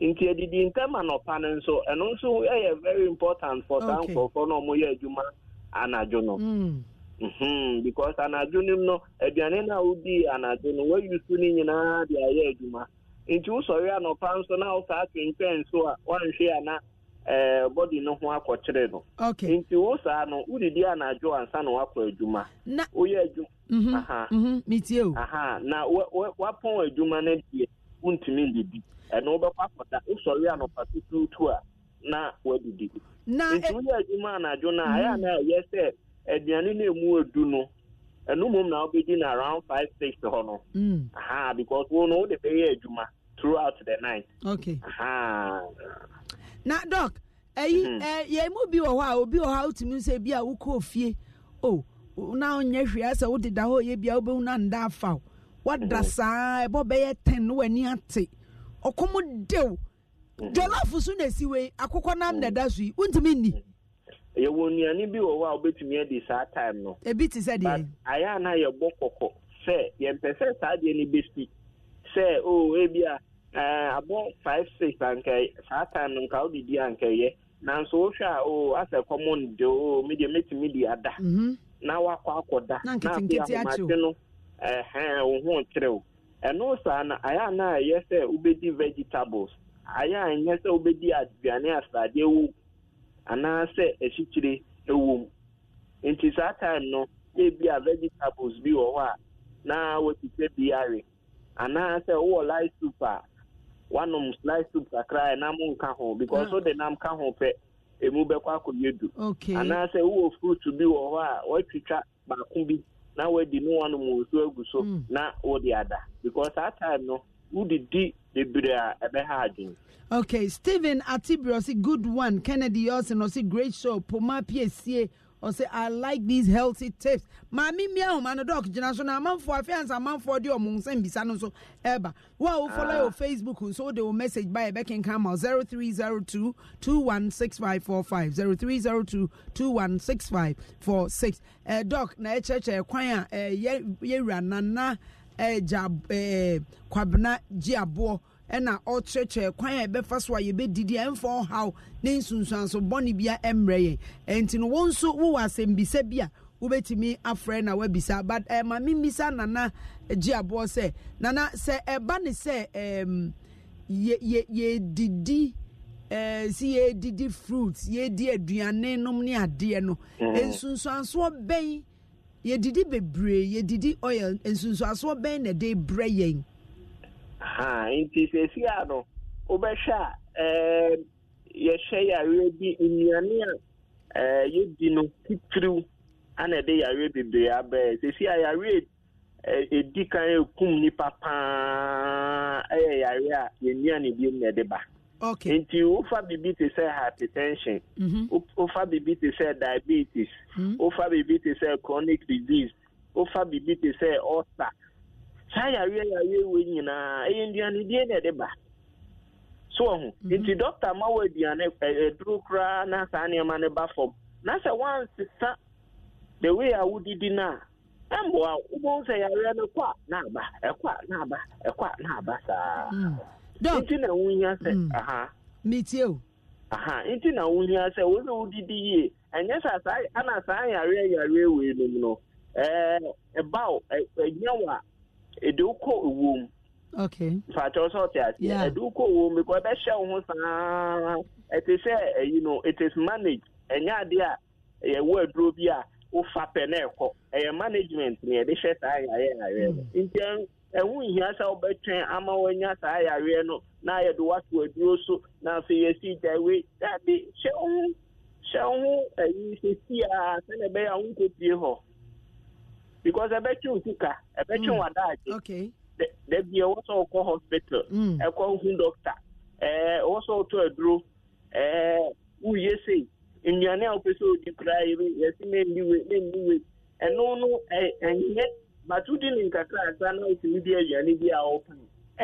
nti adidi ntɛm anɔpa no nso ɛno nso very important for saa nkurɔfoɔ na ɔmoyɛ adwuma anadwo no mm. mhm. because anadwo no aduane no a wodii anadwo no no nyinaa de ayɛ adwuma nti wosɔre anɔpa nso na wosaa twentwɛn so a Eh, bọdi no ho akɔkyere no nti wo saa no wodidi anadwo ansa na woakɔ adwuma woyɛ adwuma mhm, mhm, na woapɔn adwuma no deɛ wontumi ndidi ɛno wobɛkɔ akɔda wosɔre anɔpa tutuutu a na woadidi nti woyɛ adwuma anadwo no a mhm. ɛyɛ na ɛyɛ sɛ aduane no ɛmu adu no ɛno mmom na wobɛdi no around five six hɔ no mm. aha because wo no wode bɛyɛ adwuma throughout the night okay. na dɔk ɛyi ɛ yɛn bi wɔ hɔ a obi wɔ hɔ a wotumi nso ebi a wokɔ fie o na onyɛ hwee asɛ deda hɔ yɛ bi a wobɛhu na nda afa o wada mm-hmm. saa ɛbɔ bɛyɛ tɛn no w'ani ate ɔkɔm dew mm-hmm. jɔlɔfo so na esi wei akokɔ nam na ɛda mm-hmm. so yi wontumi nni. yɛwɔ nnuane bi wɔ hɔ a wobɛtumi adi saa time no. ebi ti sɛ deɛ. ayɛ a na yɛbɔ kɔkɔ sɛ yɛmpɛ sɛ saa deɛ no bɛsi sɛ o ebia. abụọ five six nke saa nke ọ a nke mm-hmm. ya eh, eh, eh, na nso a o asɛ dị de o mi de ada na wakɔ da na afei ahomate no ɛhɛn ohun kyerɛw ɛno saa na ayɛ a na ayɛ sɛ wobɛdi vegetables ayɛ a nyɛ sɛ wobɛdi aduane ewu anaasɛ mu nti saa time no ebi a vegetables bi wɔ hɔ a na wɔte sɛ anaasɛ wowɔ light e, soup wanom slice soup kakra ɛnam nka ho because so ah. de nam ka ho pɛ emu bɛkɔ akɔyɛ du anaasɛ wowɔ fruit bi wɔ hɔ a watwitwa baako bi na wadi ne wanom nsuo agu so hmm. na wode ada because saa time no wodidi bebree a ɛbɛha adwene okay stephen atibiri ɔsi good one kennedy ɔsi na ɔsi great show poma piesie ɔsɛ i like these healthy tips maame mmea ahoma no dɔk gyina so na amanfoɔ afeansa amanfoɔ de ɔmo nsɛm bisa no nso ɛɛba wo a wofɔlɔ yɛ facebook nso wode wo message ba yɛbɛkenka ma 0302 216545 0302 216546 ɛɛ dɔk na ɛkyerɛkyerɛ eh, kwan a ɛɛ eh, yɛwura nana eh, ɛɛ gya ɛɛ kwabena gye aboɔ ɛna ɔkyerɛkyerɛ kwan a ɛbɛfa so a yɛbɛdidi a ɛmfa ɔhaw ne nsunsuanso bɔne bia ɛmmerɛ yɛn ɛnti no wɔn nso wowɔ asɛmbisa bi a wobɛtumi afrɛ na wabisa but ɛma eh, me mbisa nana gye aboɔ sɛ nana sɛ ɛba ne sɛ ɛɛm ehm, yɛdidi ɛɛ eh, si yɛdidi fruit yɛdi aduane nom ne adeɛ no mhm. nsunsuansoɔ bɛn yɛdidi bebree yɛdidi oil nsunsuansoɔ bɛn na ɛde brɛ yɛn. ha nti sesi a no wobɛhwɛ a yɛhyɛ yareɛ bi nnuane a yɛdi no titiriw ana ɛde yareɛ bebree abɛɛ sesi a yareɛ e, ɛdi kan ɛkum nnipa paa ɛyɛ yareɛ a yɛnnua ne na ɛde ba okay. nti wofa biribi te sɛ hypertension mhm. wofa biribi te sɛ diabetes mhm. wofa biribi te sɛ chronic disease wofa biribi te sɛ ulcer saa yareɛ yareɛ wɔ nyinaa ɛyɛ nnuane die na ɛde e ba so ɔho mhm. nti dɔkta ma wɔ aduane ɛduru e, e, koraa na saa nneɛma no ba fam na sɛ wansesa the way a wodidi no a ɛmboa wobɛhu sɛ yareɛ no kɔ a na aba ɛkɔ a na aba ɛkɔ a na aba saa mm. nti na wonya sɛ mm. aha metie o aha nti na wonya sɛ wo sɛ wodidi yie ɛnyɛ sɛ saa ana saa yareɛ yareɛ wei nom no ɛɛ ɛbaw ɛnyɛ wɔ a ɛde wokɔ ɛwom mfakyɛw sɛ ɔte aseɛ ɛde wokɔ ɛwom bikɔ ɛbɛhyɛ wo ho saa ɛte sɛ ɛyi no manage ɛnyɛ adeɛ a yɛwɔ aduro bi a wofa pɛ na ɛkɔ ɛyɛ management na yɛde hyɛ saa yareɛ yareɛ no nti ɛho nhia sɛ wobɛtwɛn ama saa yareɛ no na yɛde wato aduro so na afei yɛsi gyae dabi hyɛ wo ho hyɛ wo ho sɛsi a sɛne ɛbɛyɛ a wonkɔpie hɔ because ɛbɛtwe wo sika ɛbɛtwe wo adaagye da bia ɛwɔ sɛ ọkọ hospital ɛkɔ mm. e hu doctor ɛwɔ e, sɛ wotɔ aduro woye e, sei nnuane a wopɛ sɛ wodi koraa yɛsi mendi we mendi we ɛno no ɛnyɛ but wodi ne nkakra asa na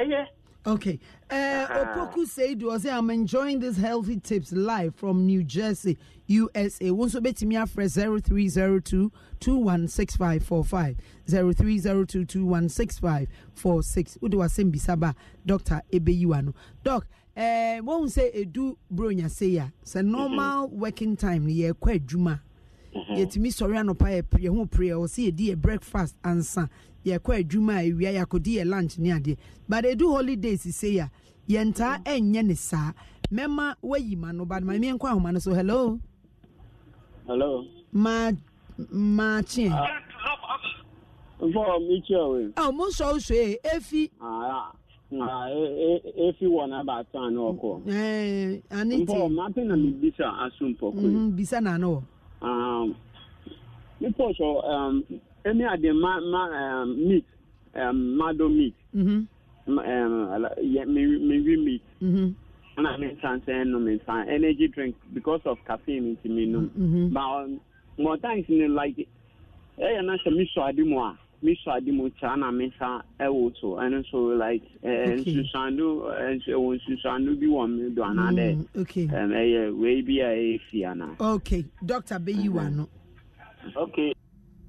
bi a Okay. Uh, uh-huh. Opoku Seidu say, I'm enjoying these healthy tips live from New Jersey, USA. Wonso betimia fresh 0302 216545. 0302 216546. Udo Dr. Ebeyuano. Doc, uh, won't say Do bronya say It's a normal working time. Yeah, quite juma. Mm-hmm. yɛtumi sɔre anɔpa yɛho prayer ɔ sɛ yɛdi yɛ breakfast ansa yɛkɔ adwuma a ɛwia yɛakɔdi yɛ lunch ne adeɛ but ɛdu holidays sei a yɛntaa mm-hmm. ɛnyɛ ne saa mɛma wayi ma no bade ma meɛnkɔ ahoma no so hello hello ma maakyeɛ ah. oh, mo nsɔ wo soe eh, ɛfi ah, ah, e, e, efi wɔ n'aba ata ne ɔkɔ. ɛɛ ani te mpɔ mmaa pe na mi bisa aso mpɔkɔ mm-hmm, bisa na wɔ. um, before so um, any of the ma, ma, meat, mado meat, mm-hmm. me, um, meat. Mm-hmm. And I mean, sunset, no, energy drink because of caffeine into me, no. Mm-hmm. But um, more times, you know, like, eh, and I said, Miss Adimoa me sọ adi mu taa na me nsa ɛwɔ so ɛno so like ɛɛ nsusando ɛwɔ nsusando bi wɔ mi do ana dɛ ɛm ɛyɛ wei bi a ɛyɛ fi ana. okay doctor bɛyi mm-hmm. wa mm-hmm. mm. no. okay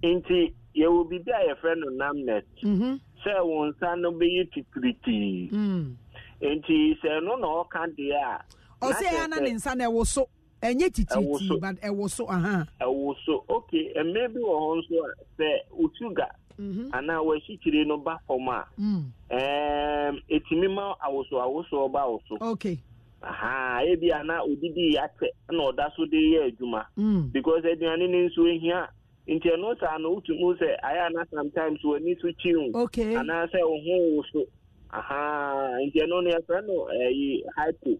nti yɛwɔ biribi a yɛfrɛ no namnet sɛ wɔn nsa no bɛyɛ titiritii nti sɛ ɛno na ɔka deɛ a. ɔsɛ yɛn ana ne nsa na ɛwɔ so ɛnyɛ titiritii but uh, ɛwɔ so. ɛwɔ so okay ɛmɛ bi wɔ hɔ nso a sɛ otu ga. Mm-hmm. ana wɔakyikyiri no ba fam a mm. ɛtumi ma awoso awosoɔ ba awoso aha ebi ana odidi atɛ na ɔda so de yɛ adwuma mm. because aduane ne nso ehia nti ɛno saa no wotumi sɛ ayɛ ana sometimes w'ani so kyi wo anaasɛ wo ho wo so aha nti ɛno no yɛfrɛ no ɛyi hypo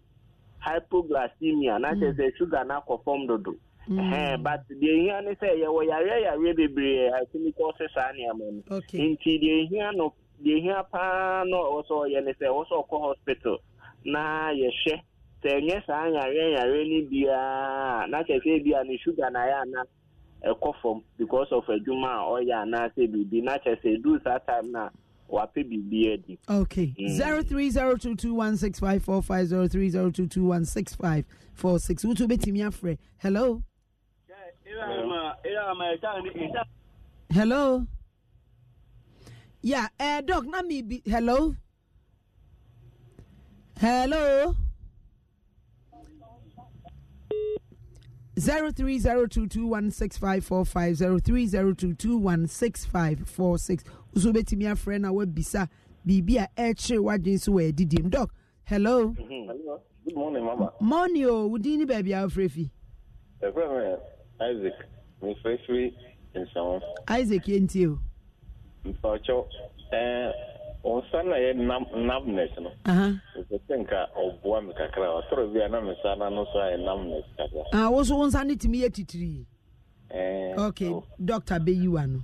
hypoglycemia na kyerɛ sɛ sugar no akɔ fam dodo Mm. Eh, but deɛ ehia ne sɛ yɛwɔ yareyareɛ bebree asɛmi kɔɔse saa nneɛma no nti deɛ ehia no deɛ ehia paa na ɔwɔ sɛ ɔyɛ sɛ ɔwɔ ɔkɔ hospital na yɛhwɛ sɛ ɛnyɛ saa yareyareɛ ne biara na kyerɛ bia ne sugar na ayɛ ana ɛkɔ fam because of adwuma eh, oh, a ɔyɛ anaasɛ biribi na kyerɛ sɛ saa time no a wapɛ biribi adi eh, okay mm. 0302216545 0302216546 wotu wobɛtumi afrɛ hello hello yeah uh, eh, doc na me be hello hello 0302216545 nso wobɛtumi afrɛ na eh, we bisa biribi a ɛkyere w'adwene so wɔ adidim dɔk hello mm-hmm. morning mama. Morning. Oh, din ne baabi a wofrɛ fi isaac mo fẹ́ firi nsàwọn. isaac yẹn ti o. mpa ọchọ wọn san na yɛ nam namnes no. ɛsɛ sɛ nka ɔboa mi kakra ɔtɔrɔ bi a mi san na no so ayɛ kakra. ah woso wọn san ne tìmi titiri. okay dɔkta bɛyi wa no.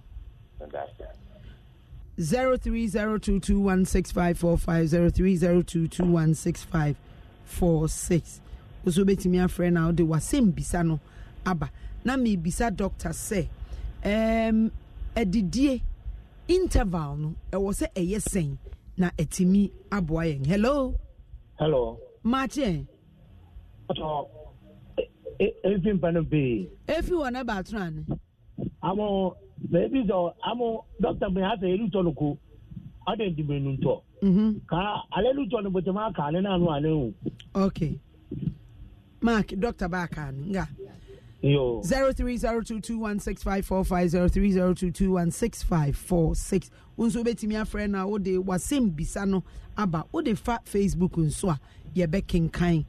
zero three zero two two one six five four five zero three zero two two one six five four six. woso bɛtumi afrɛ na ɔde wasɛm bisa no aba. na mebisa dɔkta sɛ um, interval no ɛwɔ sɛ ɛyɛ sɛn na ɛtumi aboa yɛn hello hello maakye efi mpa no pii efi wɔ ne baatoro ane amo ebi sɔ amo dɔkta mi elu tɔ no ko ɔde ndimi nu tɔ ka ale lu tɔ no bɔtɛmɛ aka n'anu ale o. ok mark b'a kan Yo. 0302216545 nso wobɛtumi afrɛ no a wode wasɛm bisa no aba wode fa facebook nso a yɛbɛkenkan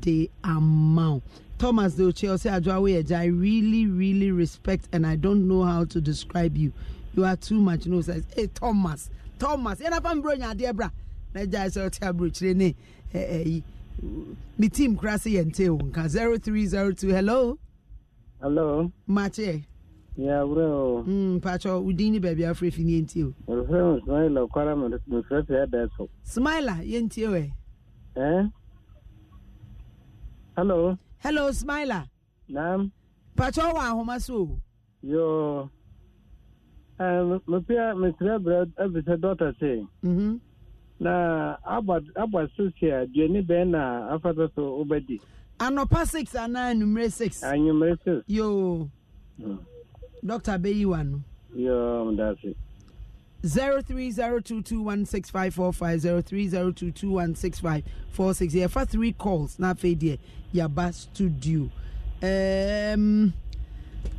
de ama wo thomas de ochie ɔsɛ adwoa woyɛ gya i really really respect and i don't know how to describe you you are too much no sɛ hey, thomas thomas yɛnafa mbrɛ nya adeɛ bra na gyae sɛ ɔte aburokyire ne ɛyi eh, eh, ne team kora se yɛnte wo nka 0302 hello Hello. Mate. Ya bro. Hmm pacho udini baby afrefi ntio. Refrem smile kwara mo mo ya daso. Smile ntio eh. Eh? Hello. Hello Smile. Nam. Pacho wa ahoma Yo. Eh mo pia me trebra eh, mm-hmm. Na na afata so anɔpa six anaa anumere six. anumere six. yoo hmm. dɔkta bɛyi wa no. yoo mo da se. zero three zero two two one six five four five zero three zero two two one six five four six yɛfa three calls na afei deɛ yaba studio um,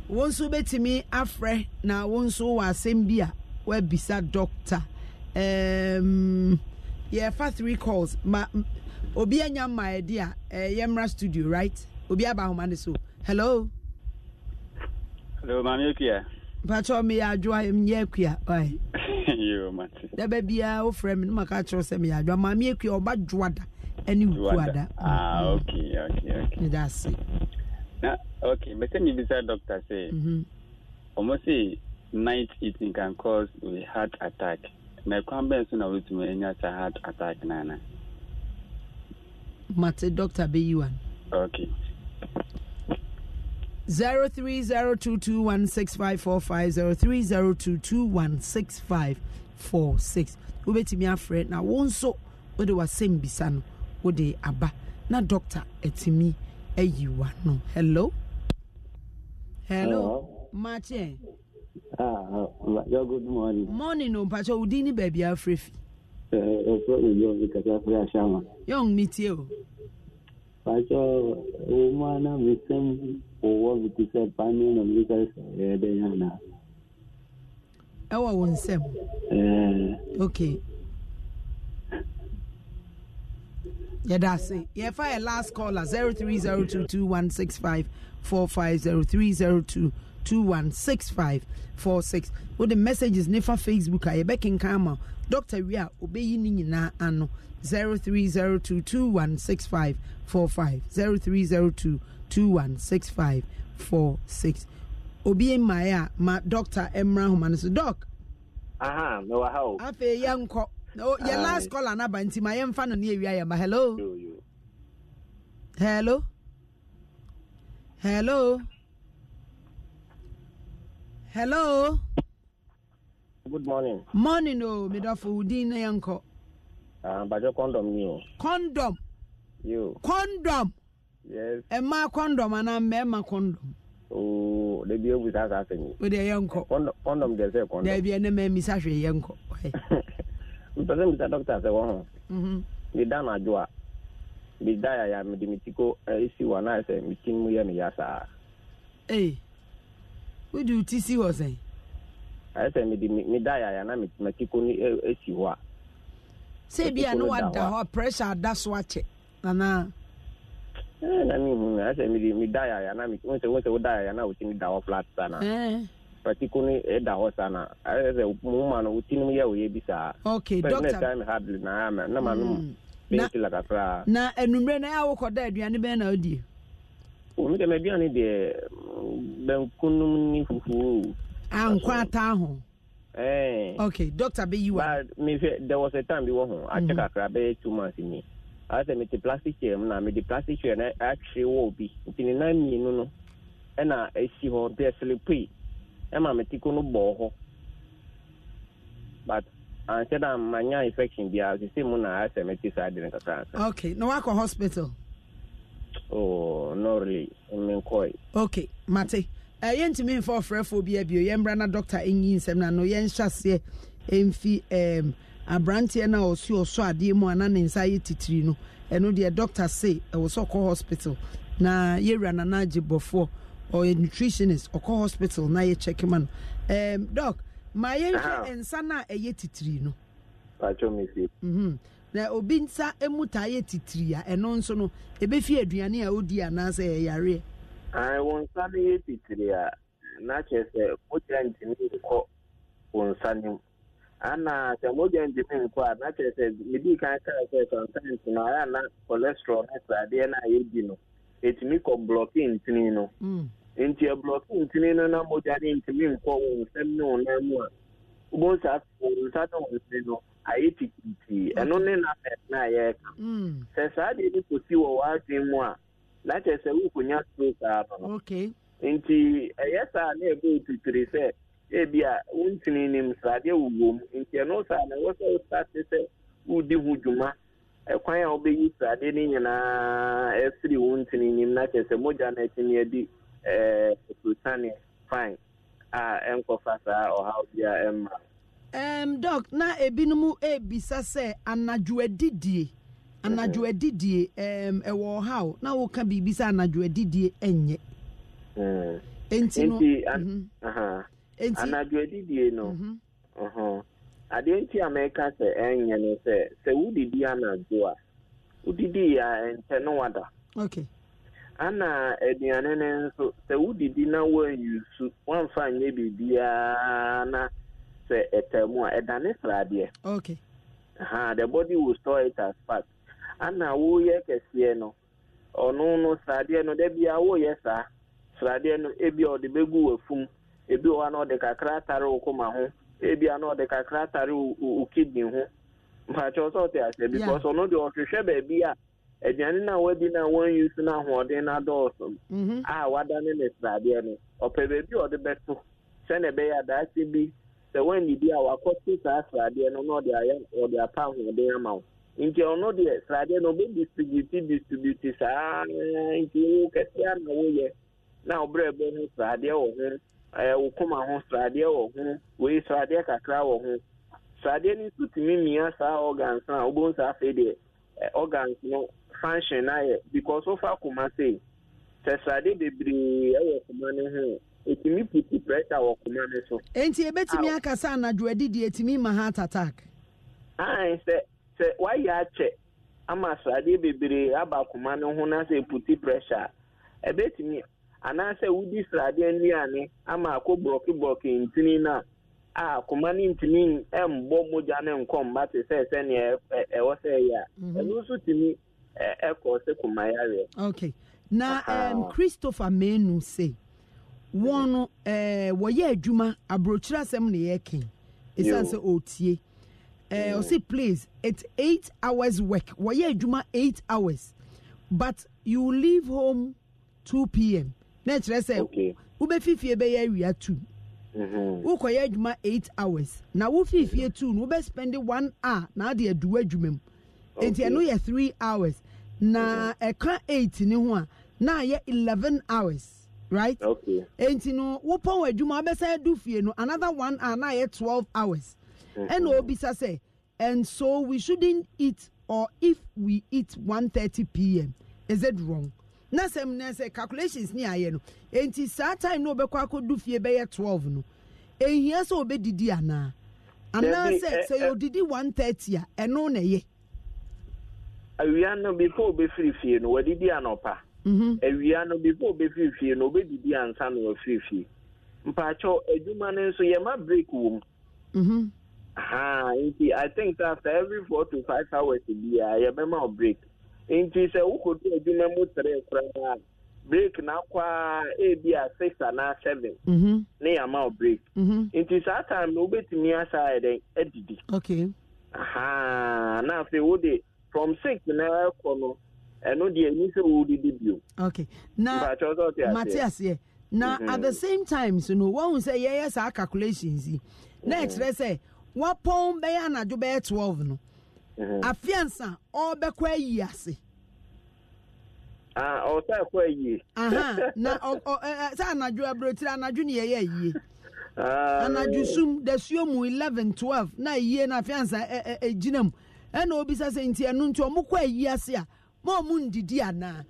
wɔn nso bɛtumi afrɛ na wɔn nso wɔ asɛm bi a wɔabisa dɔkta um, yɛfa three calls ma obi anya mma ɛdi a ɛyɛ eh, mmra studio right obi aba ahoma ne so hello. hello maame ekua. mpatsɔ mi yɛ adwoa mi yɛ ekua ɔyɛ. yoo mate. dɛbɛ o ofurɛ mi ne ma ka kyerɛ sɛ mi yɛ adwoa maame ekua ɔba dwoa da ɛne nkuwa ok ok ok. ne ase. na ok bɛsɛ mi bisa doctor say. ɔmo say night eating can cause a heart attack na kwan bɛn so na wotumi enya sa heart attack nana mate two bɛyi wa no okay. 0302216545 0302216546 wobɛtumi afrɛ na wo nso wode wasɛm bisa no wode aba na dɔkta atumi ayi wa no hello hello makyɛ ah, ah good morning morning o mpakyɛ wodin ne baabi afrɛ fi Young me yɛ woman, frɛ ahyama yɛn metie o pakyɛ wo mu ana mesɛm wowɔ mete sɛ pane na meka eh, yɛdɛn anaa ɛwɔ wo nsɛm eh. okay yɛda ase yɛfa last caller 0302216545 0302216546 the messages ne facebook a yɛbɛkenkan camera. dɔkta wie a obɛyi ne nyinaa ano 0302216545 0302216546 obi mmae a ma dɔkta mmra homa no so dɔk aha mewɔ ha o afei yɛnkɔ yɛ last call anaba nti ma yɛmfa no ne awia yɛma hello hello hello hello good morning. morning o oh, medafo udin na yẹn nkọ. àbàjọ ah, kọ́ndọ̀m ni o. condom yóò. kọ́ndọ̀m. yes. ẹ máa kọ́ndọ̀m àná mẹ́ẹ̀ma kọ́ndọ̀m. ooo dẹbi ewu sá sá sẹ́yìn. o de yẹn nkọ. kọ́ndọ̀m jẹ sẹ́ kọ́ndọ̀m. dẹbi ẹni mẹ́ẹ̀ mi sáfì yẹn nkọ. mpẹsẹ mi sá dókítà sẹ wọn hàn. mi dáná àjọ a mi dá yàyà mi di mi ti ko ẹ eh, si wà náà sẹ mi ti mú yẹ mi yá sáà. ee wíjú ti si wọ sẹ́yìn. sɛ mede meda yaya na matiko no si hɔ a sɛ bia ne wada hɔ pressure ada so akyɛ anaa na mehu ɛsɛ mede meda yaya na wo sɛ woda yaya na wotimi da hɔ flat sa na patiko no ɛda hɔ sa na ɛsɛ moma no wotinom yɛ woyɛ bi saa okay time hardly na na ma no bɛntila kakraa na anummerɛ no ɛ a wokɔda aduane bɛn na wodie oh, me dɛm mm, aduane deɛ bankunum ne fufuo ankɔ ata ho okay doctor bɛyi wa mehwɛ there was a time bi wɔ ho akyɛ kakra bɛyɛ two months ni asɛ mete plastic chair mu na mede plastic chair a atwere wɔ bi nti ne nan mmienu no ɛna ɛsi hɔ nti ɛselepui ɛma me tiko um, no bɔɔ hɔ but anhyɛ da manya infection biara sese mu na asɛ mete saa de no kakra okay na wakɔ hospital oh no really menkɔe okay mate Eh, yɛntumi mfa ɔfrɛfoɔ bi abio yɛmmra na dɔkta ɛnyi nsɛm na no yɛnhyɛ aseɛ ɛmfi um, aberanteɛ no a ɔsi ɔsɔ adeɛ mu ana ne nsa yɛ titiri no ɛno deɛ doctor se ɛwɔ sɛ ɔkɔ hospital na yɛwura nana agye bɔfoɔ ɔyɛ nutritionist ɔkɔ hospital na yɛkyɛke ma no um, dɔk ma yɛnhwɛ nsa no a ɛyɛ titiri no mhm. na obi nsa mu taa yɛ titiri a ɛno nso no ɛbɛfi aduane a ɔdi anaasɛ ɛyareɛ wọ nsa no e yɛ titiri a na kyerɛ sɛ mogya ntumi nkɔ wọnsa nsa mu ana sɛ mogya ntumi nkɔ a na kyerɛ sɛ medi kan kaa sɛ sometimes no ayɛ na cholesterol ne sradeɛ no a yɛdi no ɛtumi kɔ blɔke ntini no nti ɛblɔke ntumi no na mogya no ntumi nkɔ wọnsa nsɛm ne wo nan mu a wobɛhu saa wɔ nsa ne wɔ nsini no ayɛ titiitii ɛno ne na na sɛ mm. saa deɛ bi kɔsi wɔ w'adwen mu a Eh, eh, eh, na kyerɛ sɛ wokonya stroke a no nti ɛyɛ saa na ɛbɛ otitiri sɛ ebi a wontini nim sradeɛ wowɔ mu nti ɛno saa na ɛwɔ sɛ wosate sɛ wodi ho dwuma ɛkwan a wobɛyi sradeɛ no nyinaa ɛsiri wo ntini nim na kyerɛ sɛ mogya no atumi adi ɛprotane fine a ɛnkɔfa saa ɔhaw bi a ɛmma um, na ebinom ebisa sɛ anadwo anadwo adidie ɛwɔ ɔhaw na woka biribi sɛ anadwo adidie ɛnyɛ enti no mhm. anadwo adidie no mhm. adeɛ nti a mɛka sɛ ɛnyɛ no sɛ sɛ wodidi anadwo a wodidi a ɛntɛ no wada ana aduane no nso sɛ wodidi na woanyusu woamfa nyɛ biribiaa na sɛ ɛtɛ mu a ɛdane sradeɛ the body will store it as fat ana na kɛseɛ no ɔno no sradeɛ no da bia woyɛ saa sradeɛ no ebi a ɔde bɛgu ebi wɔ hɔ ɔde kakra atare ebi a ɔde kakra atare wo kidney ho mpakyɛw sɛ ɔte aseɛ because ɔno deɛ a aduane na wadi a wadane ne sradeɛ no ɔpɛ baabi a ɔde bɛto bi sɛ a saa sradeɛ no na ɔde apɛ ahoɔden ama nti ɔno deɛ sradeɛ no ɔbɛ distributi distributi saa nti wo kɛseɛ na woyɛ na ɔbrɛ bɛ ho sradeɛ wɔ ho wo koma ho sradeɛ wɔ ho wei sradeɛ kakra wɔ ho sradeɛ no nso tumi mia saa organs a wobɛhu saa afei deɛ organs no function ayɛ because wofa koma sɛ bebree koma no ho ɛtumi puti pressure wɔ koma no so ɛtumi ma heart attack sɛ wayɛ akyɛ ama sradeɛ bebree aba akoma no ho na sɛ puti pressure a ɛbɛtumi anaasɛ wodi sradeɛ nnuane ama akɔ borɔkeborɔke ntini no a akoma no ntumi mbɔ mogya ne nkɔmba te sɛ sɛnea ɛwɔ sɛ ɛyɛ a mhm. ɛno nso tumi ɛkɔ sɛ koma yareɛ okay na um, christopher menu se wɔn no eh, wɔyɛ adwuma aburokyerɛ uh, eh, oh. say please it's eight hours work wɔyɛ adwuma eight hours but you leave home two pm Next, na kyerɛ sɛ wobɛfifie bɛyɛ awia two wokɔyɛ mm-hmm. adwuma eight hours na wofifie mm-hmm. two no spend one hour na ade aduwa adwuma mu nti ɛno yɛ three hours na ɛka mm-hmm. eight ne ho a na ayɛ eleven hours right nti no wopɔn adwuma wobɛsan adu fie no another one hour na ayɛ twelve hours ɛna obisa say. and so we shouldn't eat or if we eat 1:30 p.m. is it wrong na sɛm na sɛ calculations ni ayɛ no nti saa time na obɛkɔ akɔdu fie bɛyɛ 12 no ehia sɛ obɛdidi anaa anaasɛ sɛ eh, eh, yɛodidi 1:30 a ɛno na ɛyɛ awia no before obɛfiri fie no wadidi anɔpa mhm. awia no before obɛfiri fie no obɛdidi ansa na wafiri fie mpaakyɛw adwuma no nso yɛma break wɔ mu mhm ha nti i think say after every four to five hours bi a yɛbɛma o break nti sɛ wokoto adwuma mu tere koraa break na akɔ a ebi a six anaa seven ne yɛama o break mm-hmm. nti saa time na wobɛtumi asa ayɛ dɛn adidi na afei wode from six na ɛkɔ no ɛno deɛ ɛni sɛ wodidi bio na mate aseɛ na at the mm-hmm. same time so no wɔn sɛ yɛyɛ saa calculations yi na ɛkyerɛ sɛ wɔpɔn bɛyɛ anadwo bɛyɛ twelve no mhm. afiansa ɔbɛkɔ ayi ase. Ah, ɔsa ɛkɔ ayi. na ɔ sɛ anadwo aburotiri anadwo ni yɛyɛ ayie ah. anadwo sum dasuo mu eleven twelve na ayie na afiansa ɛ ɛ ɛgyina mu ɛna obisa sɛ nti ɛnu nti ɔmo kɔ ayi ase a ma ɔmo ndidi anaa.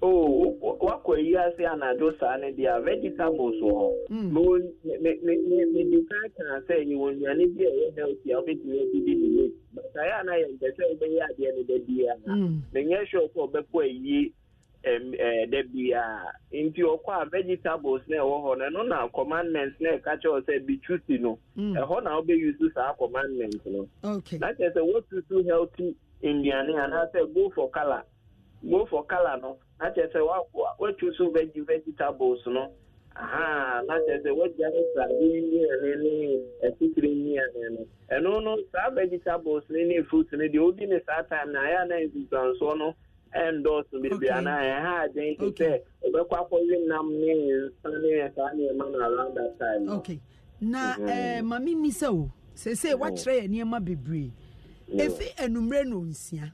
o oh, wakɔ yi ase anadwo saa ne deɛ vegetables wɔ hɔ hmm. mede sɛ yɛwɔ nnuane bi a ɛyɛ healthy a wobɛtumi adidi ne wei saeɛ a na yɛmpɛ sɛ wobɛyɛ adeɛ no da biara hmm. menyɛ sure sɛ ɔbɛkɔ ayie eh, da biara nti ɔkɔ a vegetables na ɛwɔ hɔ no na commandment na ɛka kyerɛ sɛ bitusi no hmm. ɛhɔ na wobɛyusu saa commandment no na kyerɛ sɛ wotusu healthy nnuane anaasɛ go for go for no na kyerɛ sɛ wetu so vegi vegetables no aha na kyerɛ sɛ woagya ya no vegetables na ya na ayɛ ya na nsusuansoɔ no ɛndɔɔso ya anaa ɛha aden te na ya around that time na ɛɛ mhm. eh, maame mi o sese oh. wakyerɛ yɛ nneɛma bebree efi enumere na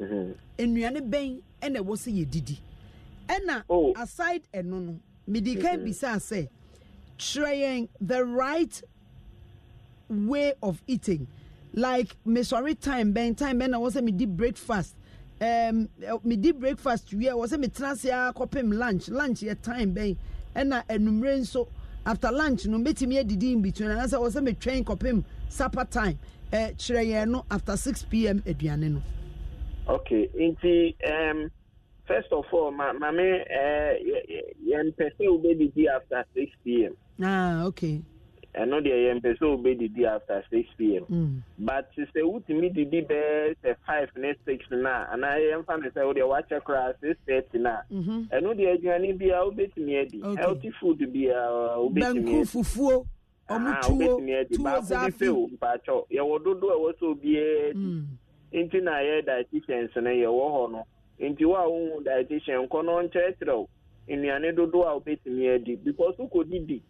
Mm-hmm. nnuane bɛn ɛna ɛwɔ sɛ yɛdidi ɛna oh. aside ɛno no mede ka mm-hmm. bisaa sɛ kyerɛ yɛn the right way of eating like mesɔre time bɛn time bɛn na ɛwɔ sɛ medi breakfast um, medi breakfast wie ɛwɔ sɛ metena ase a kɔpem lunch lunch yɛ time bɛn ɛna anumere nso after lunch no mbɛtumi adidi in between anaasɛ ɛwɔ sɛ metwɛn kɔpem supper time ɛɛ eh, kyerɛ yɛn no after six pm aduane no okay nti um, first of all ma maame eh, yɛmpɛ sɛ wobɛdidi after six pm ah, okay ɛno deɛ yɛmpɛ sɛ wobɛdidi after six pm mm. but sɛ wotumi didi bɛɛ sɛ five ne six no a anaa yɛmfa no sɛ wodeɛ wakyɛ koraa six thirty no a mhm. ɛno deɛ aduane biaa wobɛtumi adi healthy food biaa wobɛtumi fufuo ɔmo tuo tuo zaafi mpakyɛw yɛwɔ dodo a ɛwɔ sɛ obiaa nti na yɛ dietitians no yɛwɔ hɔ no nti wo a wohu dietitian kɔ no nkyerɛkyerɛ wo nnuane dodoɔ a wobɛtumi adi because wokɔdi di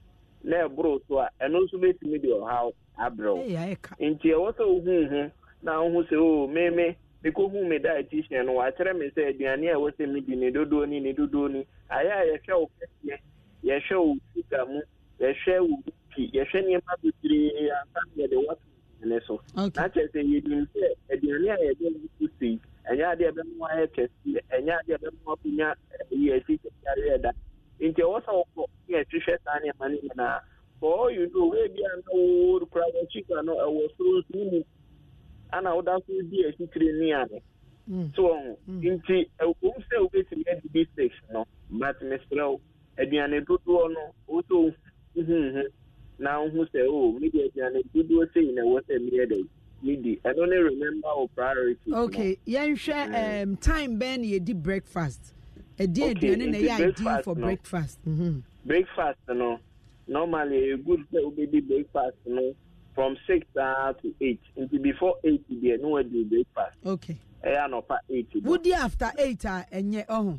na ɛboro so a ɛno nso bɛtumi de ɔhaw abrɛ wo nti ɛwɔ sɛ wohuu ho na wohu sɛ o meme mekɔhu me dietitian no wakyerɛ me sɛ aduane a ɛwɔ sɛ medi ne dodoɔ ni ne dodoɔ ni ayɛ a yɛhwɛ wo kɛseɛ yɛhwɛ wo suga mu yɛhwɛ wo pi yɛhwɛ nneɛma bebree ansa yɛde wɔto ne so na kyerɛ sɛ yɛnim sɛ aduane a yɛde so sei ɛnyɛ adeɛ ɛbɛma ayɛ kɛseɛ ɛnyɛ adeɛ ɛbɛma wonya eh, yɛ akyikyɛareɛ da nti ɛwɔ sɛ wokɔ yɛ hwehwɛ saa nneɛma no nyinaa for all you know wei na woworo kora wɔkyika no ɛwɔ soro nsu mu ana woda so di akyitire nnuane mm. so mm. nti sɛ wobɛtumi adi bi six no but mesrɛ wo aduane dodoɔ no mhm, mhm. na nhu sɛ o oh, media aduane dodoɔ sɛi na ɛwɔ sɛ media da medi ɛno ne remember wo priority okay yɛnhwɛ mm-hmm. um, time bɛn na yɛdi breakfast ɛdi okay, aduane na ɛyɛ ideal for no. breakfast mm -hmm. breakfast no normally ɛyɛ good sɛ wobɛdi breakfast no from six uh, to eight until before eight deɛ ne wadi breakfast okay ɛyɛ eh, anɔpa eight wodi after eight a ɛnyɛ ɔho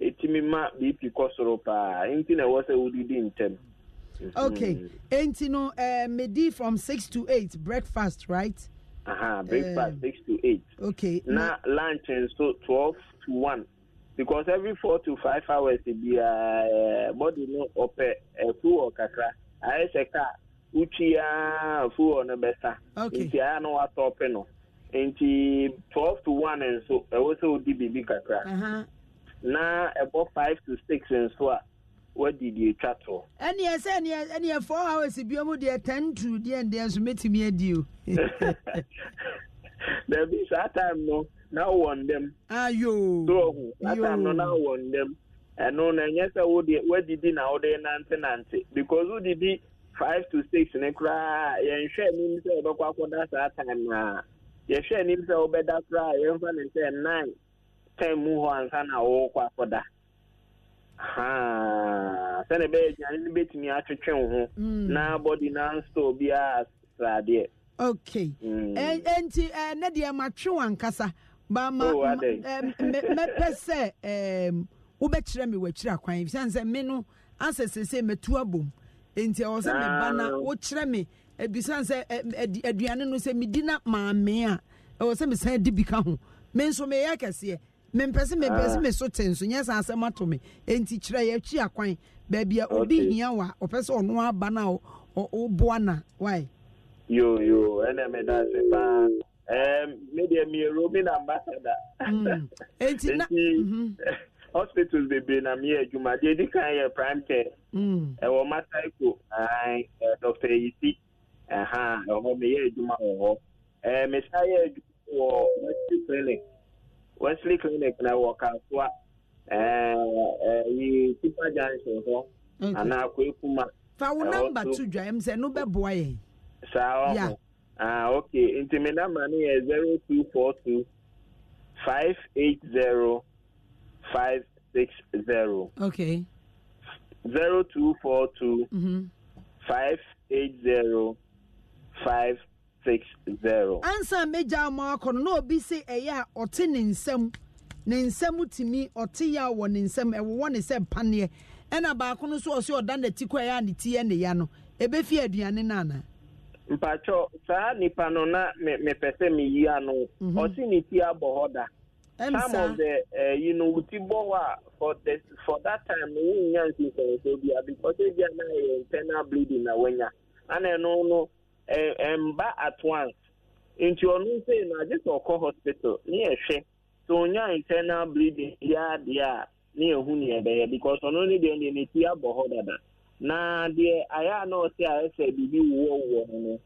ɛtumi ma bp kɔ soro paa nti na ɛwɔ sɛ wodidi ntɛm okay mhm. nti no eh, medi from six to eight breakfast right breakfast eh, six to eight okay na, lunch nso twelve to one because every four to five hours e biara uh, eh, body no ɔpɛ ɛfuwɔ kakra ayɛ sɛ kaa wotwia fuwɔ no bɛsa okay nti ayɛ no watɔpe no nti twelve to one nso ɛwɔ e sɛ wodi biribi kakra. na ɛbɔ five to six nso a wɔde deɛ atwa to. ɛneɛ sɛ ɛneɛ ɛneɛ four hours bi mu deɛ ten to deɛ ndeɛ nso mɛtumi adi o. dabi saa time no na wɔ ndɛm. ayo yoo saa time no na wɔ ndɛm ɛno na ɛnyɛ sɛ wɔde wɔdidi na wɔde nante nante because wɔdidi five to six ne koraa yɛnhwɛ anim sɛ wɔbɛkɔ akɔda saa time na yɛhwɛ anim sɛ wɔbɛda koraa yɛnfa ne sɛ nine. tem hɔ ansa na wɔrekɔ akɔda sɛne ɛbɛyɛ aduane no bɛtumi atwetwe wo ho mm. na body na nstɔ biaa sradeɛ okay mm. enti eh, ne deɛ matwe wankasa bamɛpɛ oh, eh, sɛ wobɛkyerɛ me wakyiri akwan ɛfiane sɛ me no asɛ sesei mɛtu abom enti ɛwɔ sɛ meba na ah. wokyerɛ me ebisane eh, sɛ aduane no sɛ medi na maame a ɛwɔ sɛ mesan di bi ka ho me nso meyɛ kɛseɛ mempɛsɛ mempɛsɛ ah. me so te nso nyɛ saa asɛm ato me enti kyerɛ yɛakyi akwan baabi a obi hia wa ɔpɛ sɛ ɔno aba no a woboa na yo, yoyo ɛnɛ meda ase paa medeɛ meyɛ roman ambassador mm. enti na mhm. hospitals bebree na meyɛ adwuma deɛ ɛdi kan yɛ prime care mm. ɛwɔ masaiko dr yisi ɛha ɛhɔ meyɛ adwuma wɔ hɔ mesan yɛ adwuma wɔ clinic wesley clinic na wɔ kasoa eh, eh, yi tipa junction hɔ anaa kwekuma. fa wo eh, namba to dwa m sɛ no bɛboa yɛ. saa ɔmo ah okay nti mi namba no yɛ zero two four two five eight zero five six zero. okay. zero two four two. Mhm. five eight zero five six ansa mmejọ ama akọ no na obi si ɛyɛ a ɔte ne nsam ne nsam tumi ɔte ya wɔ ne nsam ɛwɔwɔ ne sɛ mpaneɛ ɛna baako no nso ɔsi ɔda n'ati kɔ ɛyɛ a ne ti yɛ ne ya no ebefi aduane nana. mpatsɔ saa nipa no na mepɛ sɛ meyi ano mhm. ɔsi ne ti abɔ hɔ da. some of the uh, you know wuti bɔ hɔ a for the for that time wo nya nsi nsɛnsɛn bia because ebi anaghɛ internal bleeding na wɔnya ana ɛno no Eh, mba at once nti ɔno eh, na agye sɛ hospital ne yɛhwɛ sɛ internal bleeding ya a e ne dada na deɛ ayɛ a na ɔte ayɛ sɛ biribi wowɔwowɔ no no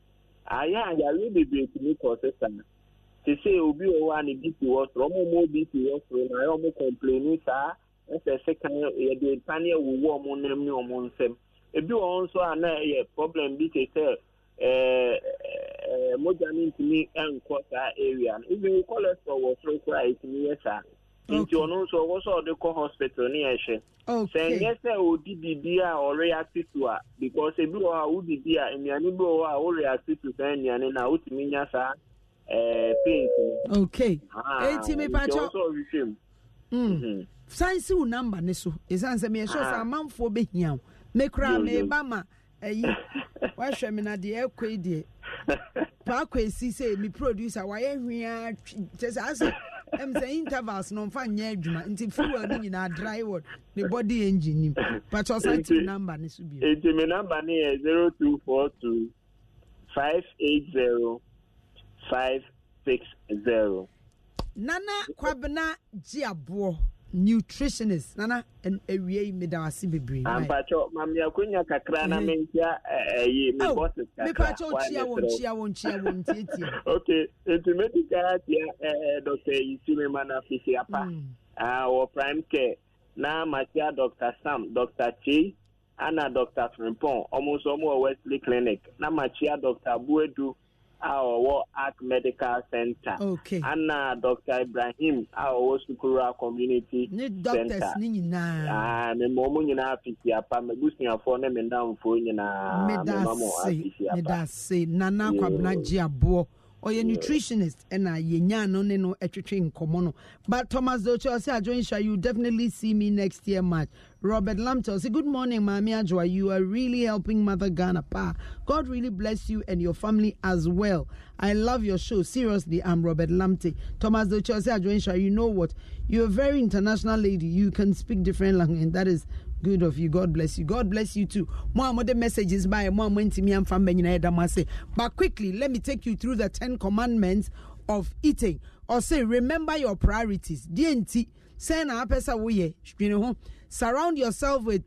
ayɛ a yare bebree tumi obi na a ya si soro obi si soro na ya ọmụ kɔmpleni saa ɛsɛ sɛ wụwa ebi a na ɛyɛ problem bi te mogya no ntumi nkɔ saa area no even cholesterol wɔ soro koraa ɛtumi yɛ saa nti ɔno nso ɔwɔ sɛ ɔde kɔ hospital ne yɛhwɛ sɛ nyɛ sɛ ɔdi biribi a ọrịa to a because ebi wɔ hɔ a wodidi a nnuane bi wɔ hɔ a woreacte to saa nnuane no wotumi nya saa eh, paint no okay ah, enti mepakyɛ san mm. mhm. si wo namba ne so ɛsiane sɛ meyɛhyɛ sɛ ah. amanfoɔ bɛhia wo ma eyi wahwɛ mi na deɛ ɛkɔ yi deɛ paako esi sɛ mi producer wayɛ hwia kyɛ sɛ asɛ ɛm sɛ intervals no nfa nyɛ adwuma nti fuel no nyinaa dry word ne body engine nim pàtó ɔsan ti mi namba ne so bio. eti mi namba ne yɛ zero two four two five eight zero five six zero. nana kwabena ji aboɔ. nutritionist nana awie yi meda ase bebree. ampatsɔ ah, maame akonya kakra na mi nkyia ɛyi mi bɔsi kakra mipatsɔ nkyia wɔn nkyia wɔn nkyia wɔn ntiatia. ok etu meti kaa tia ɛɛ dɔkita yisimi mana fisi apa wɔ mm. ah, prime care na matia dɔkita sam dɔkita chi ana dɔkita frimpong ɔmo nso ɔmo wɔ wesley clinic na matia dɔkita buedu a ɔwɔ arc medical center okay. Anna, dr ibrahim a ɔwɔ sukura community ne doctors ne nyinaa mema ɔmo nyinaa afisiapa mabusuafoɔ ne me ndamfoɔ nyinaa mema mo afisiapa nana kwabena gye aboɔ ɔyɛ nutritionist ɛna yɛnya no ne no ɛtwetwe nkɔmmɔ no but thomas docho ɔsɛ adwenhya you definitely see me next year march Robert Lamtel. Say, Good morning, Mami Ajwa. You are really helping Mother Ghana Pa. God really bless you and your family as well. I love your show. Seriously, I'm Robert Lamte. Thomas Dochose Adwensha, you know what? You're a very international lady. You can speak different language, and that is good of you. God bless you. God bless you too. More more the messages by more me and family. But quickly, let me take you through the Ten Commandments of eating. Or say, remember your priorities. DNT sɛ na apɛ sɛ woyɛ dwene ho surround yourself with